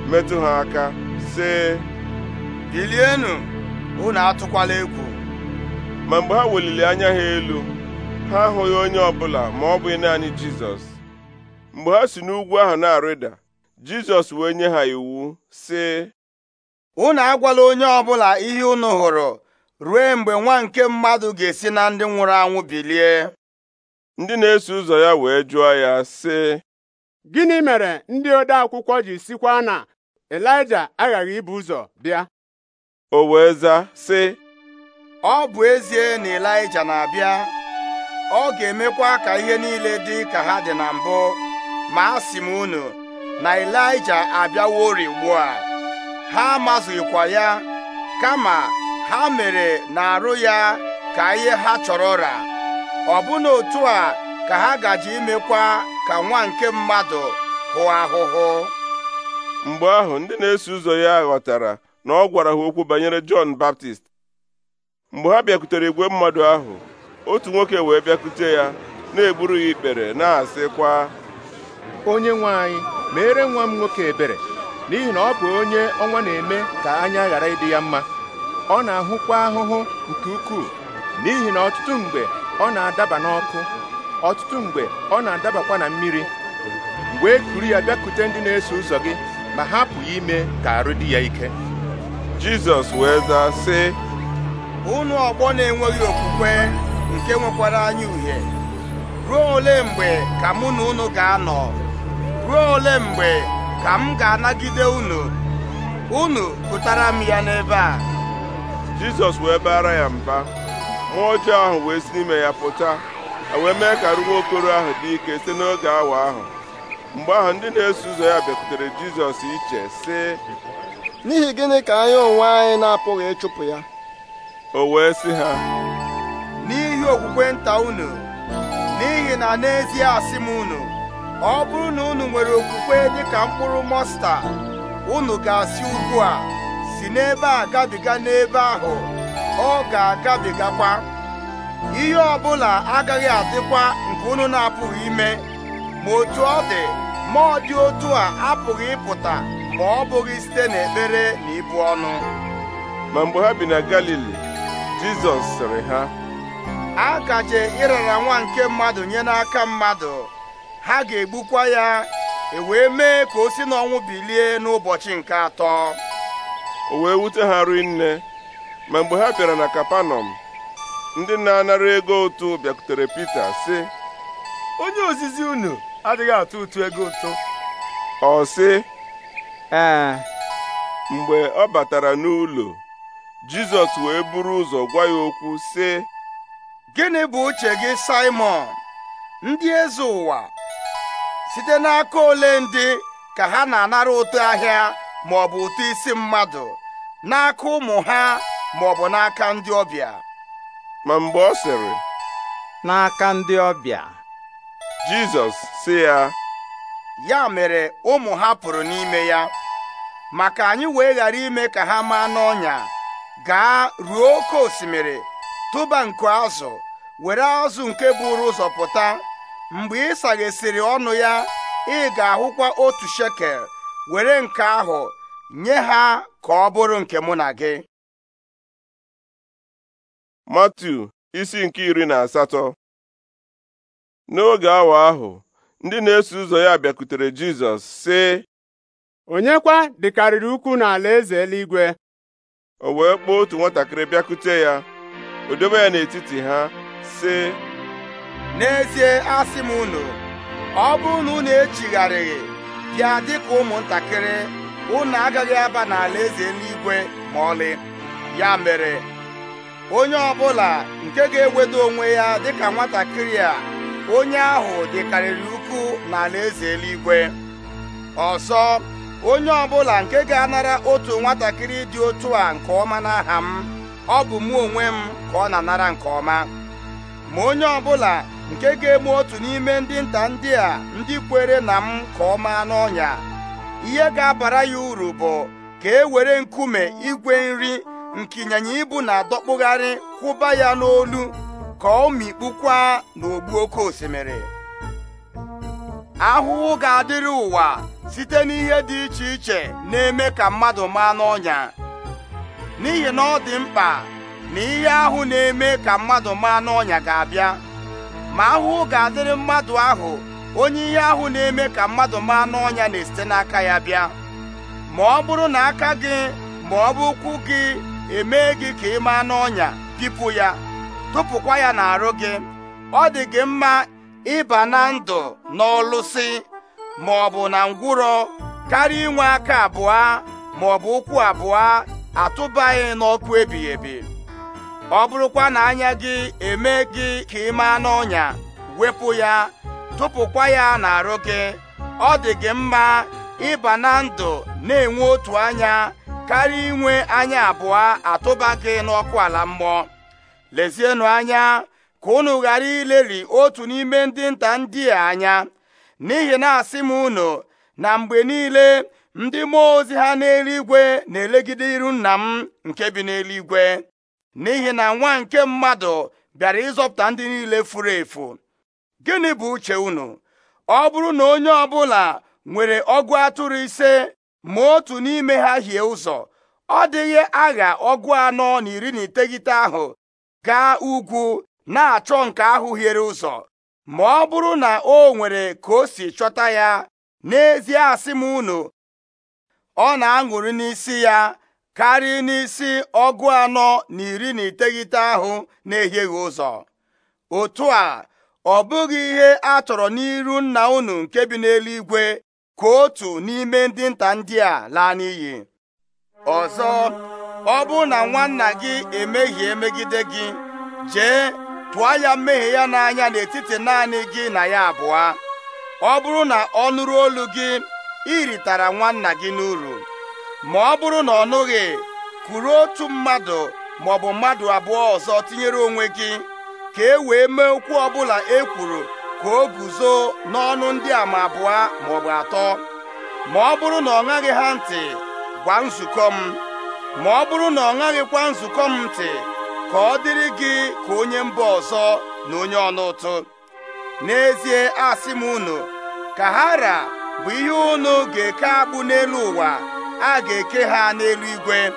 metụ ha aka sị bilienụ unu atụkwala egwu ma mgbe ha weliri anya ha elu ha ahụghị onye ọbụla ma ọ bụghị naanị jizọs mgbe ha si n'ugwu ahụ na-arịda jizọs wee nye ha iwu sị unu agwala onye ọbụla ihe unu hụrụ ruo mgbe nwa nke mmadụ ga-esi na ndị nwụrụ anwụ bilie ndị na-eso ụzọ ya wee jụọ ya sị gịnị mere ndị ode akwụkwọ ji sikwa na elija aghaghị ibu ụzọ bịa o wee zaa sị ọ bụ ezie na elija na-abịa ọ ga-emekwa ka ihe niile dị ka ha dị na mbụ ma a sị m unu na Elija abịaworị ugbu a ha amazụghịkwa ya kama ha mere na-arụ ya ka ihe ha chọrọ ra ọbụna otu a ka ha gaji imekwa ka nwa nke mmadụ hụ ahụhụ mgbe ahụ ndị na-eso ụzọ ya ghọtara na ọ gwara ha okwu banyere Jọn Baptist mgbe ha bịakwutere igwe mmadụ ahụ otu nwoke wee bịakute ya na egburu ya ikpere na-asịkwa onye nwe anyị mere nwa m nwoke ebere n'ihi na ọ bụ onye ọnwa na-eme ka anya ghara ịdị ya mma ọ na-ahụkwa ahụhụ nke ukwuu n'ihi na ọtụtụ mgbe ọ na-adaba n'ọkụ ọtụtụ mgbe ọ na-adabakwa na mmiri wee e kuru ya bịakute ndị na-eso ụzọ gị ma hapụ ya ime ka arụ dị ya ike Jizọs wee zaa sị unu ọgbọ na-enweghị okwukwe nke nwekwara anyị uhie ruo ole mgbe ka mụ na unu ga-anọ ruo ole mgbe ka m ga-anagide unu unu pụtara m ya n'ebe a Jizọs wee baara ya mba mmụọ ọjọọ ahụ wee si n'ime ya pụta e wee mee ka okoro ahụ dị ike site n'oge awa ahụ mgbe ahụ ndị na-eso ụzọ ya bịakwutere Jizọs iche sị n'ihi gịnị ka anyị onwe anyị na-apụghị ịchụpụ ya o wee sị ha okwukwe nta unu n'ihi na n'ezie asị m unu ọ bụrụ na unu nwere okwukwe dịka mkpụrụ mọsta unu ga-asị ugbu a si n'ebe a gabiga n'ebe ahụ ọ ga-agabigakwa ihe ọbụla agaghị adịkwa nke unu na-apụghị ime ma otu ọ dị ma ọ dị otu a apụghị ịpụta ma ọ bụghị site n'ekpere na ibu ọnụ ma mgbe ha bi na Galili Jizọs sịrị ha a gaje ịrara nwa nke mmadụ nye n'aka mmadụ ha ga-egbukwa ya e wee mee ka o si n'ọnwụ bilie n'ụbọchị nke atọ o wee wute ha rinne ma mgbe ha bịara na kapanọm ndị na-anara ego ụtụ bịakutere Pita sị onye ozizi unu adịghị atụ ụtụ ego ụtụ ọ sị mgbe ọ batara n'ụlọ Jizọs wee buru ụzọ gwa ya okwu sị gịnị bụ uche gị Simon ndị eze ụwa site n'aka ole ndị ka ha na-anara ụtụ ahịa ma ọ bụ ụtụ isi mmadụ n'aka ụmụ ha ma ọ bụ n'aka ndị ọbịa ma mgbe ọ sịrị n'aka ndị ọbịa Jizọs sị ya ya mere ụmụ ha pụrụ n'ime ya maka anyị wee ghara ime ka ha maa n'ọnya gaa ruo oke osimiri tụba nku azụ were azụ nke buru ụzọ pụta mgbe ị saghesịrị ọnụ ya ị ga-ahụkwa otu shekel were nke ahụ nye ha ka ọ bụrụ nke mụ na gị matu isi nke iri na asatọ n'oge awa ahụ ndị na-eso ụzọ ya bịakwutere Jizọs sị onye kwa dịkarịrị ukwu n'ala eze eluigwe o wee kpọọ otu nwatakịrị bịakute ya o dobe ya n'etiti ha sị n'ezie asị m unu ọ bụrụ na unu echigharịghị bịa dịka ụmụntakịrị unu agaghị aba n'ala eze eluigwe ma ọlị ya mere onye ọbụla nke ga-ewedo onwe ya dịka nwatakịrị a onye ahụ dịkarịrị ukwu n'ala eze eluigwe ọzọ onye ọbụla nke ga-anara otu nwatakịrị dị otu a nke ọma n'aha m ọ bụ mụ onwe m ka ọ na-anara nke ọma ma onye ọ bụla nke ga-egbu otu n'ime ndị nta ndị a ndị kwere na m ka ọ maa n'ọnya ihe ga-abara ya uru bụ ka e were nkume igwe nri nke ịnyịnya ibu na-adọkpụgharị kwụba ya n'olu ka ọ mikpukwa n'ogbu oke osimiri ahụhụ ga-adịrị ụwa site n'ihe dị iche iche na-eme ka mmadụ maa n'ọnya n'ihi na ọ dị mkpa na ihe ahụ na-eme ka mmadụ maa n'ọnya ga-abịa ma ahụhụ ga-adịrị mmadụ ahụ onye ihe ahụ na-eme ka mmadụ maa n'ọnya na-esite n'aka ya bịa ma ọ bụrụ na aka gị ma ọ bụ ụkwụ gị emee gị ka ị maa n'ọnya pipụ ya tụpụkwa ya n'arụ gị ọ dị gị mma ịba na ndụ n'ọlụsị ma ọ bụ na ngwụrọ karịa inwe aka abụọ ma ọ bụ ụkwụ abụọ atụbaghị n'ọkụ ebighị ebi ọ bụrụkwa na anya gị eme gị ka ị maa n'ọnya wepụ ya tụpụkwa ya n'arụ gị ọ dị gị mma ịba na ndụ na-enwe otu anya karịa inwe anya abụọ atụba gị n'ọkụ ala mmụọ lezienụ anya ka unu ghara ileri otu n'ime ndị nta ndị a anya n'ihi na asị m unu na mgbe niile ndị mmụọ ozi ha n'eluigwe na-elegide iru nna m nke bi n'eluigwe n'ihi na nwa nke mmadụ bịara ịzọpụta ndị niile furu efu gịnị bụ uche unu ọ bụrụ na onye ọbụla nwere ọgụ atụrụ ise ma otu n'ime ha hie ụzọ ọ dịghị agha ọgụ anọ na iri na iteghete ahụ gaa ugwu na-achọ nke ahụ hiere ụzọ ma ọ bụrụ na o nwere ka o si chọta ya n'ezie asị m unu ọ na-aṅụrị n'isi ya karị n'isi ọgụ anọ na iri na iteghete ahụ na-ehieghị ụzọ otu a ọ bụghị ihe a chọrọ n'iru nna unu nke bi n'eluigwe ka otu n'ime ndị nta ndị a laa n'iyi ọzọ ọ bụrụ na nwanna gị emehie megide gị jee tụọ ya mmehie ya n'anya n'etiti naanị gị na ya abụọ ọ bụrụ na ọ nụrụ olu gị ritara nwanna gị n'uru ma ọ bụrụ na ọ nụghị kụrụ otu mmadụ ma ọ bụ mmadụ abụọ ọzọ tinyere onwe gị ka e wee mee okwu ọbụla e kwuru ka o guzo n'ọnụ ndị a ma abụọ maọbụ atọ ma ọ bụrụ na ọ ṅaghị ha ntị gwa nzukọ m ma ọ bụrụ na ọ ṅaghịkwa nzukọ m ntị ka ọ dịrị gị ka onye mba ọzọ na onye ọnụ ụtụ n'ezie asị m unu ka bụ ihe unu ga-eke abụ n'elu ụwa a ga-eke ha n'eluigwe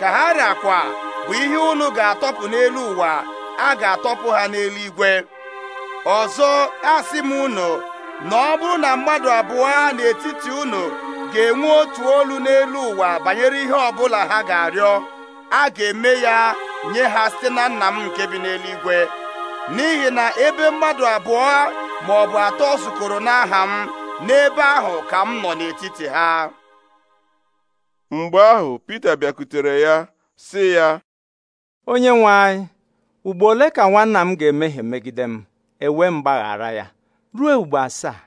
ka ha rakwa bụ ihe unu ga-atọpụ n'elu ụwa a ga-atọpụ ha n'eluigwe ọzọ asị m unu na ọ bụrụ na mmadụ abụọ n'etiti unu ga-enwe otu olu n'elu ụwa banyere ihe ọbụla ha ga-arịọ a ga-eme ya nye ha site na nna m nke bi n'eluigwe n'ihi na ebe mmadụ abụọ ma ọ bụ atọ zukọrọ n'aha m n'ebe ahụ ka m nọ n'etiti ha mgbe ahụ Peter bịakutere ya sị ya onye nwe anyị ugbo ole ka nwanna m ga-emehie megide m ewe mgbaghara ya ruo ugbo asaa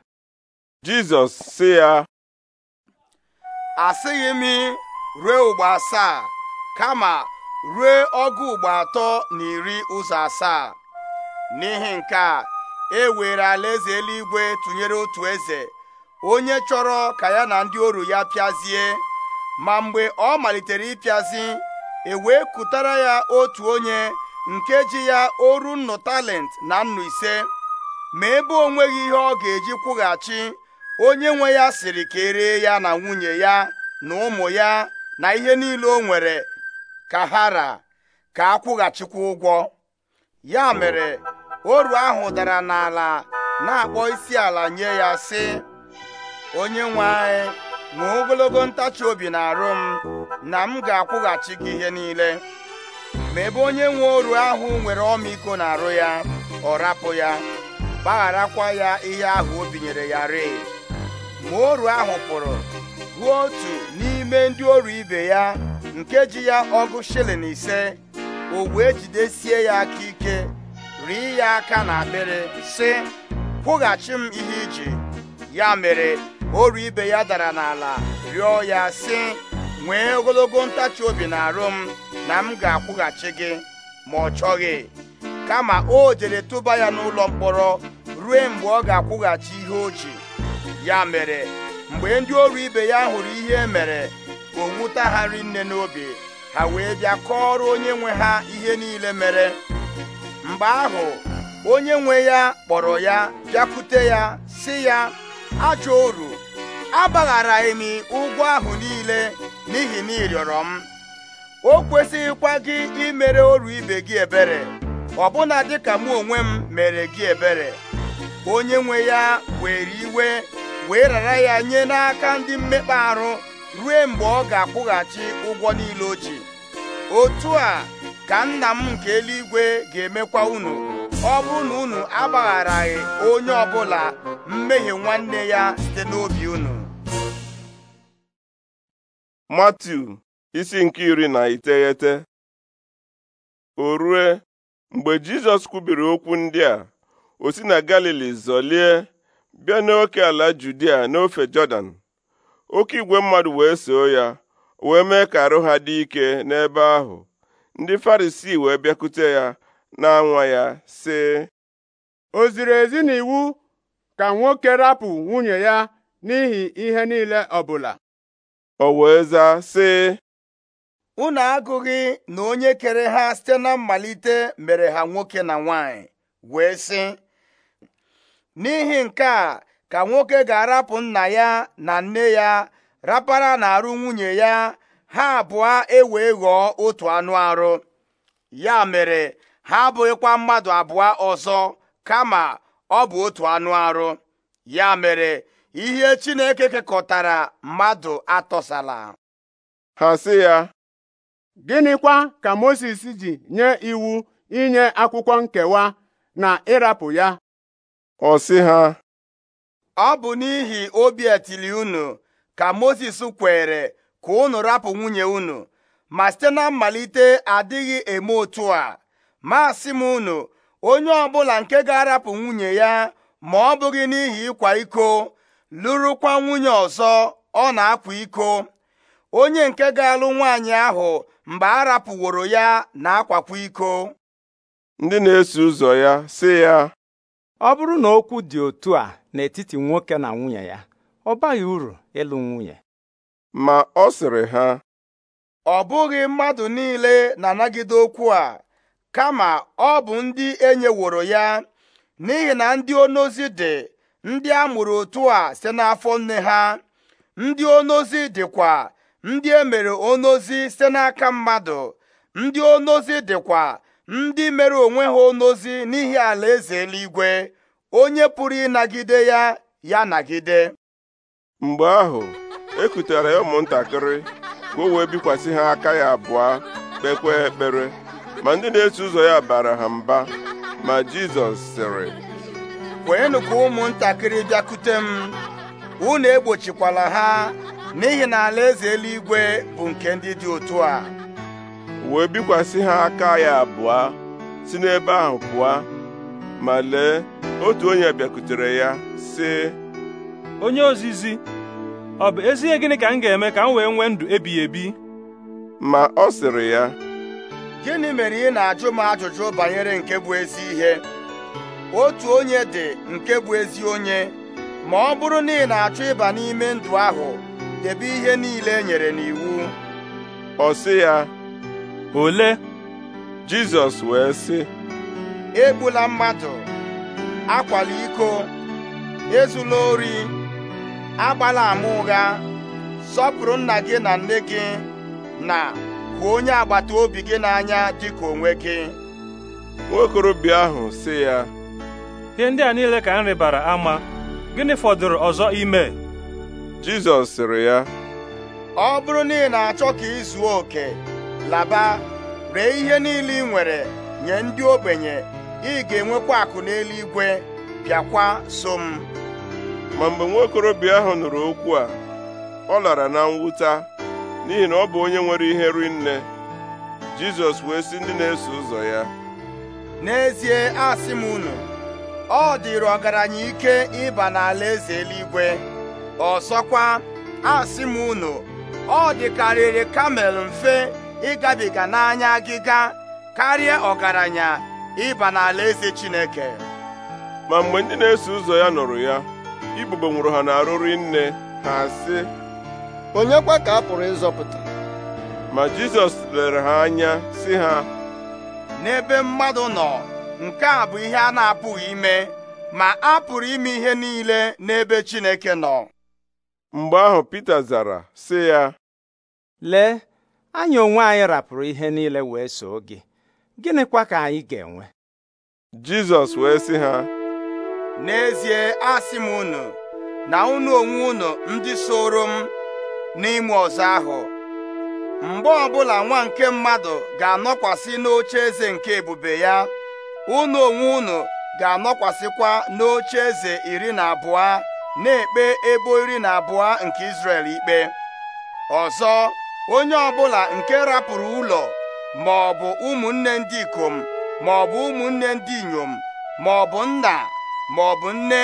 Jizọs sị ya asịghị m ruo ugbo asaa kama ruo ọgụ ugbo atọ na iri ụzọ asaa n'ihi nke a e were alaeze eluigwe tụnyere otu eze onye chọrọ ka ya na ndị oru ya pịazie ma mgbe ọ malitere ịpịazi e kụtara ya otu onye nke ji ya oru nnu talent na nnu ise ma ebe onweghi ihe ọ ga-eji kwụghachi onye nwe ya siri ka eree ya na nwunye ya na ụmụ ya na ihe niile o nwere ka hara ka akwụghachikwa ụgwọ ya mere oru ahụ dara n'ala na-akpọ isi ala nye ya sị onye nwe anyị ma ogologo ntachi obi na-arụ m na m ga-akwụghachi gị ihe niile ma ebe onye nwe oru ahụ nwere ọmịiko na-arụ ya ọ rapụ ya gbagharakwa ya ihe ahụ o binyere ya rịị ma oru ahụ pụrụ ruo otu n'ime ndị oru ibe ya nke ji ya ọgụ shilling ise o wee jidesie ya aka ike rie ya aka na akpịrị sị kwụghachi m ihe iji ya mere oru ibe ya dara n'ala rịọ ya sị nwee ogologo ntachi obi na arụ m na m ga-akwụghachi gị ma ọ chọghị kama o jere tụba ya n'ụlọ mkpọrọ ruo mgbe ọ ga-akwụghachi ihe o ji ya mere mgbe ndị oru ibe ya hụrụ ihe e mere o wuta ha nne n'obi ha wee bịa kọọrọ onye nwe ha ihe niile mere mgbe ahụ onye nwe ya kpọrọ ya bịakwute ya sị ya ajọ oru abagharaghị m ụgwọ ahụ niile n'ihi na ị rịọrọ m o kwesịghịkwa gị imere oru ibe gị ebere ọbụna dịka mụ onwe m mere gị ebere onye nwe ya were iwe wee rara ya nye n'aka ndị mmekpa ahụ ruo mgbe ọ ga-akwụghachi ụgwọ niile o ji otu a ka nna m nke eluigwe ga-emekwa unu ọ bụrụ na unu agbagharaghị onye ọbụla mmehie nwanne ya site n'obi unu Matiu isi nke iri na iteghete o rue mgbe Jizọs kwubiri okwu ndị a o si na Galili zọlie bịa n'oke ala Judia n'ofe Jọdan oke igwe mmadụ wee soo ya wee mee ka arụ ha dị ike n'ebe ahụ ndị farisi wee bịakute ya na-anwa ya sị o ziri ezi iwu ka nwoke rapụ nwunye ya n'ihi ihe niile ọbụla o wee zaa sị unu agụghị na onye kere ha site na mmalite mere ha nwoke na nwanyị wee sị n'ihi nke a ka nwoke ga-arapụ nna ya na nne ya rapara na-arụ nwunye ya ha abụọ ewee ghọọ otu anụ arụ ya mere ha abụghịkwa mmadụ abụọ ọzọ kama ọ bụ otu anụ arụ ya mere ihe Chineke kekọtara mmadụ atọsala ha si ya gịnịkwa ka Mozis ji nye iwu inye akwụkwọ nkewa na ịrapụ ya ọ si ha ọ bụ n'ihi obi etili unu ka Mozis kwere ka unu rapụ nwunye unu ma site na mmalite adịghị eme otu a ma m unu onye ọbụla nke ga-arapụ nwunye ya ma ọ bụghị n'ihi ịkwa iko lụrụkwa nwunye ọzọ ọ na-akwa iko onye nke ga-alụ nwaanyị ahụ mgbe a rapụworo ya na-akwakwa iko ndị na-eso ụzọ ya sị ya ọ bụrụ na okwu dị otu a n'etiti nwoke na nwunye ya ọ baghị uru ịlụ nwunye ma ọ sịrị ha ọ bụghị mmadụ niile na-anagide okwu a kama ọ bụ ndị enyeworo ya n'ihi na ndị onozi dị ndị a mụrụ otu a site n'afọ nne ha ndị onozi dịkwa ndị e mere onozi site n'aka mmadụ ndị onozi dịkwa ndị mere onwe ha onozi n'ihi alaeze eluigwe onye pụrụ ịnagide ya ya nagide mgbe ahụ ekutere ya ụmụntakịrị ka o wee bikwasị ha aka ya abụọ kpekwa ekpere ma ndị na-eso ụzọ ya bara ha mba ma Jizọs sịrị kwenyenụ ka ụmụntakịrị bịakute m unu egbochikwala ha n'ihi na alaeze eluigwe bụ nke ndị dị otu a wee bikwasị ha aka ya abụọ si n'ebe ahụ pụọ ma lee otu onye bịakutere ya sị onye ozizi ọ bụ ezihe gịnị ka m ga-eme ka m wee nwee ndụ ebighị ebi ma ọ sịrị ya gịnị mere ị na-ajụ m ajụjụ banyere nke bụ ezi ihe otu onye dị nke bụ ezi onye ma ọ bụrụ na ị na-achọ ịba n'ime ndụ ahụ debe ihe niile e nyere n'iwu ọ sị ya ole Jizọs wee sị egbula mmadụ akwala iko ezula ori agbala ama ụgha sọpụrụ nna gị na nne gị na hụ onye agbata obi gị n'anya dịka onwe gị nwokorobịa ahụ sị ya ihe ndị a niile ka m rịbara ama gịnị fọdụrụ ọzọ ime Jizọs sịrị ya ọ bụrụ na ị na-achọ ka ị zuo oke laba ree ihe niile ị nwere nye ndị ogbenye ị ga-enwekwa akụ n'eluigwe bịakwa so m ma mgbe nwaokorobịa ahụ nụrụ okwu a ọ lara na mwụta n'ihi na ọ bụ onye nwere ihe rinne Jizọs wee sị ndị na-eso ụzọ ya n'ezie asị m unu ọ dịrị ọgaranya ike ịba n'ala eze eluigwe ọzọkwa asị m unu ọ dịkarịrị kamel mfe ịgabiga n'anya agịga karịa ọgaranya ịba n'ala eze chineke ma mgbe ndị na-eso ụzọ ya nụrụ ya ibubo nwụrụ ha n'arụrụ nne ha sị onye kwa ka a pụrụ ịzọpụta ma jizọs lere ha anya sị ha n'ebe mmadụ nọ nke a bụ ihe a na-apụghị ime ma a pụrụ ime ihe niile n'ebe Chineke nọ mgbe ahụ Peter zara sị ya lee anyị onwe anyị rapụrụ ihe niile wee soo gị gịnịkwa ka anyị ga-enwe Jizọs wee sị ha n'ezie asị m unu na unu onwe unu ndị soro m n'ime ọzọ ahụ mgbe ọbụla nwa nke mmadụ ga-anọkwasị n'oche eze nke ebube ya unu onwe unu ga-anọkwasịkwa n'oche eze iri na abụọ na-ekpe ebo iri na abụọ nke israel ikpe ọzọ onye ọbụla nke rapụrụ ụlọ ma ọ bụ ụmụnne ndị ikom ma ọ bụ ụmụnne ndị inyom ma ọ bụ nna ma ọ bụ nne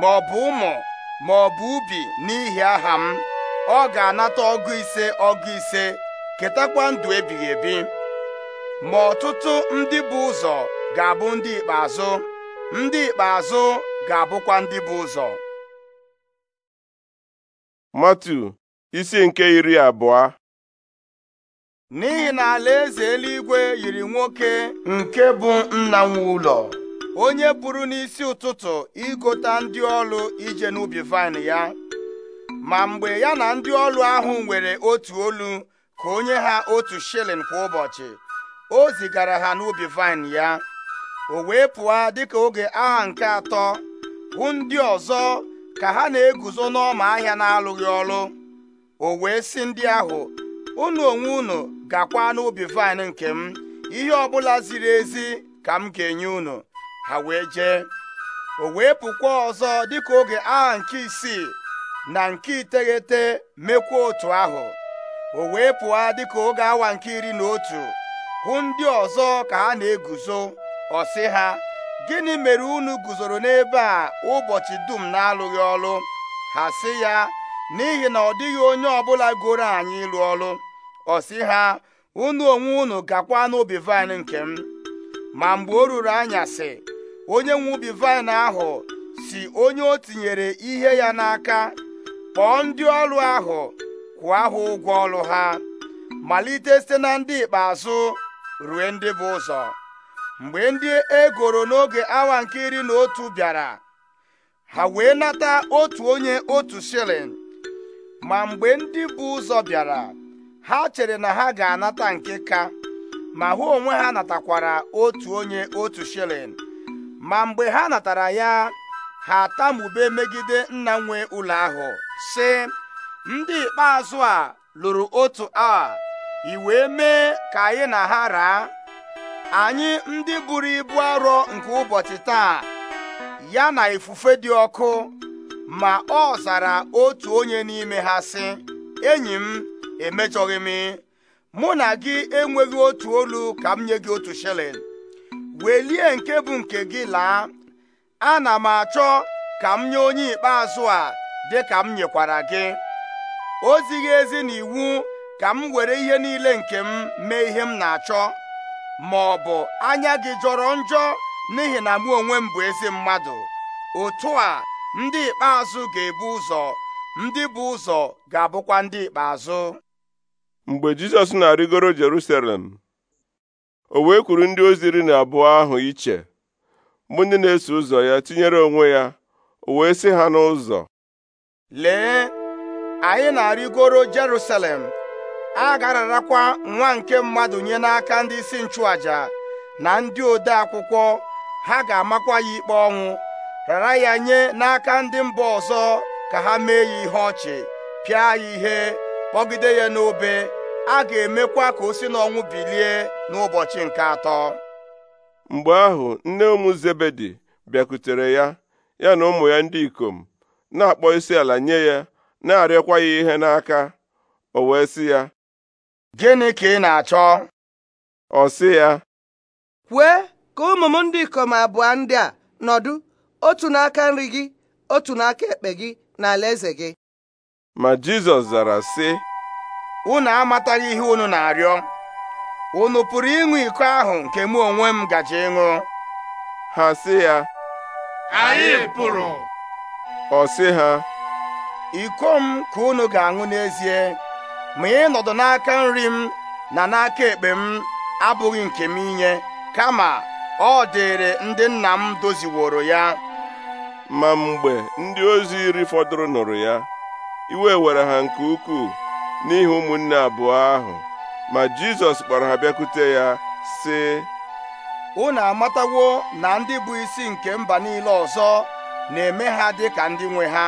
ma ọ bụ ụmụ ma ọ bụ ubi n'ihi aha m ọ ga-anata ọgụ ise ọgụ ise ketakwa ndụ ebighị ebi ma ọtụtụ ndị bụ ụzọ ga-abụ ndị ikpeazụ ndị ikpeazụ ga-abụkwa ndị bụ ụzọ matu isi nke iri abụọ n'ihi na alaeze eluigwe yiri nwoke nke bụ nna nwe ụlọ onye pụrụ n'isi ụtụtụ igota ndị ọlụ ije n'ubi vaịn ya ma mgbe ya na ndị ọlụ ahụ nwere otu olu ka onye ha otu shilling kwa ụbọchị o zigara ha n'ubi vaịn ya o wee pụọ dịka oge agha nke atọ hụ ndị ọzọ ka ha na-eguzo n'ọma ahịa na-alụghị ọlụ o wee ndị ahụ unu onwe unu gakwa n'ubi vaịn nke m ihe ọbụla ziri ezi ka m ga-enye unu ha wee jee o wee pụkwa ọzọ dịka oge agha nke isii na nke iteghete mekwa otu ahụ o wee pụọ dịka oge awa nke iri na otu hụ ndị ọzọ ka ha na-eguzo ọ sị ha gịnị mere unu guzoro n'ebe a ụbọchị dum na-alụghị ọlụ ha sị ya n'ihi na ọ dịghị onye ọbụla goro anyị ịlụ ọlụ ọ sị ha unu onwe unu gakwa n'ubi vaịn nke m ma mgbe o ruru anya anyasị onye nwe ubi vaịn ahụ si onye o tinyere ihe ya n'aka kpọọ ndị ọrụ ahụ kwụọ ha ụgwọ ọrụ ha malite site na ndị ikpeazụ rue ndị bụ ụzọ mgbe ndị egoro n'oge awa nke iri na otu bịara ha wee nata otu onye otu shilling ma mgbe ndị bụ ụzọ bịara ha chere na ha ga-anata nke ka ma hụ onwe ha natakwara otu onye otu shilling ma mgbe ha natara ya ha atamube megide nna nwe ụlọ ahụ sị ndị ikpeazụ a lụrụ otu a i mee ka anyị na ha raa anyị ndị buru ibu arọ nke ụbọchị taa ya na ifufe dị ọkụ ma ọ zara otu onye n'ime ha sị enyi m emechọghị m mụ na gị enweghị otu olu ka m nye gị otu shilling welie nke bụ nke gị laa ana m achọ ka m nye onye ikpeazụ a dị ka m nyekwara gị o ezi na iwu ka m were ihe niile nke m mee ihe m na-achọ ma ọ bụ anya gị jọrọ njọ n'ihi na mụ onwe m bụ ezi mmadụ otu a ndị ikpeazụ ga-ebu ụzọ ndị bụ ụzọ ga-abụkwa ndị ikpeazụ mgbe Jizọs na-arịgoro Jerusalem o wee kwuru ndị ozi iri na abụọ ahụ iche bụ ndị na-eso ụzọ ya tinyere onwe ya o wee sị ha n'ụzọ lee anyị na-arịgoro Jerusalem a ga nwa nke mmadụ nye n'aka ndị isi nchụaja na ndị ode akwụkwọ ha ga-amakwa ya ikpe ọnwụ rara ya nye n'aka ndị mba ọzọ ka ha mee ya ihe ọchị pịa ya ihe kpọgide ya n'obe a ga-emekwa ka o si n'ọnwụ bilie n'ụbọchị nke atọ mgbe ahụ nne ụmụ Zebedi bịakutere ya ya na ụmụ ya ndị ikom na-akpọ isi ala nye ya na-arịọkwa ya ihe n'aka o wee sị ya gịnị ka ị na-achọ ọ sị ya kwee ka ụmụ m ndị ikom abụọ ndị a nọdụ otu n'aka nri gị otu n'aka ekpe gị na alaeze gị ma Jizọs zara sị unu amataghị ihe unu na-arịọ unu pụrụ ịṅụ iko ahụ nke mụ onwe m gaji ịṅụ ha sị ya anyị pụrụ ọ sị ha iko m ka unu ga-aṅụ n'ezie ma nọdụ n'aka nri m na n'aka ekpe m abụghị nke m inye kama ọ dịịrị ndị nna m doziworo ya ma mgbe ndị ozi iri fọdụrụ nụrụ ya iwe were ha nke ukwuu n'ihi ụmụnne abụọ ahụ ma Jizọs kpọrọ ha bịakwute ya sị unu amatawo na ndị bụ isi nke mba niile ọzọ na-eme ha dị ka ndị nwe ha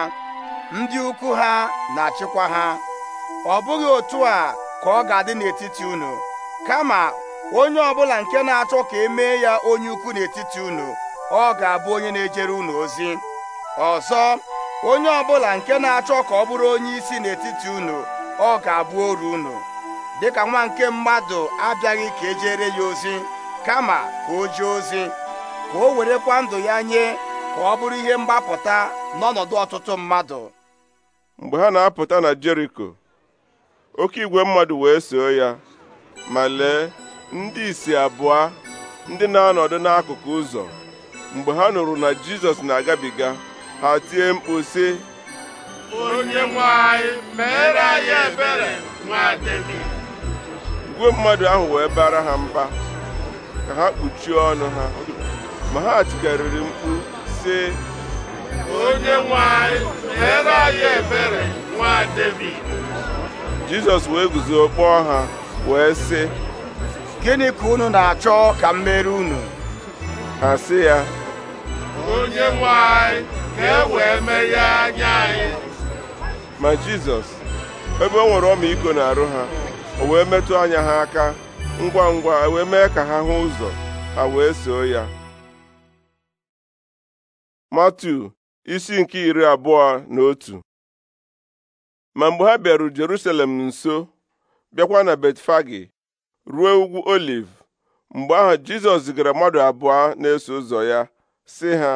ndị ukwu ha na-achịkwa ha ọ bụghị otu a ka ọ ga-adị n'etiti unu kama onye ọbụla nke na-achọ ka e mee ya onye ukwu n'etiti unu ọ ga-abụ onye na-ejere unu ozi ọzọ onye ọbụla nke na-achọ ka ọ bụrụ onye isi n'etiti unu ọ ga-abụ oru unu dịka nwa nke mmadụ abịaghị ka ejere ya ozi kama ka o jee ozi ka o werekwa ndụ ya nye ka ọ bụrụ ihe mgbapụta n'ọnọdụ ọtụtụ mmadụ mgbe ha na-apụta na Jeriko oke igwe mmadụ wee soo ya ma lee ndị isi abụọ ndị na-anọdụ n'akụkụ ụzọ mgbe ha nụrụ na Jizọs na-agabiga ha tie mkpu sị onye nwe anyị mere anyị ebere nwa David. igwe mmadụ ahụ wee bara ha mba ka ha kpuchie ọnụ ha ma ha tikarịrị mkpu sị onye nwe mere anyị ebere nwa Devid jizọs wee guzo kpọọ ha wee sị gịnị ka unu na-achọ ka m mere unu ha sị ya onye nwe anyị ka e wee meghee anya anyị ma jizọs ebe o nwere na arụ ha o wee metụ anya ha aka ngwa ngwa e wee mee ka ha hụ ụzọ ha wee soo ya matu isi nke iri abụọ na otu ma mgbe ha bịaru Jerusalem nso bịakwa na Betfagi ruo ugwu Oliv mgbe ahụ Jizọs zigara mmadụ abụọ na-eso ụzọ ya sị ha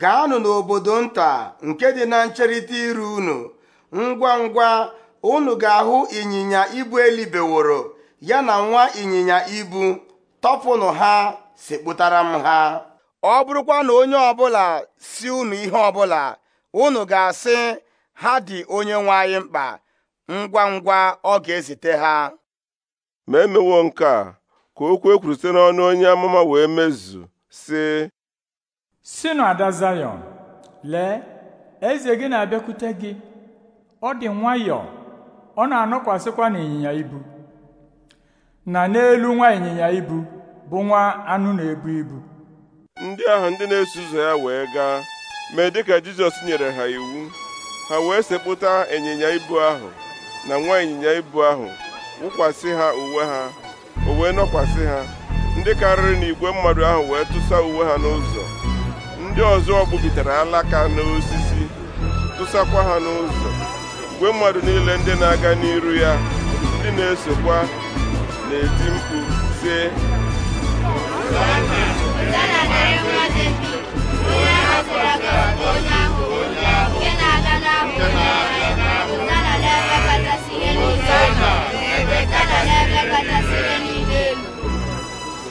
gaanụ n'obodo nta nke dị na ncherịta iru unu ngwa ngwa unu ga-ahụ ịnyịnya ibu elibeworo ya na nwa ịnyịnya ibu tọpụnụ ha sekpụtara ha ọ bụrụkwa na onye ọbụla si unu ihe ọbụla unu ga-asị ha dị onye nwe anyị mkpa ngwa ngwa ọ ga-ezite ha ma emewo nke a ka okwu ekwuru site n'ọnụ onye amụma wee mezu sị sinụ ada zayọn lee eze gị na-abịakwute gị ọ dị nwayọọ ọ na-anọkwasịkwa n'ịnyịnya ibu na n'elu nwa ịnyịnya ibu bụ nwa anụ na-ebu ibu ndị ahụ ndị na-eso ụzọ ya wee gaa mee dịka Jizọs nyere ha iwu ha wee sekpụta ịnyịnya ibu ahụ na nwa ịnyịnya ibu ahụ wụkwasị ha uwe ha o nọkwasị ha ndị karịrị na igwe mmadụ ahụ wee tụsa uwe ha n'ụzọ ndị ọzọ gbubitere alaka n'osisi tụsakwa ha n'ụzọ igwe mmadụ niile ndị na-aga n'iru ya ndị na-esokwa na-eti mkpu sie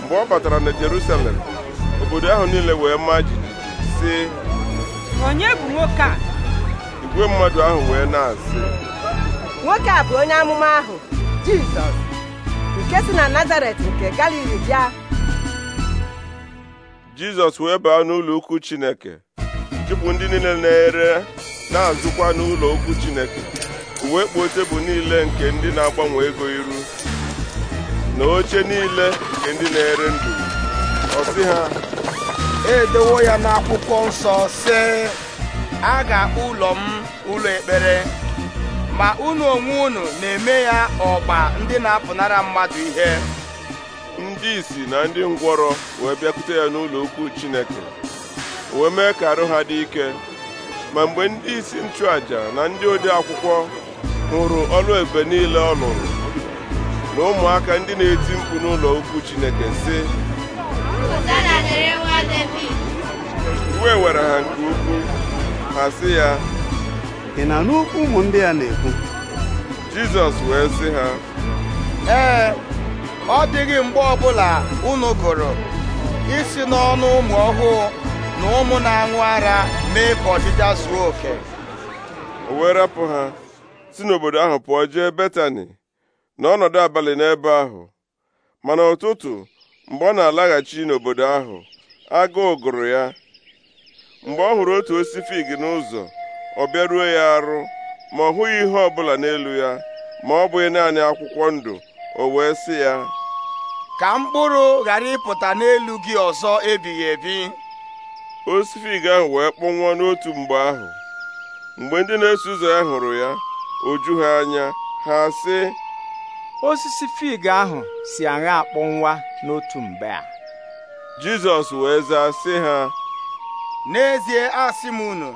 mgbe ọ batara na Jerusalem obodo ahụ niile wee maa jijiji sị onye bụ nwoke a igwe mmadụ ahụ wee na-asị nwoke a bụ onye amụma ahụ Jizọs nke si na Nazaret nke Galili bịa Jizọs wee baa n'ụlọ ukwu Chineke chụpụ ndị niile na-ere na-azụkwa n'ụlọ okwu Chineke uwe kpuo bụ niile nke ndị na-agbanwe ego iru na oche niile nke ndị na-ere ndụ ọ ha edewo ya n'akwụkwọ nsọ sị a ga-akpọ ụlọ m ụlọ ekpere ma unu onwe unu na-eme ya ọgba ndị na-apụnara mmadụ ihe ndị isi na ndị ngwọrọ wee bịakwute ya n'ụlọ okwu Chineke wee mee ka arụ ha dị ike ma mgbe ndị isi nchụaja na ndị ode akwụkwọ hụrụ ọlụ ebube niile ọ lụrụ na ụmụaka ndị na-eti mkpu n'ụlọ ukwu Chineke sị Uwe were ha nke ukwu ha sị ya ị na n'ukwu ụmụ ndị a na-ekwu Jizọs wee sị ha ee ọ dịghị mgbe ọbụla unu gụrụ isi n'ọnụ ụmụ ọhụụ na ụmụ na-aṅụ ara mee ka ọchịcha zuo oke o wee rapụ ha si n'obodo ahụ pụọ jee Betani n'ọnọdụ abalị n'ebe ahụ mana ụtụtụ mgbe ọ na-alaghachi n'obodo ahụ agụụ gụrụ ya mgbe ọ hụrụ otu osifig n'ụzọ ọ bịaruo ya arụ ma ọ hụghị ihe ọ bụla n'elu ya ma ọ bụghị naanị akwụkwọ ndụ o wee sị ya ka mkpụrụ ghara ịpụta n'elu gị ọzọ ebighị ebi osisi fig ahụ wee kpọnwụọ n'otu mgbe ahụ mgbe ndị na-eso ụzọ ya hụrụ ya oju ha anya ha sị osisi fig ahụ si aṅa akpọnwa n'otu mgbe a Jizọs wee zaa sị ha n'ezie asị m unu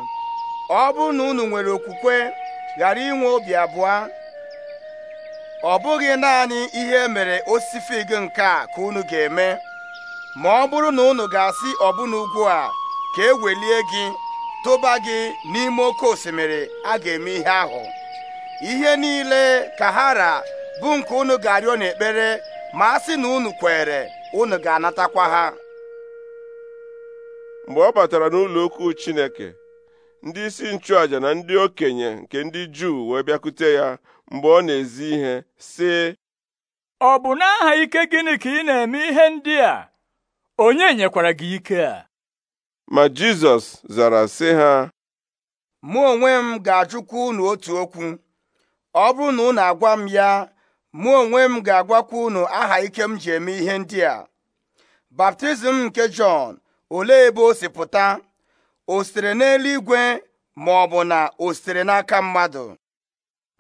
ọ bụrụ na unu nwere okwukwe ghara inwe obi abụọ ọ bụghị naanị ihe mere osisi fig nke a ka unu ga-eme ma ọ bụrụ na unu ga-asị ọbụna ugwu a ka e welie gị tụba gị n'ime oke osimiri a ga-eme ihe ahụ ihe niile ka ha ra bụ nke unu ga-arịọ n'ekpere ma a sị na unu kwere unu ga-anatakwa ha mgbe ọ batara n'ụlọ okwu Chineke ndị isi nchụàja na ndị okenye nke ndị Juu wee bịakute ya mgbe ọ na-ezi ihe sị ọ bụ n'aha ike gịnị ka ị na-eme ihe ndị a onye nyekwara gị ike a ma Jizọs zara sị ha mụ onwe m ga-ajụkwa unu otu okwu ọ bụrụ na unu agwa m ya mụ onwe m ga-agwakwa unu aha ike m ji eme ihe ndị a baptizim nke Jọn ole ebe o si pụta o sitere n'eluigwe ma ọ bụ na o sitere n'aka mmadụ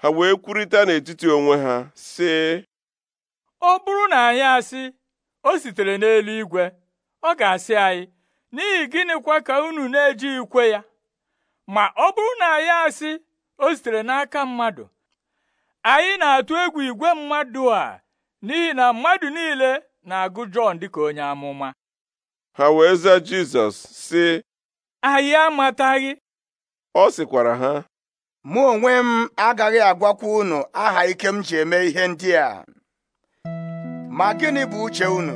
ha wee kwurịta n'etiti onwe ha sị ọ bụrụ na anyị asị o sitere n'eluigwe ọ ga-asị anyị n'ihi gịnịkwa ka unu na-eji ikwe ya ma ọ bụrụ na ya asị o sitere n'aka mmadụ anyị na-atụ egwu igwe mmadụ a n'ihi na mmadụ niile na-agụ Jọn dịka onye amụma ha wee za Jizọs sị anyị amataghị ọ sịkwara ha mụ onwe m agaghị agwakwa unu aha ike m ji eme ihe ndị a ma gịnị bụ uche unu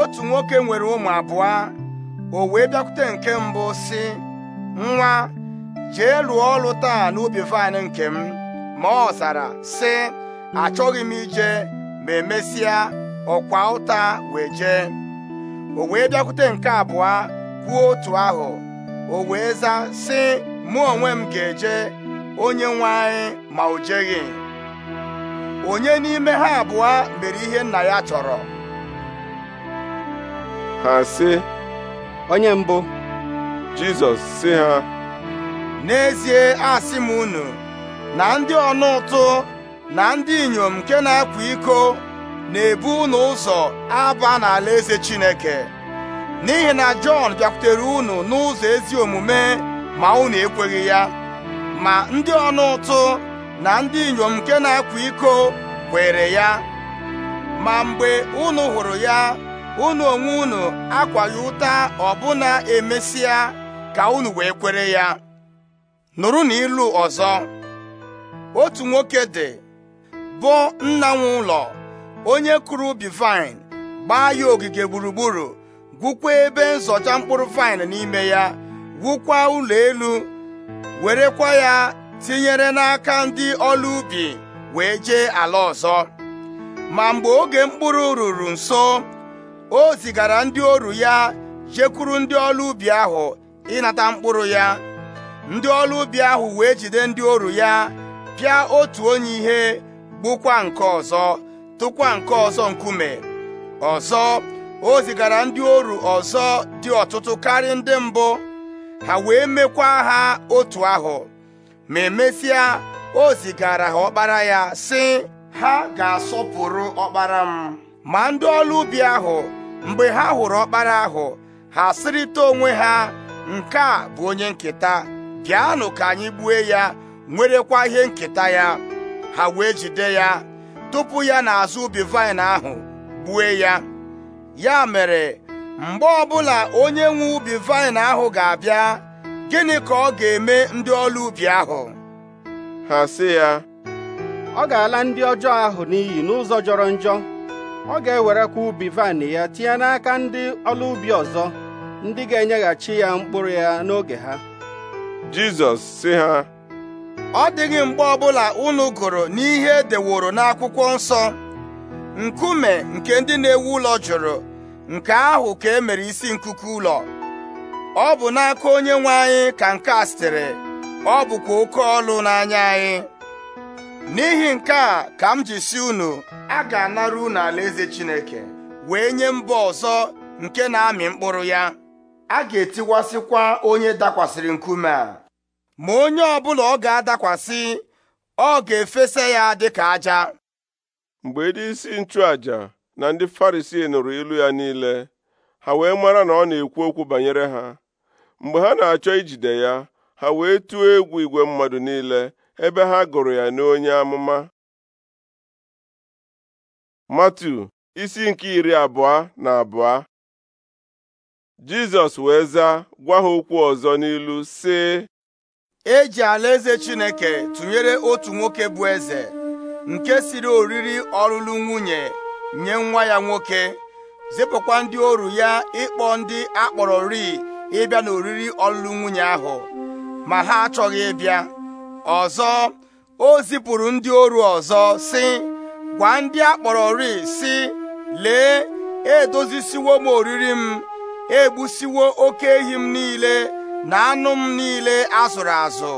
otu nwoke nwere ụmụ abụọ o wee bịakwute nke mbụ si nwa jee lụọ ọrụ taa n'ubi vaịn nke m ma ọ zara si achọghị m ije ma emesịa ọkwa ụta wee jee o wee bịakwute nke abụọ kwuo otu ahụ o wee zaa si mụ onwe m ga-eje onye nwanyị ma o jeghị onye n'ime ha abụọ mere ihe nna ya chọrọ ha si. onye mbụ Jizọs sị ha n'ezie asị m unu na ndị ọnụ ụtụ na ndị inyom nke na-akwa iko na-ebu unu ụzọ aba n'ala eze Chineke n'ihi na Jọn bịakwutere unu n'ụzọ ezi omume ma unu ekweghi ya ma ndị ọnụ ụtụ na ndị inyom nke na-akwa iko kwere ya ma mgbe unu hụrụ ya unu onwe unu akwaghị ụta ọbụna emesia ka unu wee kwere ya nụrụ na ilu ọzọ otu nwoke dị bụ nna nwe ụlọ onye kụrụ ubi vaịn gbaa ya ogige gburugburu gwukwa ebe nzọcha mkpụrụ vaịn n'ime ya gwukwa ụlọ elu werekwa ya tinyere n'aka ndị ọrụ ubi wee jee ala ọzọ ma mgbe oge mkpụrụ ruru nso o zigara ndị oru ya jekwuru ndị ọrụ ubi ahụ ịnata mkpụrụ ya ndị ọrụ ubi ahụ wee jide ndị oru ya pịa otu onye ihe gbukwa nke ọzọ tụkwa nke ọzọ nkume ọzọ o zigara ndị oru ọzọ dị ọtụtụ karịa ndị mbụ ha wee mekwa ha otu ahụ ma emesịa o zigara ha ọkpara ya sị ha ga-asọpụrụ ọkpara m ma ndị ọrụ ubi ahụ mgbe ha hụrụ ọkpara ahụ ha sịrịta onwe ha nke a bụ onye nketa bịanụ ka anyị gbue ya nwerekwa ihe nketa ya ha wee jide ya tupu ya n'azụ ubi vaịn ahụ gbue ya ya mere mgbe ọbụla onye nwe ubi vaịn ahụ ga-abịa gịnị ka ọ ga-eme ndị ọrụ ubi ahụ ha si ya ọ ga-ala ndị ọjọọ ahụ n'iyi n'ụzọ jọrọ njọ ọ ga-ewerekwa ubi vaịnị ya tinye n'aka ndị ọla ubi ọzọ ndị ga-enyeghachi ya mkpụrụ ya n'oge ha Jizọs sị ha ọ dịghị mgbe ọbụla unu gụrụ n'ihe e deworo n'akwụkwọ nsọ nkume nke ndị na-ewu ụlọ jụrụ nke ahụ ka e mere isi nkuku ụlọ ọ bụ n'aka onye nwe anyị ka nke a sitere ọ bụkwa oke ọlụ n'anya anyị n'ihi nke a ka m ji si unu a ga-anara unu alaeze Chineke wee nye mba ọzọ nke na-amị mkpụrụ ya a ga-etiwasịkwa onye dakwasịrị nkume a ma onye ọbụla ọ ga-adakwasị ọ ga-efesa ya dịka aja mgbe ndị isi nchụaja na ndị Farisii nụrụ ilu ya niile ha wee mara na ọ na-ekwu okwu banyere ha mgbe ha na-achọ ijide ya ha wee tụọ egwu igwe mmadụ niile ebe ha gụrụ ya n'onye amụma Matu isi nke iri abụọ na abụọ Jizọs wee zaa gwa ha okwu ọzọ n'ilu sị eji alaeze Chineke tụnyere otu nwoke bụ eze nke siri oriri ọlụlụ nwunye nye nwa ya nwoke zipụkwa ndị oru ya ịkpọ ndị akpọrọ ri ịbịa n'oriri ọlụlụ nwunye ahụ ma ha achọghị ịbịa ọzọ o zipụrụ ndị oru ọzọ si gwa ndị akpọrọ ri sị lee edozisiwo m oriri m egbusiwo oke ehi m niile na anụ m niile azụrụ azụ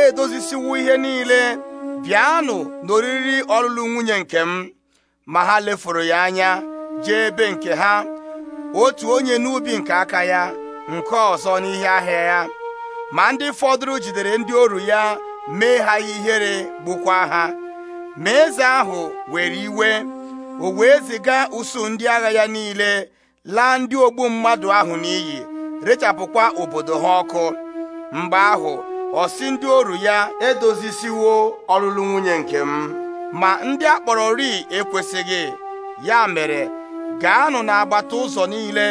edozisiwo ihe niile bịanụ n'oriri ọlụlụ nwunye nke m ma ha lefuru ya anya jee ebe nke ha otu onye n'ubi nke aka ya nke ọzọ n'ihe ahịa ya ma ndị fọdụrụ jidere ndị oru ya mee ha ihere gbukwa ha ma eze ahụ were iwe o wee ziga usuu ndị agha ya niile laa ndị ogbu mmadụ ahụ n'iyi rechapụkwa obodo ha ọkụ mgbe ahụ ọsị ndị oru ya edozisiwo ọlụlụ nwunye nke m ma ndị akpọrọ ri ekwesịghị ya mere gaanụ n'agbata ụzọ niile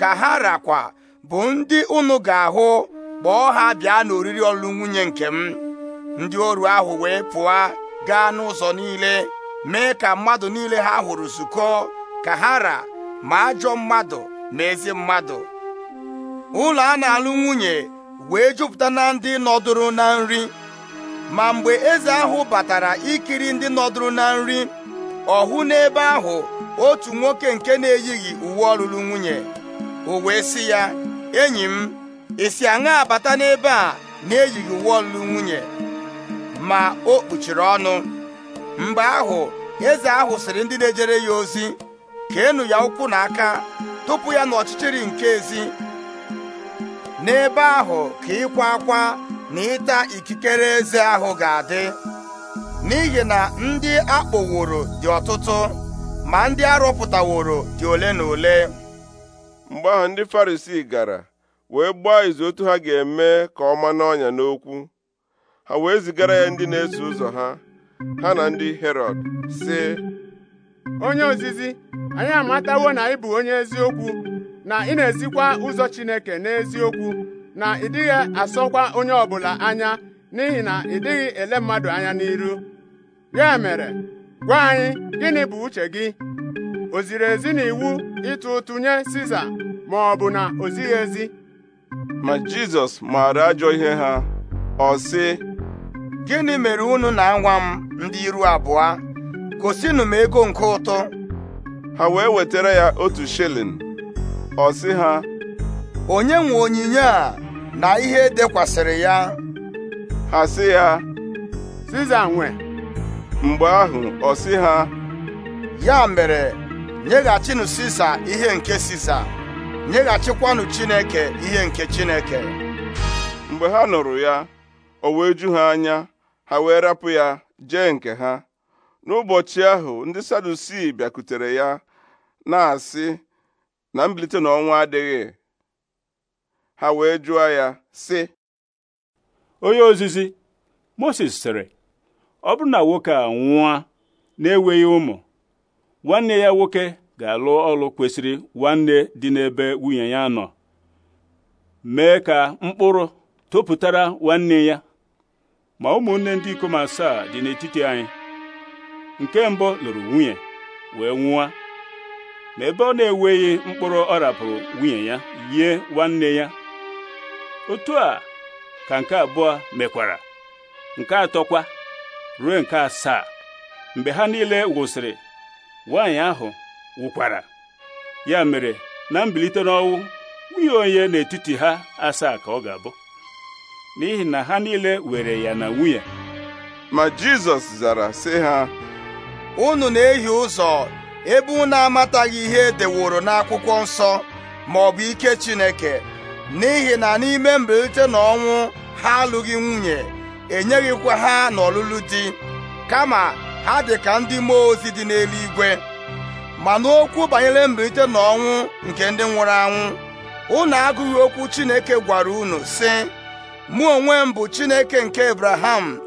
ka ha rakwa bụ ndị unu ga-ahụ kpọọ ha bịa n'oriri ọlụlụ nwunye nke m ndị oru ahụ wee pụọ gaa n'ụzọ niile mee ka mmadụ niile ha hụrụ zukọ ka ha ra ma ajọ mmadụ ma ezi mmadụ ụlọ a na-alụ nwunye wee jupụta na ndị nọdụrụ na nri ma mgbe eze ahụ batara ikiri ndị nọdụrụ na nri ọ hụ n'ebe ahụ otu nwoke nke na-eyighị uwe ọlụlụ nwunye o wee sị ya enyi m isi aṅa abata n'ebe a na-eyighị uwe ọlụlụ nwunye ma o kpuchiri ọnụ mgbe ahụ eze ahụ sịrị ndị na-ejere ya ozi ka keenụ ya ụkwụ n'aka tupu ya n'ọchịchịrị nke ezi n'ebe ahụ ka ịkwa akwa na ịta ikikere eze ahụ ga-adị n'ihi na ndị akpọworo dị ọtụtụ ma ndị arụpụtaworo dị ole na ole mgbe ahụ ndị Farisii gara wee gbaa izu otu ha ga-eme ka ọ ma n'ọnya n'okwu ha wee zigara ya ndị na-eso ụzọ ha ha na ndị Herọd sị onye ozizi anyị amatawo na ị bụ onye eziokwu na ị na-ezikwa ụzọ Chineke n'eziokwu na ị dịghị asọkwa onye ọbụla anya n'ihi na ị dịghị ele mmadụ anya n'iru ya mere gwa anyị gịnị bụ uche gị o ziri ezi na iwu ịtụ ụtụ nye Siza ma ọ bụ na o zighị ezi ma Jizọs maara ajọ ihe ha ọ sị gịnị mere unu na-anwa m ndị iru abụọ gosinụ ego nke ụtụ ha wee wetara ya otu shilling ọ sị ha onye nwe onyinye a na ihe dekwasịrị ya ha sị ya Siza nwe mgbe ahụ ọ sị ha ya mere nyeghachinụ Siza ihe nke Siza nyeghachikwanụ Chineke ihe nke Chineke mgbe ha nụrụ ya o wee ju ha anya ha wee rapụ ya jee nke ha n'ụbọchị ahụ ndị sadusi bịakutere ya na-asị na mbilite n'ọnwa adịghị ha wee jụọ ya sị onye ozizi Moses sịrị ọ bụrụ na nwoke a nwụa na-enweghị ụmụ nwanne ya nwoke ga-alụ ọlụ kwesịrị nwanne dị n'ebe nwunye ya nọ mee ka mkpụrụ topụtara nwanne ya ma ụmụnne ndị ikom asaa dị n'etiti anyị nke mbụ lụrụ nwunye wee nwụọ ma ebe ọ na-eweghị mkpụrụ ọ rapụrụ nwunye ya yie nwanne ya otu a ka nke abụọ mekwara nke atọkwa ruo nke asaa mgbe ha niile wụsịrị nwaanyị ahụ wụkwara ya mere na mbilite n'ọnwụ nwunye onye n'etiti ha asaa ka ọ ga-abụ n'ihi na ha niile were ya na nwunye ma Jizọs zara sị ha unu na-ehi ụzọ ebe unu amataghị ihe deworo n'akwụkwọ nsọ ma ọ bụ ike Chineke n'ihi na n'ime mbilite na ọnwụ ha alụghị nwunye enyeghịkwa ha n'ọlụlụ di kama ha dị ka ndị mmụọ ozi dị n'eluigwe ma n'okwu banyere mbilite na ọnwụ nke ndị nwụrụ anwụ unu agụghị okwu Chineke gwara unu sị mụ onwe m bụ Chineke nke Abraham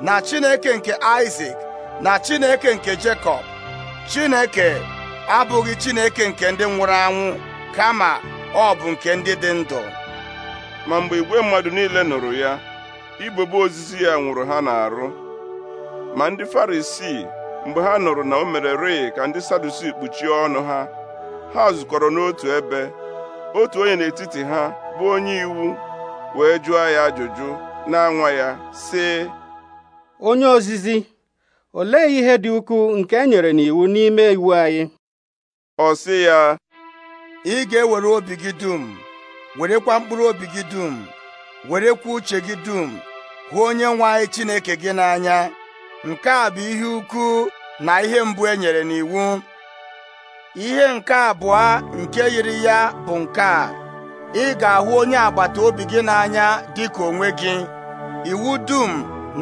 na Chineke nke Isaac na Chineke nke Jekọb Chineke abụghị Chineke nke ndị nwụrụ anwụ kama ọ bụ nke ndị dị ndụ ma mgbe igwe mmadụ niile nụrụ ya igbebe ozizi ya nwụrụ ha na-arụ, ma ndị Farisii mgbe ha nụrụ na o mere rịị ka ndị Sadusi kpuchie ọnụ ha ha zukọrọ n'otu ebe otu onye n'etiti ha bụ onye iwu wee jụọ ya ajụjụ na nwa ya sị onye ozizi olee ihe dị ukwuu nke e nyere n'iwu n'ime iwu anyị ọ sị ya ị ga-ewere obi gị dum werekwa mkpụrụ obi gị dum werekwa uche gị dum hụ onye nwe anyị Chineke gị n'anya nke a bụ ihe ukwu na ihe mbụ e nyere n'iwu ihe nke abụọ nke yiri ya bụ nke a ị ga-ahụ onye agbata obi gị n'anya dịka onwe gị iwu dum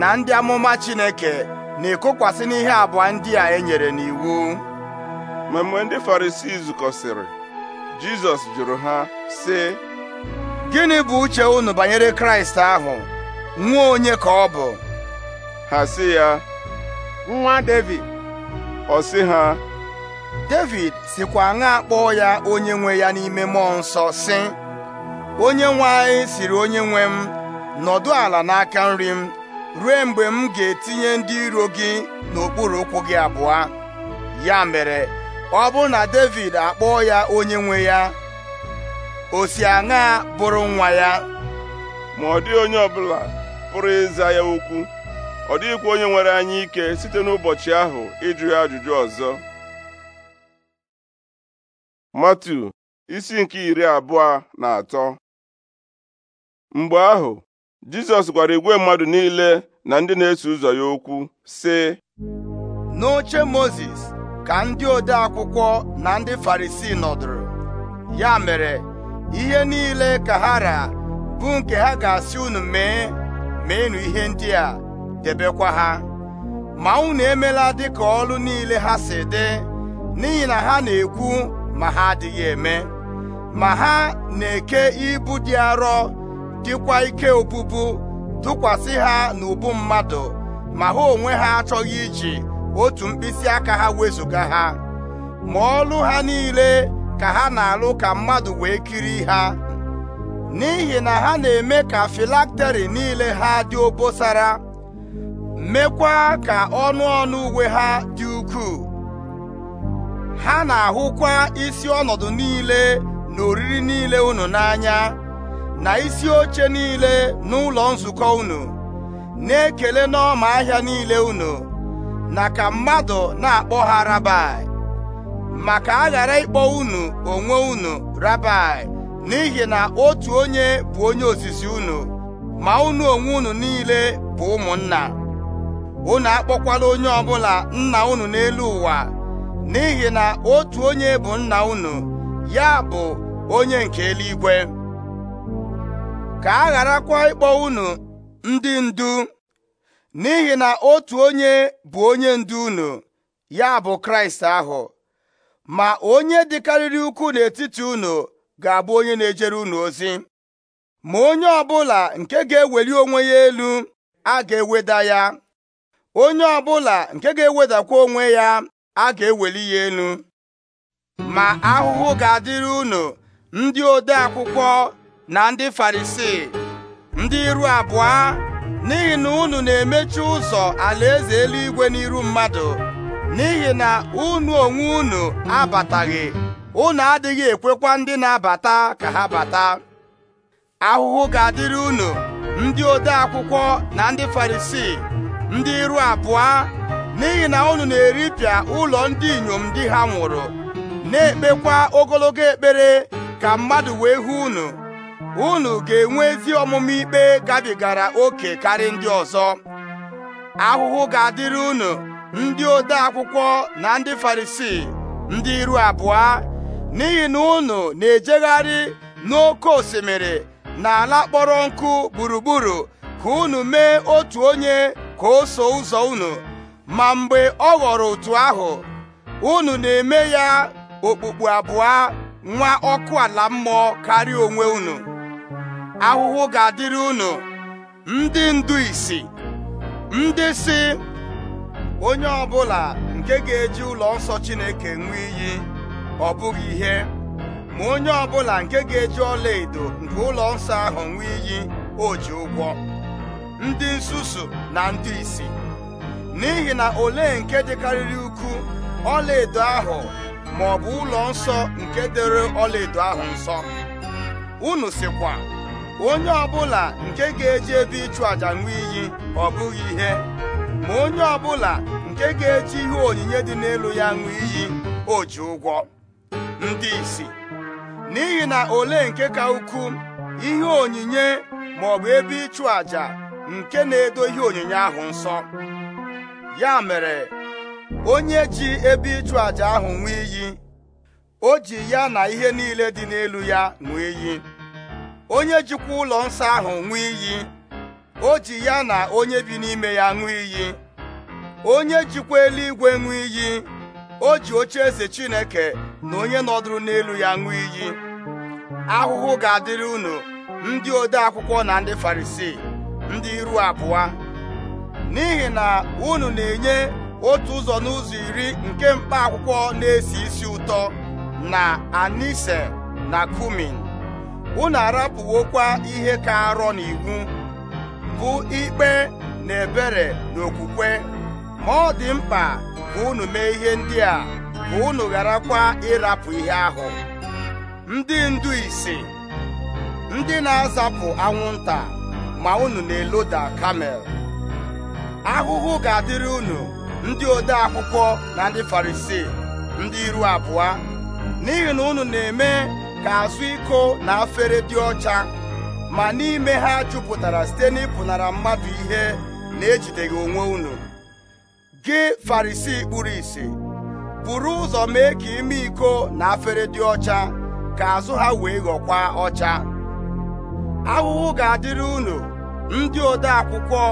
na ndị amụma Chineke na-ekokwasị n'ihe abụọ ndị a e nyere n'iwu ma mgbe ndị Farisii zukọsịrị Jizọs jụrụ ha sị gịnị bụ uche unu banyere Kraịst ahụ nwa onye ka ọ bụ ha sị ya nwa Devid ọ sị ha Devid sikwa aṅa kpọọ ya onye nwe ya n'ime mmụọ nsọ sị onye nwe anyị siri onye nwe m nọdụ ala n'aka nri m ruo mgbe m ga-etinye ndị iro gị n'okpuru ụkwụ gị abụọ ya mere ọ bụ na David akpọọ ya onye nwe ya o si aṅa bụrụ nwa ya ma ọ dị onye ọbụla pụrụ ịza ya okwu ọ dịghịkwa onye nwere anyị ike site n'ụbọchị ahụ ịjụ ya ajụjụ ọzọ Matu isi nke iri abụọ na atọ mgbe ahụ Jizọs gwara igwe mmadụ niile na ndị na-eso ụzọ ya okwu sị n'oche Mozis ka ndị ode akwụkwọ na ndị Farisii nọdụrụ ya mere ihe niile ka ha ra bụ nke ha ga-asị unu mee enu ihe ndị a debekwa ha ma unu emela dịka ọlụ niile ha si dị n'ihi na ha na-ekwu ma ha adịghị eme ma ha na-eke ibu dị arọ dịkwa ike obubu tụkwasị ha n'ubu mmadụ ma ha onwe ha achọghị iji otu mkpịsị aka ha wezụga ha ma ọlụ ha niile ka ha na-alụ ka mmadụ wee kiri ha n'ihi na ha na-eme ka filakteri niile ha dị obosara mekwa ka ọnụ ọnụ uwe ha dị ukwuu ha na-ahụkwa isi ọnọdụ niile na oriri niile unu n'anya na isi oche niile n'ụlọ nzukọ unu na-ekele n'ọma ahịa niile unu na ka mmadụ na-akpọ ha rabai maka a ghara ịkpọ unu onwe unu rabai n'ihi na otu onye bụ onye osisi unu ma unu onwe unu niile bụ ụmụnna unu akpọkwala onye ọbụla nna unu n'elu ụwa n'ihi na otu onye bụ nna unu ya bụ onye nke eluigwe ka a gharakwa ịkpọ unu ndị ndu n'ihi na otu onye bụ onye ndu unu ya bụ Kraịst ahụ ma onye dịkarịrị ukwu n'etiti unu ga-abụ onye na-ejere unu ozi ma onye ọbụla nke ga-eweli onwe ya elu a ga-eweda ya onye ọbụla nke ga-ewedakwa onwe ya a ga-eweli ya elu ma ahụhụ ga-adịrị unu ndị ode akwụkwọ na ndị farisii ndị iru abụọ n'ihi na unu na-emechi ụzọ alaeze eluigwe n'iru mmadụ n'ihi na unu onwe unu abataghị unu adịghị ekwekwa ndị na-abata ka ha bata ahụhụ ga-adịrị unu ndị ode akwụkwọ na ndị farisii ndị iru abụọ n'ihi na unu na-eripịa ụlọ ndị inyom ndị ha nwụrụ na-ekpekwa ogologo ekpere ka mmadụ wee hụ unu unu ga-enwe ezi ọmụma ikpe gabigara oke karị ndị ọzọ ahụhụ ga-adịrị unu ndị ode akwụkwọ na ndị farisii ndị iru abụọ n'ihi na unu na-ejegharị n'oke osimiri na ala kpọrọ nkụ gburugburu ka unu mee otu onye ka o so ụzọ unu ma mgbe ọ ghọrọ otu ahụ unu na-eme ya okpukpu abụọ nwa ọkụ ala mmụọ karịa onwe unu ahụhụ ga-adịrị unu ndị ndu isi ndị si onye ọbụla nke ga-eji ụlọ nsọ Chineke nwee iyi ọ bụghị ihe ma onye ọbụla nke ga-eji ọla edo nke ụlọ nsọ ahụ nwee iyi o ji ụgwọ ndị nsusu na ndị isi n'ihi na ole nke dịkarịrị ukwu ọla edo ahụ ma ọ bụ ụlọ nsọ nke dere ọlaedo ahụ nsọ unu sikwa onye ọbụla nke ga-eji ebe ịchụ aja nwee iyi ọ bụghị ihe ma onye ọbụla nke ga-eji ihe onyinye dị n'elu ya nwee iyi o ji ụgwọ ndị isi n'ihi na ole nke ka ukwu ihe onyinye ma ọ bụ ebe ịchụ aja nke na-edo ihe onyinye ahụ nsọ ya mere onye ji ebe ịchụ àjà ahụ ṅụọ iyi o ji ya na ihe niile dị n'elu ya ṅụọ iyi onye jikwa ụlọ nsọ ahụ ṅụọ iyi o ji ya na onye bi n'ime ya ṅụọ iyi onye jikwa eluigwe ṅụọ iyi o ji oche eze Chineke na onye nọdụrụ n'elu ya ṅụọ iyi ahụhụ ga-adịrị unu ndị ode akwụkwọ na ndị Farisii ndị iru abụọ n'ihi na unu na-enye otu ụzọ n'ụzọ iri nke mkpa akwụkwọ na-esi isi ụtọ na anise na kumin unu arapụwokwa ihe ka arọ n'iwu bụ ikpe na ebere na okwukwe ma ọ dị mkpa ka unu mee ihe ndị a ka unu kwa ịrapụ ihe ahụ ndị ndu ise ndị na-azapụ anwụnta ma unu na-eloda kamel ahụhụ ga-adịrị unu ndị ode akwụkwọ na ndị farisii ndị iru abụọ n'ihi na unu na-eme ka azụ iko na afere dị ọcha ma n'ime ha jupụtara site n'ịpụnara mmadụ ihe na-ejideghị onwe unu gị farisi kpuru isi buru ụzọ mee ka ime iko na afere dị ọcha ka azụ ha wee ghọkwa ọcha ahụhụ ga-adịrị unu ndị ode akwụkwọ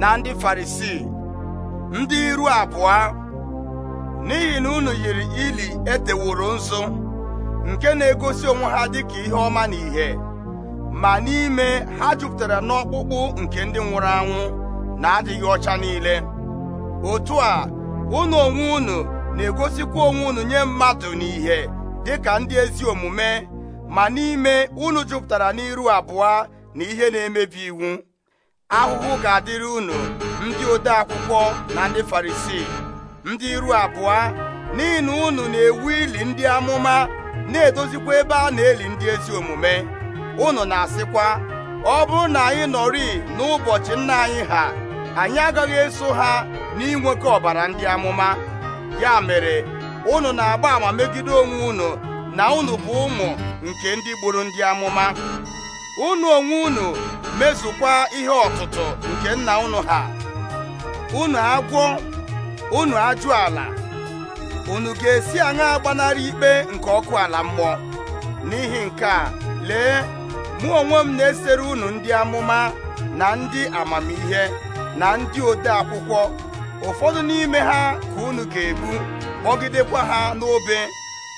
na ndị farisi ndị iru abụọ n'ihi na unu yiri ili eteworo nzu nke na-egosi onwe ha dịka ihe ọma na ihe ma n'ime ha jupụtara n'ọkpụkpụ nke ndị nwụrụ anwụ na-adịghị ọcha niile otu a ụnụ onwe unu na-egosikwa onwe unu nye mmadụ na n'ihe dịka ndị ezi omume ma n'ime unu jupụtara n'iru abụọ na ihe na-emebi iwu ahụhụ ga-adịrị unu ndị ode akwụkwọ na ndị farisii ndị iru abụọ n'ihi na unu na-ewu ili ndị amụma na-edozikwa ebe a na-eli ndị ezi omume unu na-asịkwa ọ bụrụ na anyị nọrị n'ụbọchị nna anyị ha anyị agaghị eso ha n'inwekọ ọbara ndị amụma ya mere unu na-agba ama megide onwe unu na unu bụ ụmụ nke ndị gburu ndị amụma unu onwe unu mezukwa ihe ọtụtụ nke nna unu ha unu agwọ unu ajụ ala unu ga-esi aṅa gbanarị ikpe nke ọkụ ala mmụọ n'ihi nke a lee mụ onwe m na-esere unu ndị amụma na ndị amamihe na ndị ode akwụkwọ ụfọdụ n'ime ha ka unu ga-ebu kpọgidekwa ha n'obe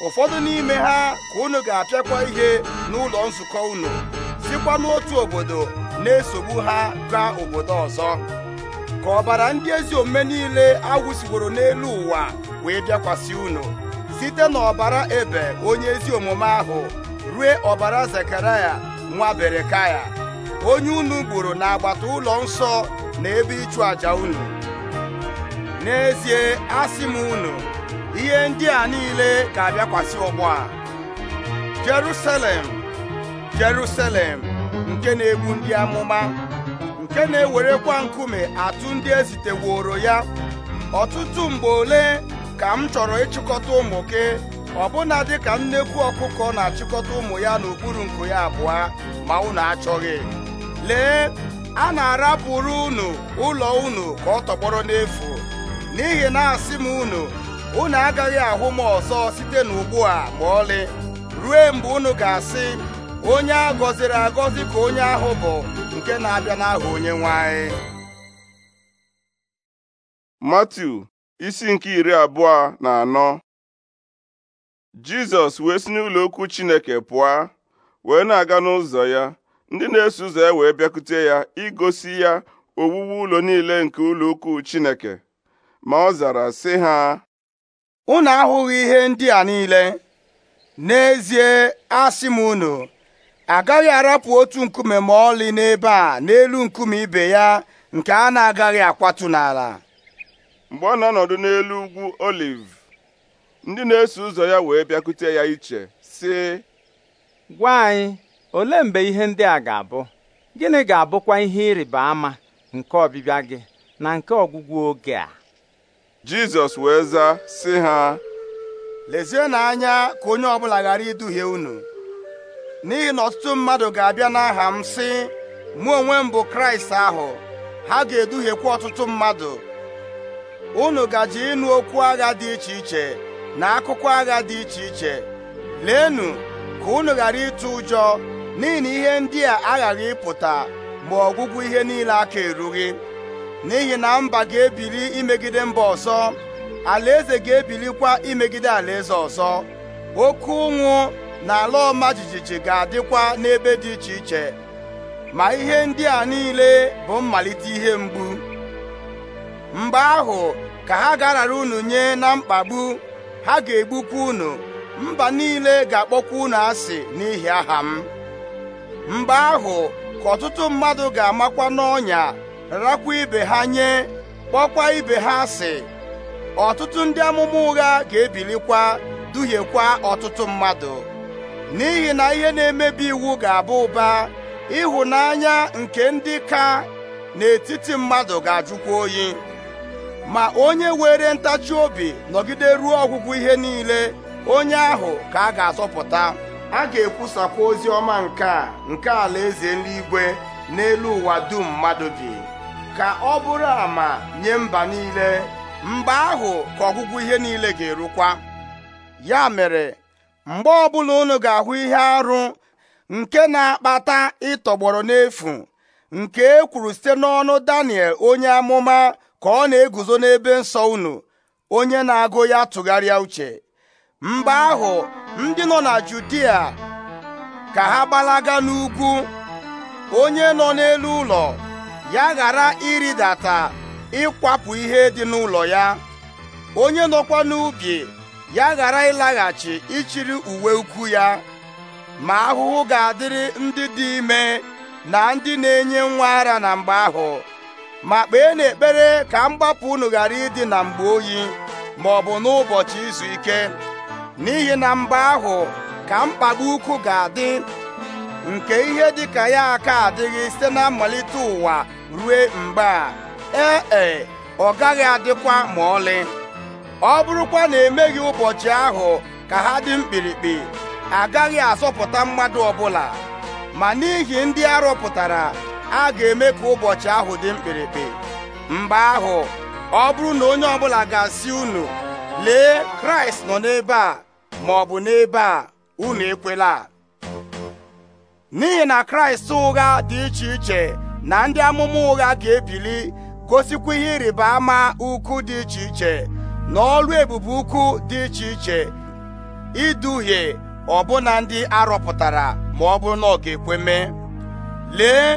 ụfọdụ n'ime ha ka unu ga-apịakwa ihe n'ụlọ nzukọ unu sikwa n'otu obodo na-esogbu ha gaa obodo ọzọ ka ọbara ndị ezi omume niile awụsiworo n'elu ụwa wee bịakwasị unu site n'ọbara ebe onye ezi omume ahụ rue ọbara zekaraya nwa berekaya onye unu gburu agbata ụlọ nsọ na ebe ịchụ àjà unu n'ezie asị m unu ihe ndị a niile ga-abịakwasị ọgbọ a Jerusalem Jerusalem nke na-egbu ndị amụma nke na-ewerekwa nkume atụ ndị eziteworo ya ọtụtụ mgbe ole ka m chọrọ ịchịkọta ụmụ gị ọbụna dịka nnekwu ọkụkọ na-achịkọta ụmụ ya n'okpuru nku ya abụọ ma unu achọghị lee a na-arapụrụ unu ụlọ unu ka ọ tọgbọrọ n'efu n'ihi na asị m unu unu agaghị ahụ m ọzọ site n'ugbu a ma ọlị ruo mgbe unu ga-asị onye a gọziri agọzi ka onye ahụ bụ nke na-abịa n'aha onye nwanyị. anyị isi nke iri abụọ na anọ Jizọs wee si n'ụlọ okwu Chineke pụọ wee na-aga n'ụzọ ya ndị na-eso ụzọ ya wee bịakute ya igosi ya owuwe ụlọ niile nke ụlọ ukwu Chineke ma ọ zara sị ha unu ahụghị ihe ndị a niile n'ezie asị m unu agaghị arapụ otu nkume ma ọlị n'ebe a n'elu nkume ibe ya nke a na-agaghị akwatu n'ala mgbe ọ na-anọdụ n'elu ugwu oliv ndị na-eso ụzọ ya wee bịakute ya iche sị gwa anyị olee mgbe ihe ndị a ga-abụ gịnị ga-abụkwa ihe ịrịba ama nke ọbịbịa gị na nke ọgwụgwụ oge a Jizọs wee zaa sị ha lezienụ anya ka onye ọbụla ghara iduhie unu n'ihi na ọtụtụ mmadụ ga-abịa n'aha m sị mụ onwe m bụ kraịst ahụ ha ga-eduhiekwa ọtụtụ mmadụ unu gaje ịnụ okwu agha dị iche iche na akụkọ agha dị iche iche leenụ ka unu ghara ịtụ ụjọ n'ihi na ihe ndị a aghaghị ịpụta ma ọgwụgwụ ihe niile aka erughị n'ihi na mba ga-ebili imegide mba ọzọ alaeze ga-ebilikwa imegide alaeze ọzọ oke ụnwụ na ala ọma jijiji ga-adịkwa n'ebe dị iche iche ma ihe ndị a niile bụ mmalite ihe mgbu mgbe ahụ ka ha garara unu nye na mkpagbu ha ga-egbukwa unu mba niile ga-akpọkwa unu asị n'ihi aha m mgbe ahụ ka ọtụtụ mmadụ ga-amakwa n'ọnya rakwa ibe ha nye kpọkwa ibe ha asị ọtụtụ ndị amụma ụgha ga-ebilikwa duhiekwa ọtụtụ mmadụ n'ihi na ihe na-emebi iwu ga-abụ ụba ịhụnanya nke ndị ka n'etiti mmadụ ga-ajụkwa oyi ma onye were ntachi obi nọgide ruo ọgwụgwụ ihe niile onye ahụ ka a ga-azọpụta a ga-ekwusakwa ozi ọma nke a nke alaeze n'igwe n'elu ụwa dum mmadụ bi ka ọ bụrụ ama nye mba niile mgbe ahụ ka ọgwụgwụ ihe niile ga-erukwa ya mere mgbe ọbụla unu ga-ahụ ihe arụ nke na-akpata ịtọgbọrọ n'efu nke e kwuru site n'ọnụ Daniel onye amụma ka ọ na-eguzo n'ebe nsọ unu onye na-agụ ya tụgharịa uche mgbe ahụ ndị nọ na Judia ka ha gbalaga n'ugwu onye nọ n'elu ụlọ ya ghara ịrịdata ịkwapụ ihe dị n'ụlọ ya onye nọkwa n'ubi ya ghara ịlaghachi ịchịrị uwe ukwu ya ma ahụhụ ga-adịrị ndị dị ime na ndị na-enye nwa ara na mgbe ahụ ma kpee n'ekpere ka mgbapụ unu ghara ịdị na mgbe oyi ma ọ bụ n'ụbọchị izu ike n'ihi na mgbe ahụ ka mkpagbu ukwu ga-adị nke ihe dịka ya aka adịghị site na mmalite ụwa rue mgbe a ee e, ọ gaghị adịkwa ma ọlị ọ bụrụkwa na emeghị ụbọchị ahụ ka ha dị mkpirikpi agaghị azọpụta mmadụ ọbụla ma n'ihi ndị arọpụtara a ga-eme ka ụbọchị ahụ dị mkpirikpi mgbe ahụ ọ bụrụ na onye ọbụla ga-asị unu lee kraịst nọ n'ebe a ma ọ bụ n'ebe a unu ekwela n'ihi na kraịst ụgha dị iche iche na ndị amụma ụgha ga-ebili gosikwa ihe ịrịba ama ukwu dị iche iche n'ọrụ ebubo ebube ukwu dị iche iche iduhie ọbụna ndị arọpụtara ma ọ bụrụ na ọ ga-ekwe mee lee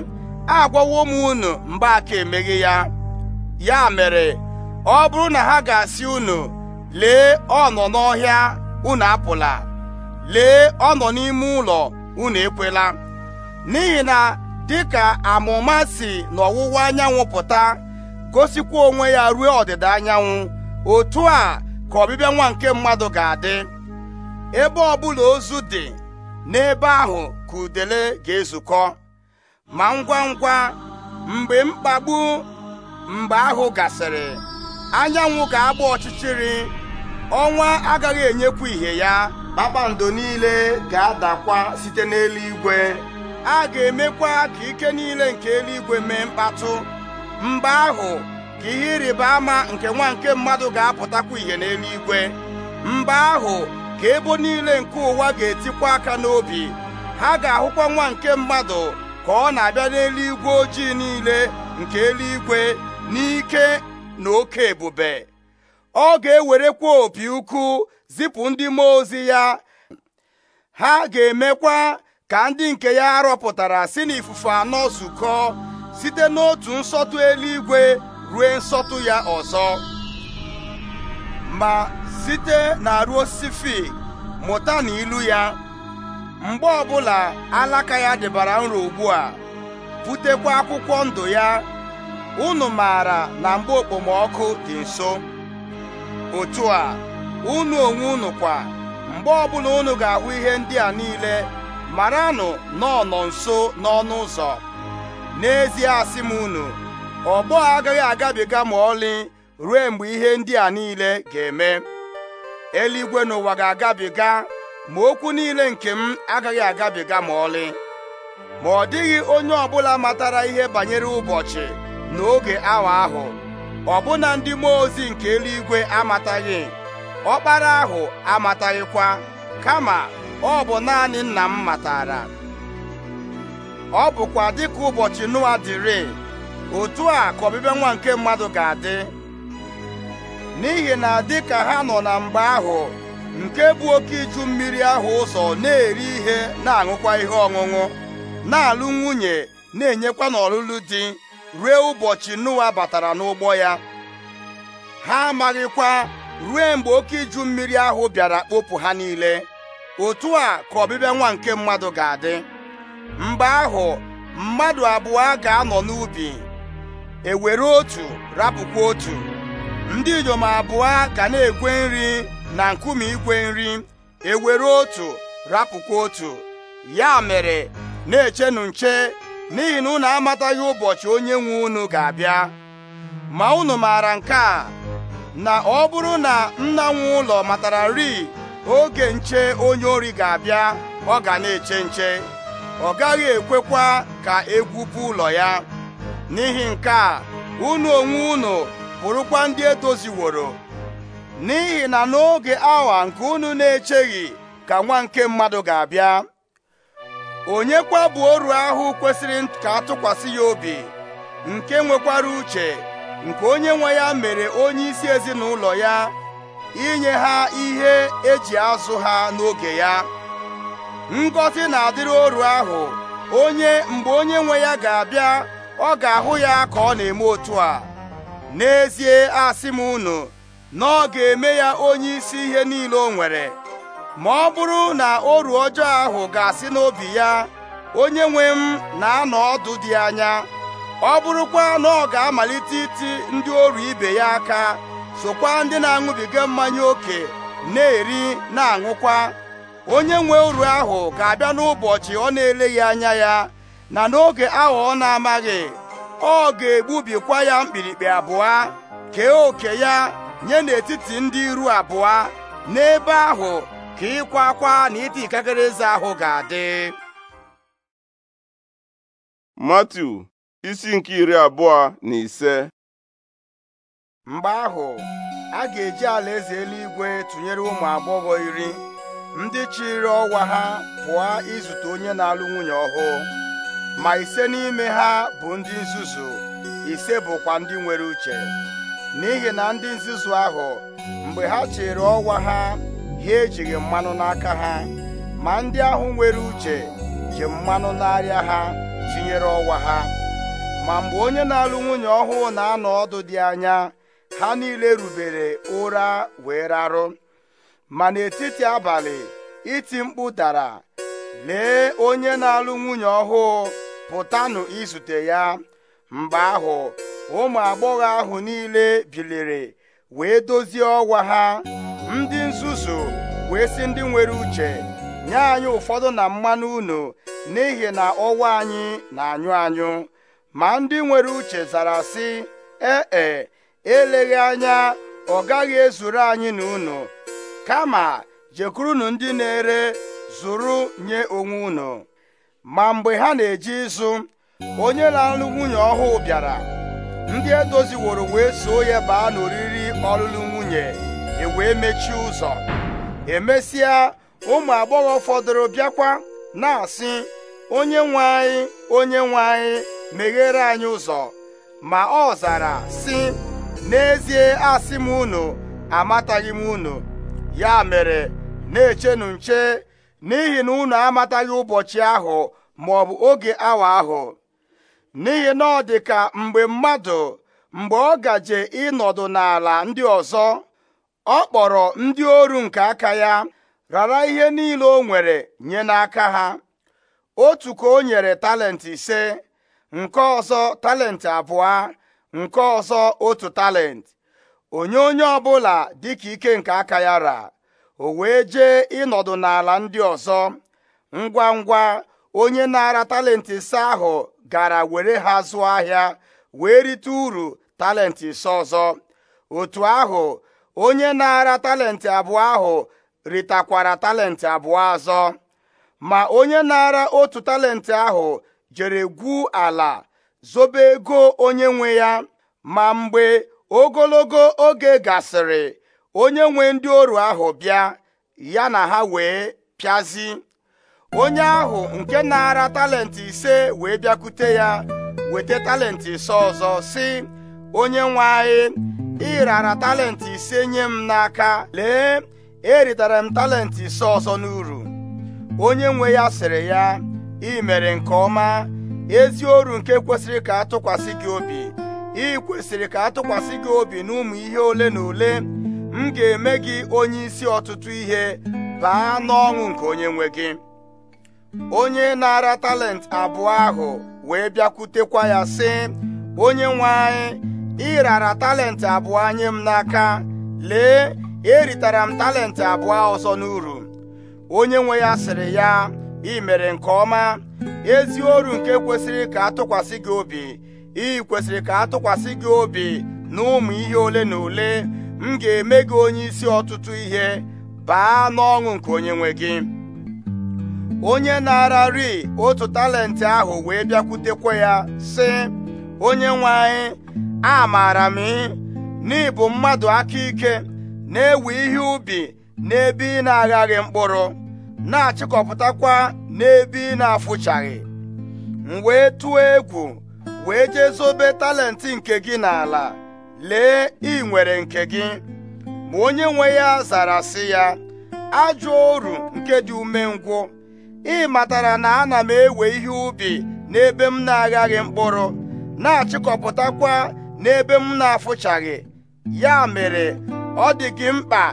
agwawo m unu mgbe aka emeghe ya ya mere ọ bụrụ na ha ga-asị unu lee ọ nọ n'ọhịa unu apụla lee ọ nọ n'ime ụlọ unu ekwela n'ihi na dịka amụma si n'ọwụwa anyanwụ pụta gosikwa onwe ya ruo ọdịda anyanwụ otu a ka ọbịbịa nwa nke mmadụ ga-adị ebe ọbụla ozu dị n'ebe ahụ ka udele ga-ezukọ ma ngwa ngwa mgbe mkpagbu mgbe ahụ gasịrị anyanwụ ga-agba ọchịchịrị ọnwa agaghị enyekwu ihe ya kpakpando niile ga-adakwa site n'eluigwe a ga-emekwa ka ike niile nke eluigwe mee mkpatụ mgbe ahụ ka ihe ịrịba ama nke nwa nke mmadụ ga-apụtakwa ihe n'eluigwe mgbe ahụ ka ebo niile nke ụwa ga-etikwa aka n'obi ha ga-ahụkwa nwa nke mmadụ ka ọ na-abịa n'eluigwe ojii niile nke eluigwe n'ike na oke ebube ọ ga-ewerekwa opi ukwu zipụ ndị mmụọ ozi ya ha ga-emekwa ka ndị nke ya arọpụtara si n'ifufe anọ zukọ site n'otu nsọtụ eluigwe rue nsọtụ ya ọzọ ma site na ruo osisi mụta na ilu ya mgbe ọbụla alaka ya debara nro ugbu a butekwa akwụkwọ ndụ ya unu maara na mgbe okpomọkụ dị nso otu a unu onwe unu kwa mgbe ọbụla unu ga-ahụ ihe ndị a niile maranụ anụ nọ nso n'ọnụ ụzọ n'ezie asị m unu ọgbọ agaghị agabiga ma ọlị ruo mgbe ihe ndị a niile ga-eme eluigwe n'ụwa ga-agabiga ma okwu niile nke m agaghị agabiga ma ọlị ma ọ dịghị onye ọbụla matara ihe banyere ụbọchị n'oge awa ahụ ọbụna ndị mmụọ ozi nke eluigwe amataghị ọkpara ahụ amataghịkwa kama ọ bụ naanị nna m matara ọ bụkwa dịka ụbọchị Noa dịrị otu a ka ọbịbịa nwa nke mmadụ ga-adị n'ihi na dị ka ha nọ na mgbe ahụ nke bụ oke iju mmiri ahụ ụzọ na-eri ihe na-aṅụkwa ihe ọṅụṅụ na-alụ nwunye na-enyekwa n'ọlụlụ dị ruo ụbọchị nuwa batara n'ụgbọ ya ha amaghịkwa ruo mgbe oke iju mmiri ahụ bịara kpopụ ha niile otu a ka ọbịbịa nwa nke mmadụ ga-adị mgbe ahụ mmadụ abụọ ga-anọ n'ubi ewere otu rapụkwa otu ndị inyom abụọ ga na-egwe nri na nkume igwe nri ewere otu rapụkwa otu ya mere na-echenu nche n'ihi na unu amataghị ụbọchị onye nwe unu ga-abịa ma unu maara nke a na ọ bụrụ na nna nwe ụlọ matara nri oge nche onye ori ga-abịa ọ ga na-eche nche ọ gaghị ekwekwa ka egwupụ ụlọ ya n'ihi nke a unu onwe unu bụrụkwa ndị edoziworo n'ihi na n'oge awa nke unu na-echeghị ka nwa nke mmadụ ga-abịa onye kwa oru ahụ kwesịrị ka atụkwasị ya obi nke nwekwara uche nke onye nwe ya mere onye isi ezinụlọ ya inye ha ihe eji azụ ha n'oge ya ngọzi na-adịrị oru ahụ onye mgbe onye nwe ya ga-abịa ọ ga-ahụ ya ka ọ na-eme otu a n'ezie asị m unu na ọ ga-eme ya onye isi ihe niile o nwere ma ọ bụrụ na oru ọjọọ ahụ ga-asị n'obi ya onye nwe m na-anọ ọdụ dị anya ọ bụrụkwa na ọ ga-amalite iti ndị oru ibe ya aka sokwa ndị na-aṅụbiga mmanya ókè na-eri na-aṅụkwa onye nwe oru ahụ ga-abịa n'ụbọchị ọ na-eleghị anya ya na n'oge aghọọ ọ na-amaghị ọ ga-egbubikwa ya mkpirikpi abụọ kee oke ya nye n'etiti ndị iru abụọ n'ebe ahụ ka ịkwa akwa na iti eze ahụ ga-adị matu isi nke iri abụọ na ise mgbe ahụ a ga-eji alaeze eluigwe tụnyere ụmụ agbọghọ iri ndị chịrị ọwa ha pụọ izute onye na-alụ nwunye ọhụụ ma ise n'ime ha bụ ndị nzuzu ise bụkwa ndị nwere uche n'ihi na ndị nzuzu ahụ mgbe ha chere ọnwa ha ha ejighị mmanụ n'aka ha ma ndị ahụ nwere uche ji mmanụ n'arịa ha tinyere ọnwa ha ma mgbe onye na-alụ nwunye ọhụụ na-anọ ọdụ dị anya ha niile rubere ụra wee rarụ ma n'etiti abalị iti mkpu dara lee onye na-alụ nwunye ọhụụ pụtanụ izute ya mgbe ahụ ụmụ agbọghọ ahụ niile biliri wee dozie ọgwa ha ndị nzuzu wee sị ndị nwere uche nye anyị ụfọdụ na mmanụ unu n'ihi na ọwa anyị na-anyụ anyụ ma ndị nwere uche zara sị ee e, eleghị anya ọ gaghị ezuru anyị na unu kama jekurunu ndị na-ere zụrụ nye onwe unu ma mgbe ha na-eje ịzụ onye na-alụ nwunye ọhụụ bịara ndị edoziworo wee soo ya baa n'oriri ọlụlụ nwunye e wee mechie ụzọ emesịa ụmụ agbọghọ fọdụrụ bịakwa na-asị onye nwe anyị onye nwe anyị meghere anyị ụzọ ma ọ zara sị n'ezie asị m unu amataghị m unu ya mere na-echenụ nche n'ihi na unu amataghị ụbọchị ahụ ma ọ bụ oge awa ahụ n'ihi na ọ dị ka mgbe mmadụ mgbe ọ gaje ịnọdụ n'ala ndị ọzọ ọ kpọrọ ndị oru nke aka ya rara ihe niile o nwere nye n'aka ha otu ka o nyere talenti ise nke ọzọ talenti abụọ nke ọzọ otu talenti onye onye ọbụla dịka ike nke aka ya ra o wee jee ịnọdụ n'ala ndị ọzọ ngwa ngwa onye na-ara talenti ise ahụ gara were ha zụọ ahịa wee rite uru talenti ise ọzọ otu ahụ onye na-ara talenti abụọ ahụ ritakwara talenti abụọ azọ, ma onye na-ara otu talenti ahụ jere gwu ala zobe ego onye nwe ya ma mgbe ogologo oge gasịrị onye nwe ndị oru ahụ bịa ya na ha wee pịazi onye ahụ nke na-ara talenti ise wee bịakwute ya weta talenti ise ọzọ si onye nwe anyị ị rara talenti ise nye m n'aka lee eritara m talenti ise ọzọ n'uru onye nwe ya sịrị ya ị mere nke ọma ezi oru nke kwesịrị ka atụkwasị gị obi ị kwesịrị ka atụkwasị gị obi n'ụmụ ihe ole na ole m ga-eme gị onye isi ọtụtụ ihe baa n'ọṅụ nke onye nwe gị onye na-ara talent abụọ ahụ wee bịakwutekwa ya sị onye nwe anyị ị rara talent abụọ anyị m n'aka lee eritara m talent abụọ ọzọ n'uru onye nwe ya sịrị ya ị mere nke ọma ezi oru nke kwesịrị ka atụkwasị gị obi ị kwesịrị ka atụkwasị gị obi na ụmụ ihe ole na ole m ga-eme gị onye isi ọtụtụ ihe baa n'ọṅụ nke onye nwe gị onye na-ararị otu talenti ahụ wee bịakwutekwa ya sị onye nwe anyị a maara m n'ịbụ mmadụ aka ike na-ewe ihe ubi n'ebe ị na-aghaghị mkpụrụ na-achịkọpụtakwa n'ebe ị na-afụchaghị m wee tụọ egwu wee jee zobe talenti nke gị n'ala lee ị nwere nke gị ma onye nwe ya zara sị ya ajọ oru nke dị ume umengwụ ị matara na ana m ewe ihe ubi n'ebe m na-aghaghị mkpụrụ na-achịkọpụtakwa n'ebe m na-afụchaghị ya mere ọ dị gị mkpa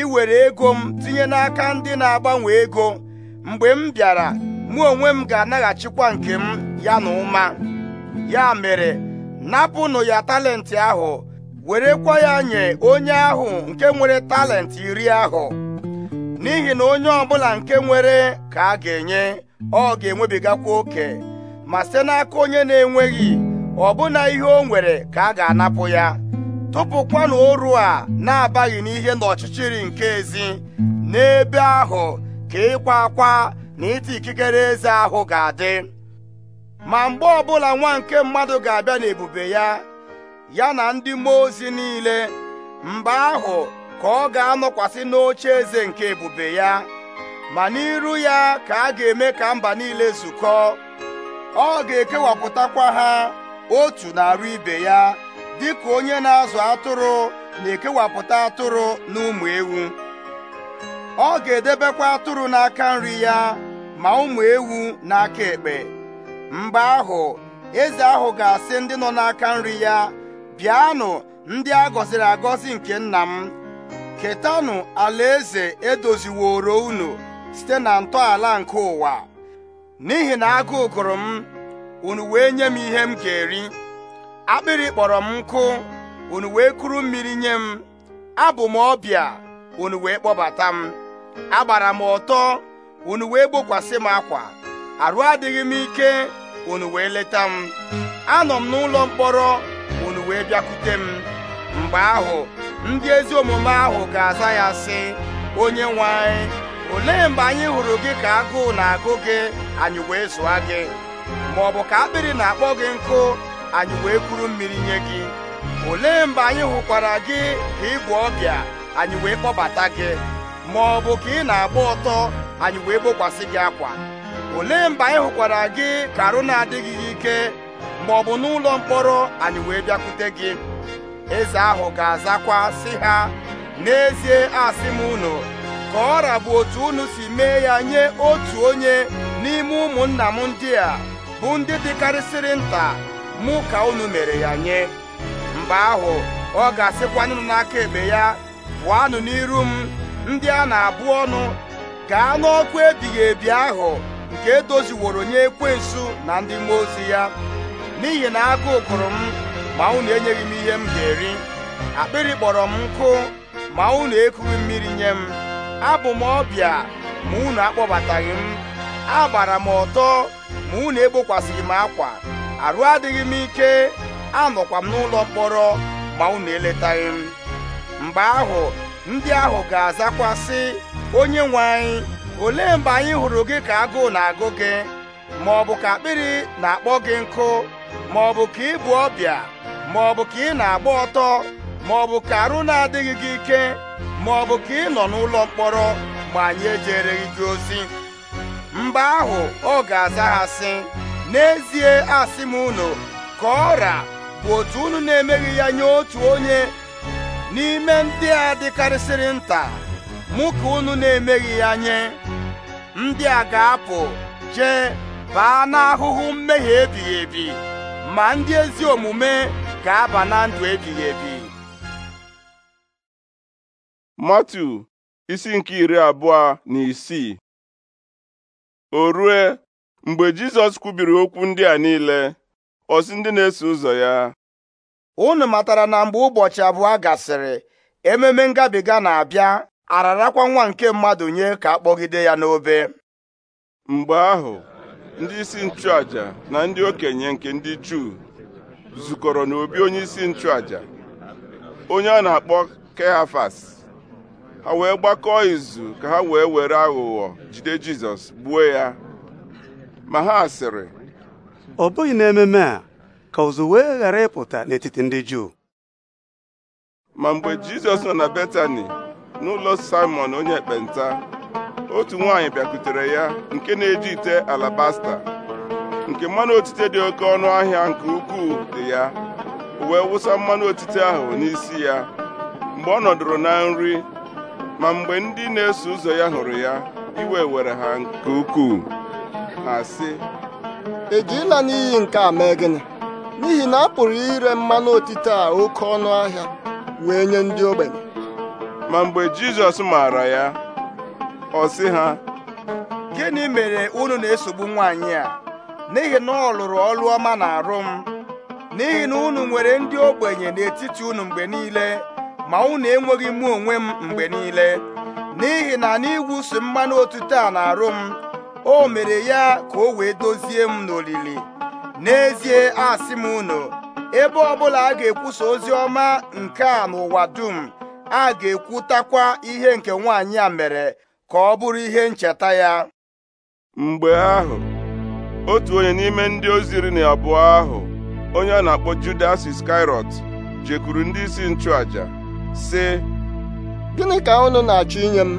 iwere ego m tinye n'aka ndị na-agbanwe ego mgbe m bịara mụ onwe m ga-anaghachikwa nke m ya na ụma ya mere napụnụ ya talenti ahụ werekwa ya nye onye ahụ nke nwere talenti iri ahụ n'ihi na onye ọbụla nke nwere ka a ga-enye ọ ga-enwebigakwa oke ma site n'aka onye na-enweghị ọbụna ihe o nwere ka a ga-anapụ ya tụpụkwanụ oru a na-abaghị n'ihe ọchịchịrị nke ezi n'ebe ahụ ka ịkwa akwa na ịta ikikere eze ahụ ga-adị ma mgbe ọbụla nwa nke mmadụ ga-abịa n'ebube ya ya na ndị mmụọ ozi niile mgbe ahụ ka ọ ga-anọkwasị n'oche eze nke ebube ya ma n'iru ya ka a ga-eme ka mba niile zukọ ọ ga-ekewapụtakwa ha otu na-arụ ibe ya dịka onye na-azụ atụrụ na-ekewapụta atụrụ na ụmụ ewu ọ ga-edebekwa atụrụ n'aka nri ya ma ụmụ ewu n'aka ekpe mgbe ahụ eze ahụ ga-asị ndị nọ n'aka nri ya bịanụ ndị a gọziri agọzi nke nna m ketanụ alaeze edoziworo unu site na ntọala nke ụwa n'ihi na agụụ gụrụ m unu wee nye m ihe m ga-eri akpịrị kpọrọ m nkụ unu wee kuru mmiri nye m abụ m ọbịa unu wee kpọbata m agbara m ọtọ unu wee gbokwasị m akwa arụ adịghị m ike unu wee leta m anọ m n'ụlọ mkpọrọ wee bịakwute m mgbe ahụ ndị ezi omume ahụ ga-aza ya sị onye nwe anyị olee mgbe anyị hụrụ gị ka agụụ na-agụ gị anyị wee zụa gị ma ọ bụ ka akpịrị na-akpọ gị nkụ anyị wee kuru mmiri nye gị olee mgbe anyị hụkwara gị ka ị bụ ọbịa anyị wee kpọbata gị ma ọ bụ ka ị na-agba ọtọ anyị wee gbokwasị gị akwa olee mgbe anyị hụkwara gị ka arụ na-adịghị ike ma ọ bụ n'ụlọ mkpọrọ anyị wee bịakwute gị eze ahụ ga-azakwa sị ha n'ezie asị m unu ka ọ bụ otu unu si mee ya nye otu onye n'ime ụmụnna m ndị a bụ ndị dịkarịsịrị nta mụ ka unu mere ya nye mgbe ahụ ọ ga-asịkwanụ n'aka ebe ya pụọnụ n'iru m ndị a na-abụ ọnụ gaa n'ọkụ ebighị ebi ahụ nke edoziworo nye ekwensu na ndị mmụọ ozi ya n'ihi na agụụ gụrụ m ma unu enyeghị m ihe m ga-eri akpịrị kpọrọ m nkụ ma unu ekughị mmiri nye m abụ m ọbịa ma unu akpọbataghị m agbara m ọtọ ma unu egbokwasịghị m akwa arụ adịghị m ike anọkwa m n'ụlọ mkpọrọ ma unu eletaghị m mgbe ahụ ndị ahụ ga azakwasị onye nwe anyị olee mgbe anyị hụrụ gị ka agụụ na-agụ gị ma ọ bụ ka akpịrị na-akpọ gị nkụ ma ọ bụ ka ị bụ ọbịa ma ọ bụ ka ị na-agba ọtọ ma ọ bụ ka arụ na-adịghị gị ike ma ọ bụ ka ị nọ n'ụlọ mkpọrọ ma anyị ejereghị gị ozi mgbe ahụ ọ ga-aza ha sị n'ezie asị m unu ka ọra bụ otu unu na-emeghị ya nye otu onye n'ime ndị a dịkarịsịrị nta mụ ka unu na-emeghị ya nye ndị a ga-apụ jee baa n'ahụhụ mmehie ebighị ebi ma ndị ezi omume ga-aba na ndụ ebighị ebi matu isi nke iri abụọ na isii o rue mgbe jizọs kwubiri okwu ndị a niile ọsị ndị na-eso ụzọ ya unu matara na mgbe ụbọchị abụọ gasịrị ememe ngabiga na-abịa ararakwa nwa nke mmadụ nye ka akpọgide ya n'obe mgbe ahụ ndị isi nchụàjà na ndị okenye nke ndị Juu zukọrọ n'obi onye isi nchụàjà onye a na-akpọ Kehafas ha wee gbakọọ izu ka ha wee were aghụghọ jide Jizọs gbuo ya ma ha sịrị ọ bụghị n'ememe a ka ụzụ wee ghara ịpụta n'etiti ndị Juu ma mgbe Jizọs nọ na Betani n'ụlọ Simon onye ekpenta otu nwaanyị bịakutere ya nke na-eji ite alabasta nke mmanụ otite dị oke ọnụ ahịa nke ukwuu dị ya wee wụsa mmanụ otite ahụ n'isi ya mgbe ọ nọdụrụ na nri ma mgbe ndị na-eso ụzọ ya hụrụ ya iwe were ha nke ukwuu ha sị ejila n'iyi nke a mee gịnị n'ihi na a pụrụ ire mmanụ otite a oke ọnụ ahịa wee nye ndị ogbenye ma mgbe Jizọs maara ya ọ sị ha gịnị mere unu na-esogbu nwaanyị a n'ihi na ọ lụrụ ọlụ ọma na-arụ m n'ihi na unu nwere ndị ogbenye n'etiti unu mgbe niile ma unu enweghị mụ onwe m mgbe niile n'ihi na n'ịwụsi mmanụ otuto a na-arụ m o mere ya ka o wee dozie m n'olili n'ezie asị m unu ebe ọbụla a ga-ekwusa ozi ọma nke a n'ụwa dum a ga-ekwutakwa ihe nke nwaanyị a mere ka ọ bụrụ ihe ncheta ya mgbe ahụ otu onye n'ime ndị ozi iri na abụọ ahụ onye a na-akpọ Judas Skirot jekwuru ndị isi nchụàjà, sị gịnị ka unu na-achọ inye m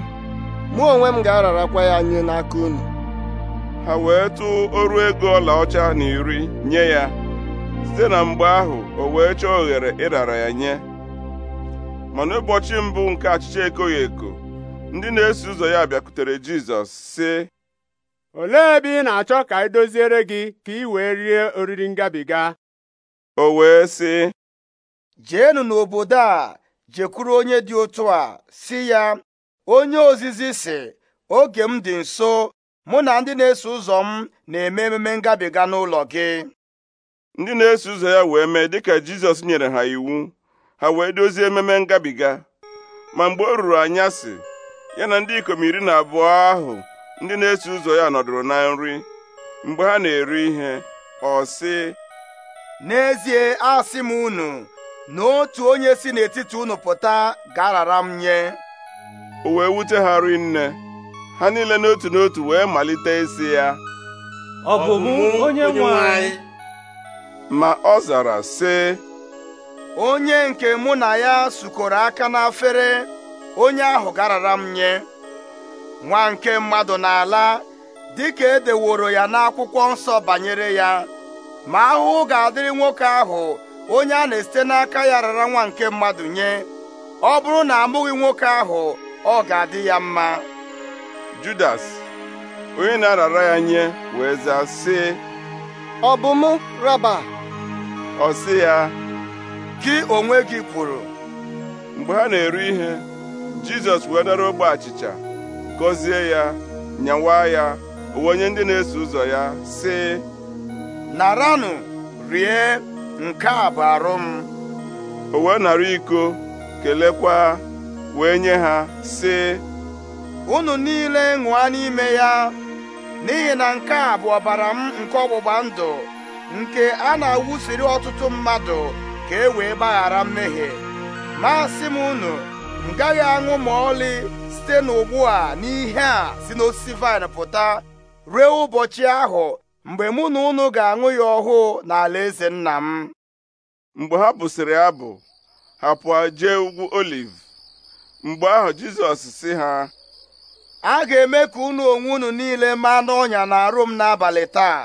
mụ onwe m ga-ararakwa ya nye n'aka unu ha wee tụọ ọrụ ego ọla ọcha na iri nye ya site na mgbe ahụ o wee chọọ oghere ịrara ya nye mana ụbọchị mbụ nke achịcha ekoghị eko ndị na-eso ụzọ ya bịakwutere Jizọs sị olee ebe ị na-achọ ka anyị e doziere gị ka ị wee rie oriri ngabiga o wee sị jeenụ n'obodo a jekwuru onye dị otu a si ya onye ozizi sị oge m dị nso mụ na ndị na-eso ụzọ m na-eme ememe ngabiga n'ụlọ gị ndị na-eso ụzọ ya wee mee dịka Jizọs nyere ha iwu ha wee dozie ememe ngabiga ma mgbe o ruru anya si. ya na ndị ikom iri na abụọ ahụ ndị na-eso ụzọ ya nọdụrụ na nri mgbe ha na-eri ihe ọ sị n'ezie asị m unu na otu onye si n'etiti unu pụta ga-arara m nye o wee wute ha nne, ha niile n'otu n'otu wee malite isi ya ọ bụ onye nwe ma ọ zara sị onye nke mụ na ya sukọrọ aka n'afere onye ahụ garara m nye nwa nke mmadụ na-ala dịka edeworo ya n'akwụkwọ nsọ banyere ya ma ahụhụ ga-adịrị nwoke ahụ onye a na-esite n'aka ya rara nwa nke mmadụ nye ọ bụrụ na amụghị nwoke ahụ ọ ga-adị ya mma Judas onye na-arara ya nye wee zaa sị ọ bụ m raba ọ sị ya gị onwe gị kwuru mgbe ha na-eru ihe jizọs wee dara ogbe achịcha gọzie ya nyawa ya onye ndị na-eso ụzọ ya sị naranụ rie nke a bụ arụ m o wee nara iko kelekwa wee nye ha sị unu niile ṅụa n'ime ya n'ihi na nke a bụ ọbara m nke ọgbụgba ndụ nke a na-awụsiri ọtụtụ mmadụ ka e wee gbaghara mmehie ma sị m unu m gaghị aṅụ ma ọlị site n'ugbu a n'ihe a si n'osisi vaịn pụta rue ụbọchị ahụ mgbe mụ na unu ga-aṅụ ya ọhụụ n'ala eze nna m mgbe ha bụsịrị abụ ha pụọ jee ugwu oliv mgbe ahụ Jizọs si ha a ga-eme ka unu onwe unu niile maa n'ọnya na-arụ m n'abalị taa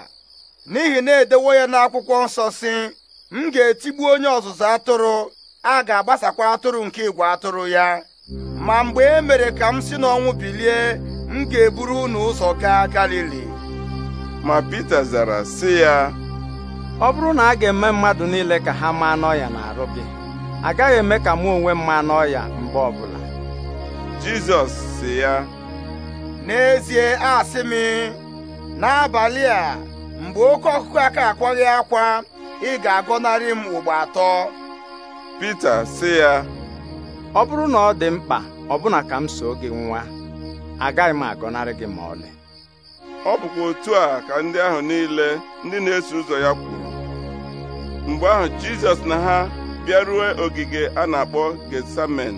n'ihi na edewo ya n'akwụkwọ nsọ si m ga-etigbu onye ọzụzụ atụrụ a ga-agbasakwa atụrụ nke igwe atụrụ ya ma mgbe e mere ka m si n'ọnwụ bilie m ga-eburu unu ụzọ gaa Galili ma Pita zara sị ya ọ bụrụ na a ga-eme mmadụ niile ka ha maa n'ọya na-arụ gị agaghị eme ka mụ onwe mma n'ọya mgbe bụla. Jizọs sị ya n'ezie asị m n'abalị a mgbe oke ọkụkụ aka akwaghị akwa ị ga-agọnarị m ugbo atọ Pita sị ya ọ bụrụ na ọ dị mkpa ọbụna ka m soo gị nwa agaghị m agọnarị gị ma ọlị ọ bụkwa otu a ka ndị ahụ niile ndị na-eso ụzọ ya kwuru mgbe ahụ Jizọs na ha bịaruo ogige a na-akpọ gesamen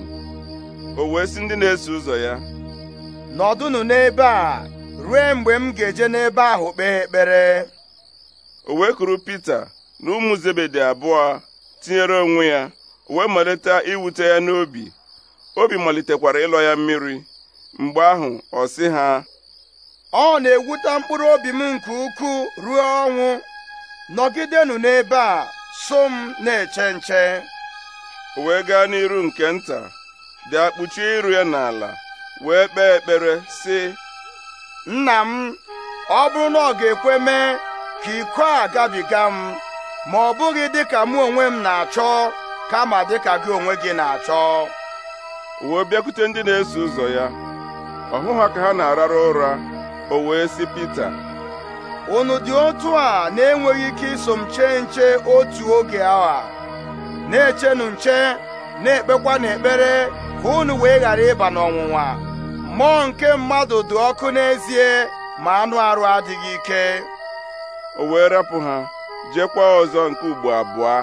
o wee si ndị na-eso ụzọ ya nọdụnụ n'ebe a ruo mgbe m ga-eje n'ebe ahụ kpee ekpere o wee kuru Pita na ụmụ Zebedi abụọ tinyere onwe ya wee malite iwute ya n'obi obi malitekwara ịlọ ya mmiri mgbe ahụ ọ sị ha ọ na-ewute mkpụrụ obi m nke ukwuu ruo ọnwụ nọgidenụ n'ebe a so m na-eche nche wee gaa n'iru nke nta dị kpuchie iru ya n'ala wee kpee ekpere sị nna m ọ bụrụ na ọ ga-ekwe mee ka iko a gabiga m ma ọ bụghị dịka mụ onwe m na-achọ kama dịka gị onwe gị na-achọ wee bịakwute ndị na-eso ụzọ ya ọ ha ka ha na-arara ụra o wee sị Pita unu dị otu a na-enweghị ike iso m chee nche otu oge awa na-echenụ nche na-ekpekwa n'ekpere ka unu wee ghara ịba n'ọnwụnwa mmụọ nke mmadụ dị ọkụ n'ezie ma anụ arụ adịghị ike o wee rapụ ha jekwa ọzọ nke ugbo abụọ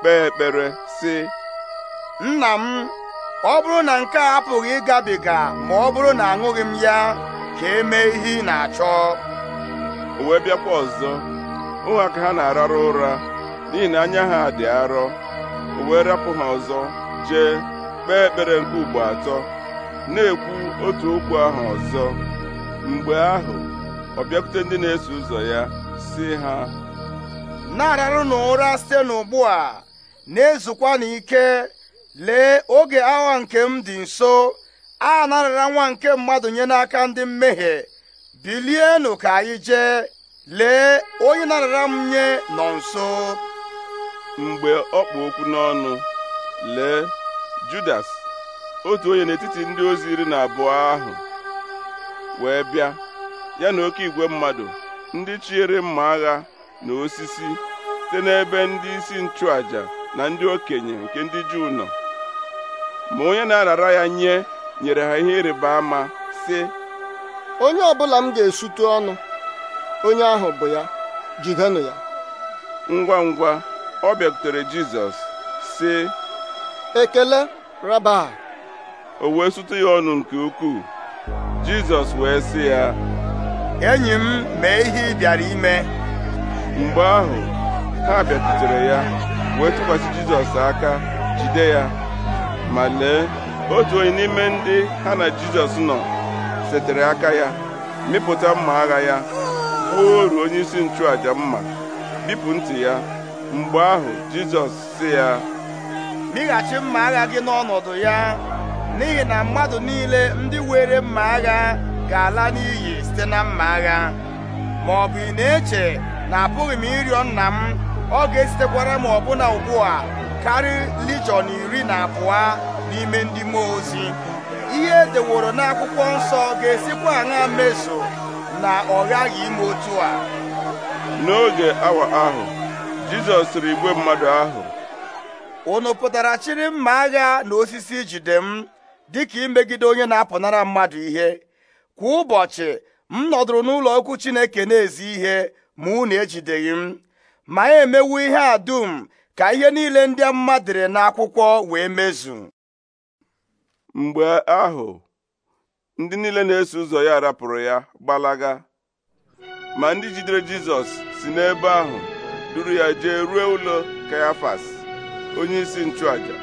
kpee ekpere sị nna m ọ bụrụ na nke a apụghị ịgabiga ma ọ bụrụ na aṅụghị m ya ka e mee ihe ị na-achọ o wee bịakwa ọzọ ụmụaka ha na-ararụ ụra n'ihi na anya ha dị arọ o wee rapụ ha ọzọ jee kpee ekpere nke ugbo atọ na-ekwu otu okwu ahụ ọzọ mgbe ahụ ọ bịakwute ndị na-eso ụzọ ya si ha na-ararụ n'ụra site n'ugbu a na-ezukwa n'ike lee oge agha nke m dị nso a narịra nwa nke mmadụ nye n'aka ndị mmehie bilienụ ka anyị jee lee onye narịra m nye nọ nso mgbe ọ kpụ okwu n'ọnụ lee Judas otu onye n'etiti ndị ozi iri na abụọ ahụ wee bịa ya na oke igwe mmadụ ndị chiere mma agha na osisi site n'ebe ndị isi nchụàjà. na ndị okenye nke ndị Juu nọ ma onye na-arara ya nye nyere ha ihe ịrịba ama sị onye ọbụla m ga-esute ọnụ onye ahụ bụ ya jidenụ ya ngwa ngwa ọ bịakutere Jizọs sị ekele raba o wee sụtụ ya ọnụ nke ukwuu Jizọs wee sị ya enyi m mee ihe ị bịara ime mgbe ahụ ha bịakutere ya wee tụkwasị jizọs aka jide ya ma lee otu onye n'ime ndị ha na jizọs nọ setere aka ya mịpụta mma agha ya gbuo oru onye isi nchụaja mma bipụ ntị ya mgbe ahụ jizọs si ya mịghachi mma agha gị n'ọnọdụ ya n'ihi na mmadụ niile ndị were mma agha ga-ala n'iyi site na mma agha ma ọ bụ ị na-eche na apụghị m ịrịọ nna m ọ ga-esitekwara m ọbụna ugbu a karị lijon iri na abụọ n'ime ndị mmụọ ozi ihe edeworo n'akwụkwọ nsọ ga-esikwa aṅa mezu na ọ ghaghị ime otu a n'oge awa ahụ Jizọs sịrị igwe mmadụ ahụ unu pụtara chịrị mma agha na osisi jide m dịka imegide onye na-apụnara mmadụ ihe kwa ụbọchị m nọdụrụ n'ụlọ okwu Chineke na-ezi ihe ma unu ejideghị m ma ya e emewu ihe a dum ka ihe niile ndị mmadụ dere n'akwụkwọ wee mezu mgbe ahụ ndị niile na-eso ụzọ ya rapụrụ ya gbalaga ma ndị jidere Jizọs si n'ebe ahụ duru ya jee ruo ụlọ Kayafas onyeisi nchụaja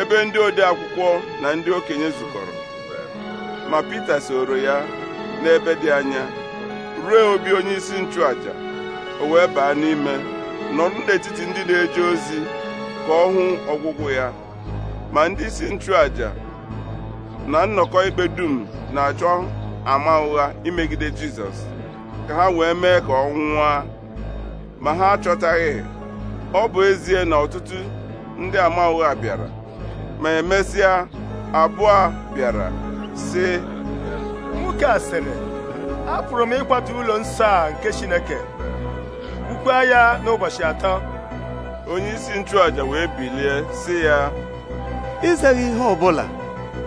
ebe ndị ode akwụkwọ na ndị okenye zukọrọ ma Pita soro ya n'ebe dị anya ruo obi onyeisi nchụaja o wee baa n'ime nọrọ n'etiti ndị na-eje ozi ka ọ hụ ọgwụgwụ ya ma ndị isi nchụàja na nnọkọ ikpe dum na-achọ ama ụgha imegide Jizọs ka ha wee mee ka ọ nwụọ ma ha achọtaghị ọ bụ ezie na ọtụtụ ndị ama ụgha bịara ma emesịa abụọ bịara sị nwoke a sịrị apụrụ m ịkwata ụlọ nsọ a nke Chineke gbukwaa ya n'ụbọchị atọ onyeisi nchụàja wee bilie sị ya ịzaghị ihe ọbụla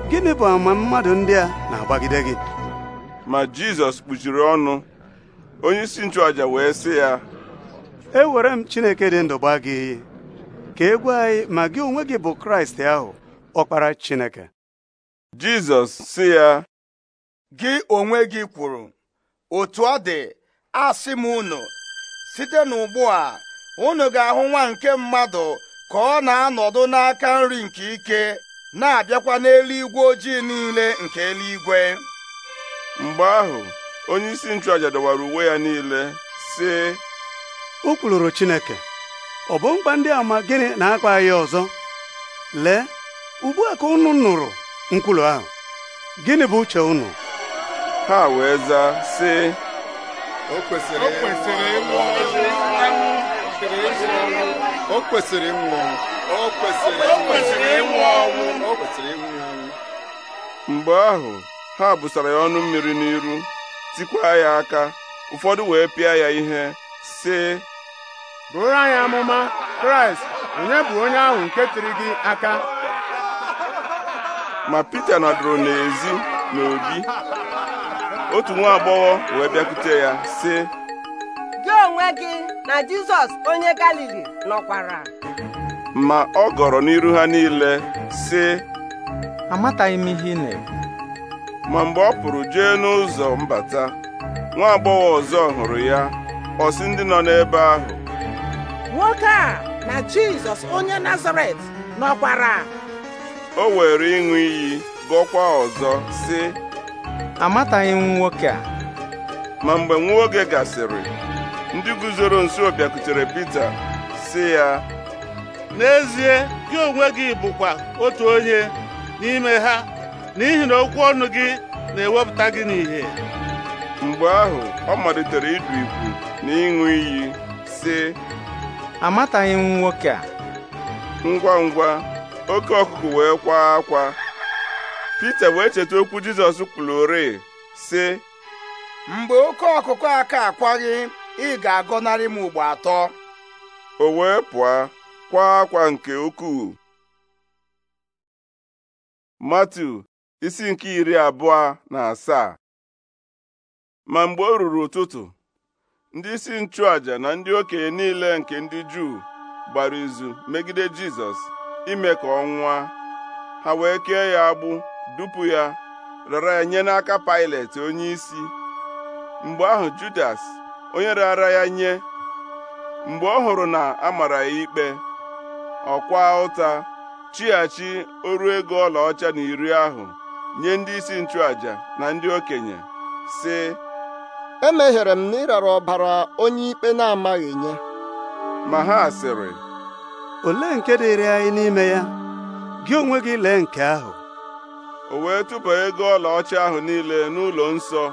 gịnị bụ ama mmadụ ndị a na-agbagide gị ma Jizọs kpuchiri ọnụ onyeisi nchụàja wee si ya ewere m Chineke dị ndụ gba gị iyi ka e gwa anyị ma gị onwe gị bụ Kraịst ahụ ọkpara Chineke Jizọs sị ya gị onwe gị kwuru otu ọ dị asị m unu site n'ugbu a unu ga-ahụ nwa nke mmadụ ka ọ na-anọdụ n'aka nri nke ike na-abịakwa n'eluigwe ojii niile nke eluigwe mgbe ahụ onye isi nchụaja dọwara uwe ya niile sị o kwuluru Chineke ọ bụ mkpa ndị ama gịnị na-akpa ya ọzọ lee ugbu a ka unu nụrụ nkwulu ahụ gịnị bụ uche unu ha wee zaa sị o kwesịrị ịnwụ ọnwụ o kwesịrị ịnwụ ọnwụ o kwesịrị ịnwụ ọnwụ o kwesịrị ịnwụ ọnwụ mgbe ahụ ha busara ya ọnụ mmiri n'iru tikwa ya aka ụfọdụ wee pịa ya ihe sị bụrụ anyị amụma kraịst onye bụ onye ahụ nke tiri gị aka ma pita nọdụrụ n'ezi n'obi otu nwa agbọghọ wee bịakwute ya sị gị onwe gị na Jizọs onye Galili nọkwara ma ọ gọrọ n'iru ha niile sị amataghị m ihe ị na-ekwu ma mgbe ọ pụrụ jee n'ụzọ mbata nwa agbọghọ ọzọ hụrụ ya ọ sị ndị nọ n'ebe ahụ nwoke a na Jizọs onye Nazaret nọkwara o were ịṅụ iyi gọkwa ọzọ sị amataghị m nwoke a ma mgbe nwa oge gasịrị ndị guzoro nso bịakutere Pita sị ya n'ezie gị onwe gị bụkwa otu onye n'ime ha n'ihi na okwu ọnụ gị na-ewepụta gị n'ihe mgbe ahụ ọ malitere ịdụ ibu na ịṅụ iyi si amataghị m nwoke a ngwa ngwa oke ọkụkụ wee kwaa akwa Pita wee cheta okwu Jizọs kwuru si sị mgbe oke ọkụkụ aka akwaghị ị ga-agọnarị m ugbo atọ o wee pụọ kwa akwa nke ukwuu Matiu isi nke iri abụọ na asaa ma mgbe o ruru ụtụtụ ndị isi nchụaja na ndị okenye niile nke ndị Juu gbara izu megide Jizọs ime ka ọ nwụọ ha wee kee ya agbụ Dupu ya rara ya nye n'aka Pailet onyeisi mgbe ahụ Judas onye raara ya nye mgbe ọ hụrụ na a mara ya ikpe ọkwa ụta chighachi oru ego ọlaọcha na iri ahụ nye ndị isi nchụaja na ndị okenye sị meghere m na rara ọbara onye ikpe na-amaghị nye ma ha sịrị olee nke dịrị anyị n'ime ya gị onwe gị lee nke ahụ o wee tụba ego ọlaọcha ahụ niile n'ụlọ nsọ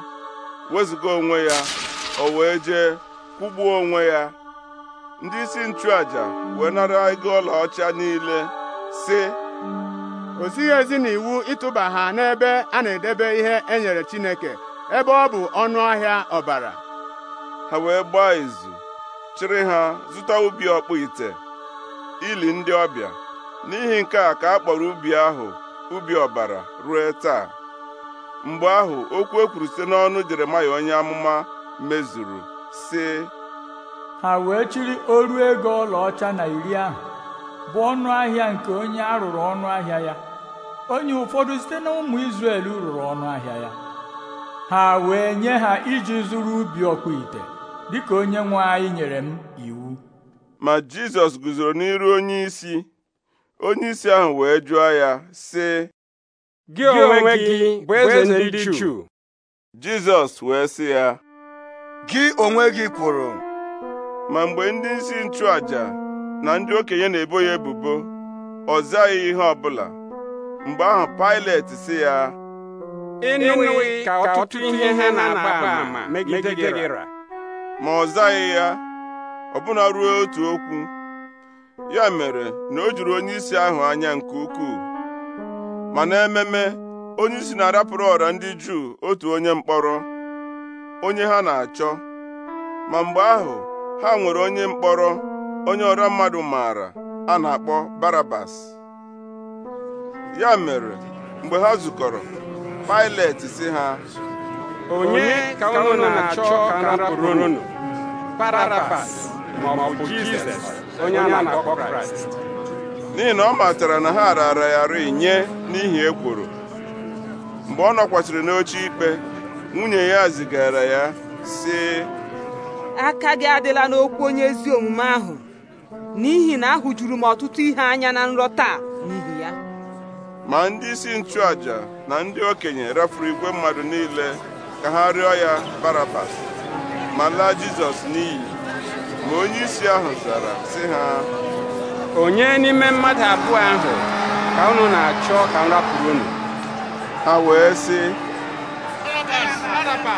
wezụga onwe ya o wee jee kwụgbuo onwe ya ndị isi nchụaja wee nara ego ọlaọcha niile sị o zighị ezi n'iwu ịtụba ha n'ebe a na-edebe ihe e nyere Chineke ebe ọ bụ ọnụ ahịa ọbara ha wee gbaa izu chịrị ha zụta ubi ọkpụ ite ili ndị ọbịa n'ihi nke a ka a kpọrọ ubi ahụ ubi ọbara ruo taa mgbe ahụ okwu e kwuru site n'ọnụ Jeremaya onye amụma mezuru sị ha wee chiri oru ego ọlaọcha na iri ahụ bụ ọnụ ahịa nke onye a rụrụ ọnụ ahịa ya onye ụfọdụ site na ụmụ Izrel rụrụ ọnụ ahịa ya ha wee nye ha iji zụrụ ubi ọkpụ ite dịka onye nwe anyị nyere m iwu ma Jizọs guzoro n'iru onye isi onyeisi ahụ wee jụọ ya sị gị onwe gị bụ eze ndị Chu Jizọs wee sị ya gị onwe gị kwuru ma mgbe ndị isi nchụaja na ndị okenye na-ebo ya ebubo ọ zaghị ihe ọbụla mgbe ahụ Pilet sị ya ka ọtụtụ ihe na-agba ama megide ma ọ zaghị ya ọbụna ruo otu okwu ya mere na o juru onyeisi ahụ anya nke ukwuu ma n'ememe onyeisi na-arapụrụ ọra ndị Juu otu onye mkpọrọ onye ha na-achọ ma mgbe ahụ ha nwere onye mkpọrọ onye ọra mmadụ maara a na-akpọ Barabas ya mere mgbe ha zukọrọ pailet si ha onye ka unu na-achọ ka a rapụrụ unu Barabas maọbụ Jizọs onye a na-akpọ Kraịst n'ihi na ọ matara na ha raara ya rị nye n'ihi ekworo mgbe ọ nọkwasịrị n'oche ikpe nwunye ya zigara ya sị aka gị adịla n'okwu onye ezi omume ahụ n'ihi na ahụjuru m ọtụtụ ihe anya na nrọ taa n'ihi ya ma ndị isi nchụàja na ndị okenye rafuru igwe mmadụ niile ka ha rịọ ya Barabas ma laa Jizọs n'iyi ma onyeisi ahụ zara sị ha onye n'ime mmadụ abụọ ahụ ka unu na-achọ ka m rapụrụ unu ha wee si Pilet ha ka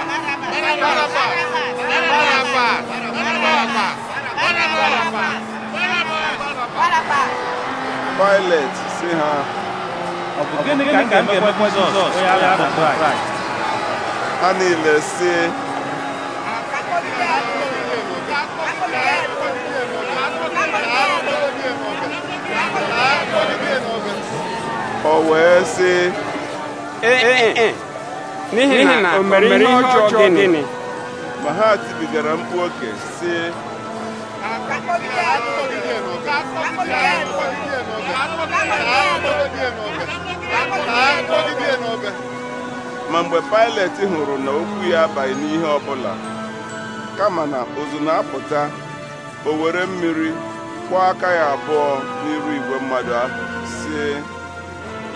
a na ha niile si o wee sị eh, eh, eh, n'ihi na o mere ihe ọjọọ gịnị ma ha tibigara mkpu oke sị ma mgbe Pilet hụrụ na okwu ya abaghị n'ihe ọbụla kama na ozu na-apụta o were mmiri kwụọ aka ya abụọ n'iru igwe mmadụ ahụ si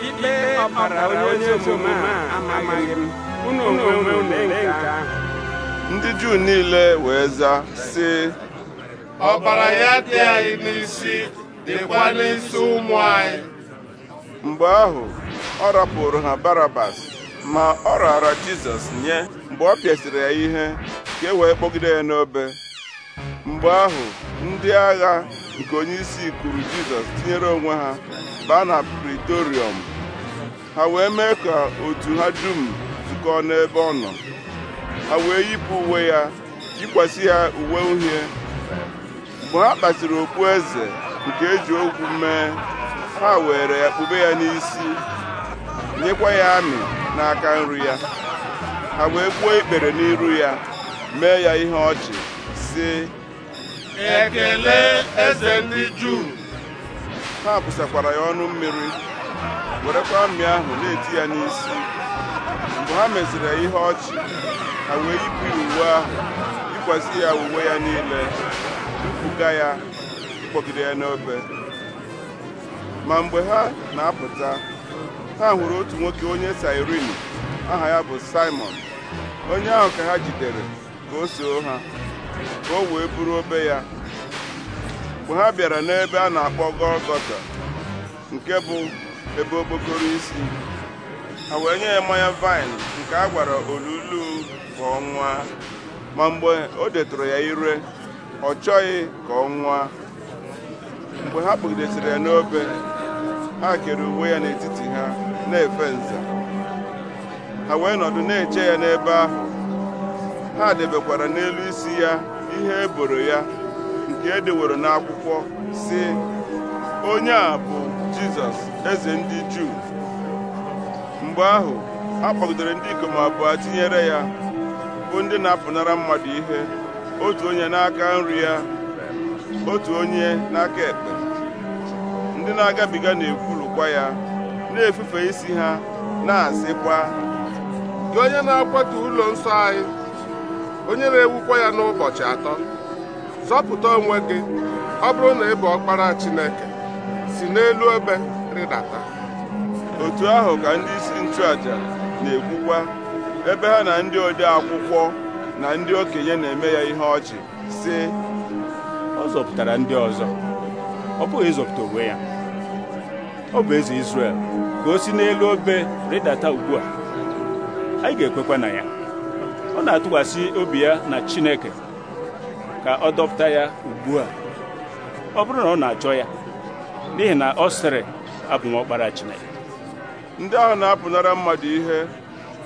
ikpe ọbara onye omume a amaghị m unu onwe unu nke ahụ ndị juu niile wee zaa sị ọbara ya dị anyị n'isi dịkwa n'isi ụmụ anyị mgbe ahụ ọ rapụrụ ha barabas ma ọ raara jizọs nye mgbe ọ pịasịrị ya ihe ka e wee kpọgide ya n'obe mgbe ahụ ndị agha nke onye isi kwuru Jizọs tinyere onwe ha baa na Pritorium ha wee mee ka otu ha dum zukọọ n'ebe ọ nọ ha wee yipụ uwe ya yikwasị ya uwe uhie mgbe ha kpasiri eze nke eji ogwu mee ha were ya kpube ya n'isi nyekwa ya amị n'aka nri ya ha wee gbuo ikpere n'iru ya mee ya ihe ọchị si ekele eze ndị juu ha bụsakwara ya ọnụ mmiri werekwa mmiri ahụ na-eti ya n'isi mgbe ha meziri ya ihe ọchị ha wee yipụ ya uwe ahụ yikwasị ya uwe ya niile kpuga ya ịkpọgide ya n'obe ma mgbe ha na-apụta ha hụrụ otu nwoke onye sairin aha ya bụ Simon onye ahụ ka ha jidere ka o soo ha ka o wee buru obe ya mgbe ha bịara n'ebe a na-akpọ Gọlgọta nke bụ ebe okpokoro isi ha wee nye ya mmanya vaịn nke a gwara olulu ka ọ nwa ma mgbe o detụrụ ya ire ọ chọghị ka ọ nwa mgbe ha kpụgidesịrị ya n'obe ha kere uwe ya n'etiti ha na-efe nza ha wee nọdụ na-eche ya n'ebe ahụ ha debekwara n'elu isi ya ihe eboro ya nke edeworo n'akwụkwọ si onye a bụ jizọs eze ndị juu mgbe ahụ a kpọgidere ndị ikom abụọ tinyere ya bụ ndị na-apụnara mmadụ ihe otu onye n'aka nri ya otu onye n'aka ekpe ndị na-agabiga na ekwurukwa ya na-efufe isi ha na-asịkwa gị onye na-akwatu ụlọ nsọ anyị onye na-ewukwa ya n'ụbọchị atọ zọpụta onwe gị ọ bụrụ na ị bụ ọkpara Chineke si n'elu obe rịdata otu ahụ ka ndị isi nchụaja na-ekwukwa ebe ha na ndị ode akwụkwọ na ndị okenye na-eme ya ihe ọchị sị ọ zọpụtara ndị ọzọ ọ bụghị ịzọpụta onwe ya ọ bụ eze Izrel ka o si n'elu obe rịdata ugbu a anyị ga-ekwekwa na ya ọ na-atụkwasị obi ya na Chineke ka ọ dọpụta ya ugbu a ọ bụrụ na ọ na-achọ ya n'ihi na ọ sịrị abụ Chineke ndị ahụ na-apụnara mmadụ ihe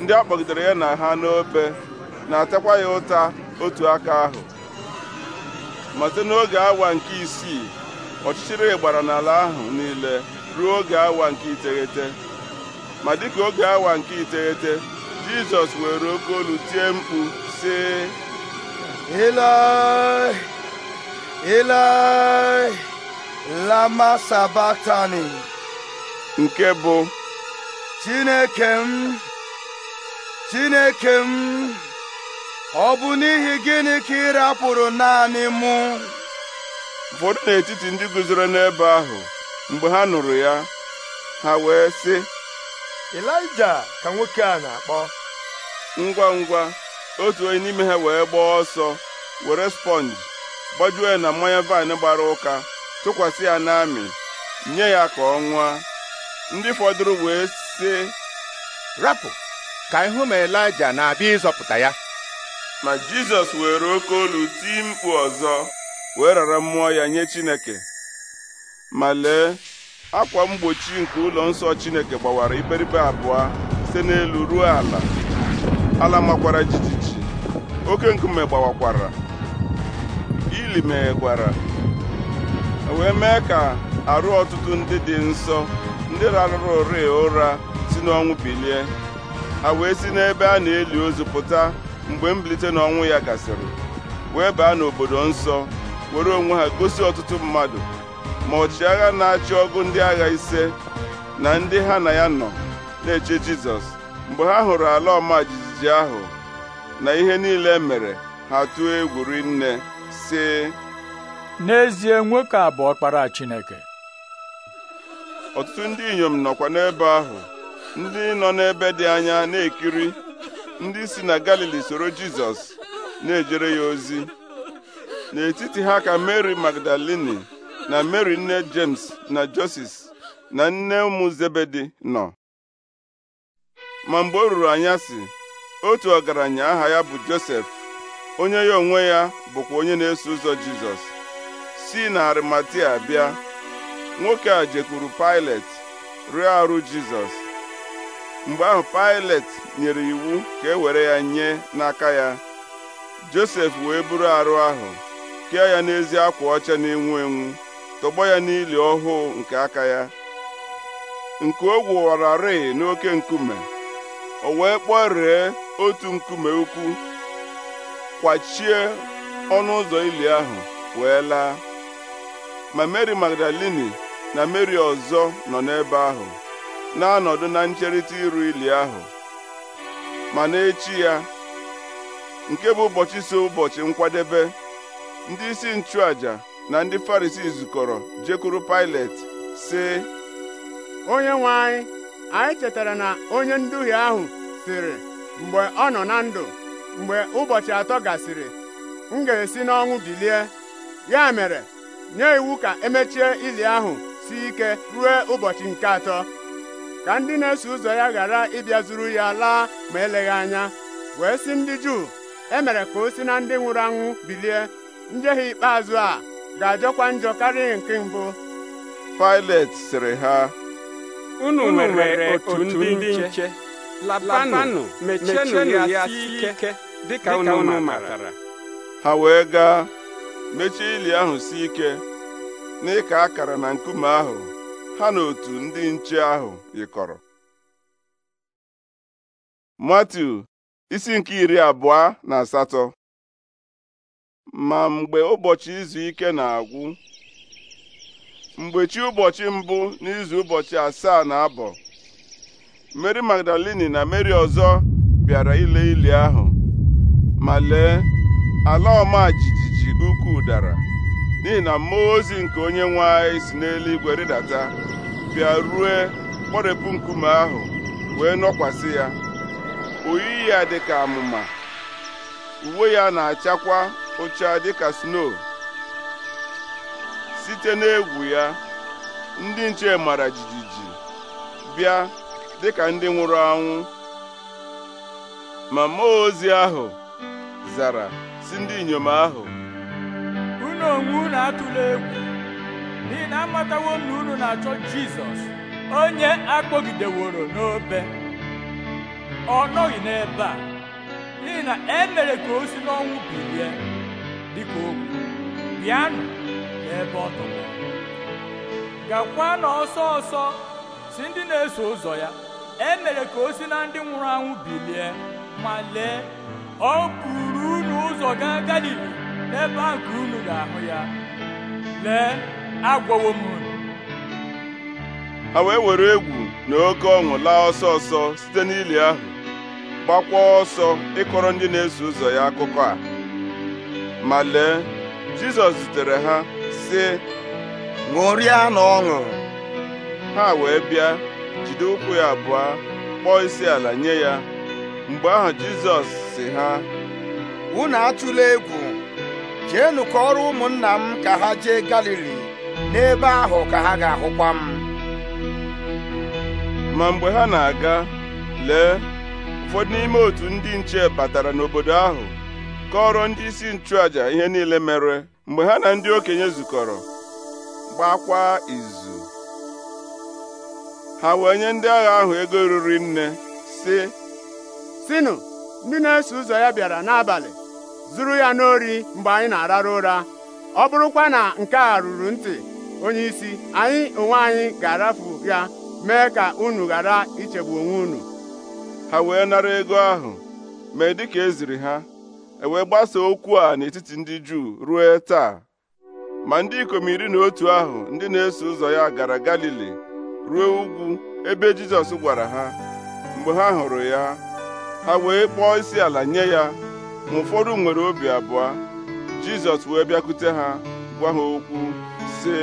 ndị a kpọgidere ya na ha n'obe na-atakwa ya ụta otu aka ahụ ma site n'oge awa nke isii ọchịchịrị gbara n'ala ahụ niile ruo oge awa nke iteghete ma dịka oge awa nke iteghete jizọs were oke olu tie mkpu sị Ilaị Ilaị lama sabatani nke bụ chineke m chineke m ọ bụ n'ihi gịnị ka ị rapụrụ naanị mụ ụfọdụ n'etiti ndị guzoro n'ebe ahụ mgbe ha nụrụ ya ha wee sị elija ka nwoke a na-akpọ ngwa ngwa otu onye n'ime ha wee gbaa ọsọ were sponji gbajuo ya na mmanya vaịn gbara ụka tụkwasị ya n'amị nye ya ka ọ nwaa ndị fọdụrụ wee sị rapụ ka ịhụ ma elija na-abịa ịzọpụta ya ma jizọs were oke olu tii mkpu ọzọ wee rara mmụọ ya nye chineke ma lee akwa mgbochi nke ụlọ nsọ Chineke gbawara iberibe abụọ site n'elu ruo ala ala makwara jijiji oke nkume gbawakwara ili meghegwara e wee mee ka arụ ọtụtụ ndị dị nsọ ndị rarụrụ ụra ụra si n'ọnwụ bilie a wee si n'ebe a na-eli ozu pụta mgbe mbilite n'ọnwụ ya gasịrị wee baa n'obodo nsọ were onwe ha gosi ọtụtụ mmadụ ma agha na-achị ọgụ ndị agha ise na ndị ha na ya nọ na-eche Jizọs mgbe ha hụrụ ala ọma jijiji ahụ na ihe niile e mere ha tụọ egwu rinne sị n'ezie nwoke a bụ ọkpara Chineke ọtụtụ ndị inyom nọkwa n'ebe ahụ ndị nọ n'ebe dị anya na-ekiri ndị si na Galili soro Jizọs na-ejere ya ozi n'etiti ha ka Mary Magdalini na Mary nne James na Joses na nne ụmụ Zebedi nọ ma mgbe o ruru anya anyasị otu ọgaranya aha ya bụ Josef onye ya onwe ya bụkwa onye na-eso ụzọ Jizọs si na Arimatia bịa nwoke a jekwuru Pilet rụọ arụ Jizọs mgbe ahụ Pilet nyere iwu ka e were ya nye n'aka ya Josef wee buru arụ ahụ kee ya n'ezi akwa ọcha na-enwu enwu tọgbọ ya n'ili ọhụụ nke aka ya nke o gwụwararị n'oke nkume o wee kpọree otu nkume ukwu kwachie ọnụ ụzọ ili ahụ wee laa ma meri Magdalini na Mary ọzọ nọ n'ebe ahụ na-anọdụ na ncherịta iru ili ahụ ma n'echi ya nke bụ ụbọchị so ụbọchị nkwadebe ndị isi nchụaja na ndị Farisii zukọrọ jekwuru Pilet sị onye nwe anyị anyị chetara na onye nduhie ahụ sịrị mgbe ọ nọ na ndụ mgbe ụbọchị atọ gasịrị m ga-esi n'ọnwụ bilie ya mere nye iwu ka emechie ili ahụ si ike ruo ụbọchị nke atọ ka ndị na-eso ụzọ ya ghara ịbịa zuru ya laa ma eleghị anya wee si ndị Juu emere ka o si na ndị nwụrụ anwụ bilie njehie ikpeazụ a ga-adịkwa njọ karịa nke mbụ Pilet sịrị ha unu nwere otu ndị nche labanụ mechenụ ya sie ike dịka unu matara ha wee gaa mechie ili ahụ sị ike n'ịka akara na nkume ahụ ha na otu ndị nche ahụ yikọrọ Matiu isi nke iri abụọ na asatọ ma mgbe ụbọchị izu ike na-agwụ mgbe chi ụbọchị mbụ n'izu ụbọchị asaa na abọ Mary Magdalini na Mary ọzọ bịara ile ili ahụ ma lee ala ọma jijiji ukwu dara n'ihi na mmụọ ozi nke onye nwe anyị si n'eluigwe rịdata bịa rue kpọrepụ nkume ahụ wee nọkwasị ya oyi ya dị ka amụma uwe ya na-achakwa ụcha dịka sno site n'egwu ya ndị nche mara jijiji bịa dịka ndị nwụrụ anwụ ma mmụọ ozi ahụ zara si ndị inyom ahụ unu onwe unu atụla egwu n'ihi na amatawo m na unu na-achọ Jizọs onye akpọgideworo n'obe ọ nọghị n'ebe a n'ihi na e ka o si n'ọnwụ bilie dịka okwu bịanụ n'ebe ọ tọgbọ gakwa na ọsọ ọsọ si ndị na-eso ụzọ ya e mere ka o si na ndị nwụrụ anwụ bilie ma lee ọ buru unu ụzọ gaa galili n'ebe ahụ ka unu ga-ahụ ya lee agwọwo m unu ha wee were egwu na oke ọṅụ laa ọsọ ọsọ site n'ili ahụ gbakwa ọsọ ịkọrọ ndị na-eso ụzọ ya akụkọ a ma lee Jizọs zutere ha sị ṅụrịa na ọṅụ ha wee bịa jide ụkwụ ya abụọ kpọọ isi ala nye ya mgbe ahụ Jizọs sị ha unu atụla egwu jeenu ọrụ ụmụnna m ka ha jee Galili n'ebe ahụ ka ha ga-ahụkwa m ma mgbe ha na-aga lee ụfọdụ n'ime otu ndị nche batara n'obodo ahụ kọọrọ ndị isi nchụaja ihe niile mere mgbe ha na ndị okenye zukọrọ gbakwa izu ha wee nye ndị agha ahụ ego ruru nne sị sinụ ndị na-eso ụzọ ya bịara n'abalị zuru ya n'ori mgbe anyị na-arara ụra ọ bụrụkwa na nke a ruru ntị onye isi anyị onwe anyị ga-arafu ya mee ka unu ghara ichegbu onwe unu ha wee nara ego ahụ mee dịka eziri ha e wee gbasaa okwu a n'etiti ndị Juu ruo taa ma ndị ikom iri na otu ahụ ndị na-eso ụzọ ya gara Galili ruo ugwu ebe Jizọs gwara ha mgbe ha hụrụ ya ha wee kpọọ isi ala nye ya ma ụfọdụ nwere obi abụọ Jizọs wee bịakwute ha gwa ha okwu sị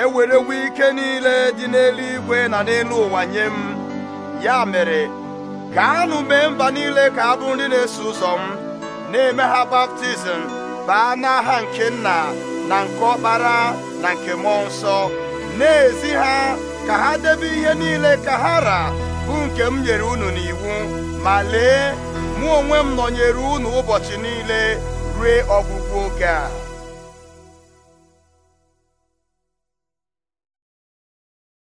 ewerewo ike niile dị n'eluigwe na n'elu ụwa nye m ya mere gaanụ mee mba niile ka abụ nri ndị na-eso ụzọ m na-eme ha baptizim baa n'aha nke nna na nke ọkpara na nke mmụọ nsọ na-ezi ha ka ha debe ihe niile ka ha ra bụ nke m nyere unu n'iwu ma lee mụ onwe m nọnyere unu ụbọchị niile rue ọgwụgwụ oge a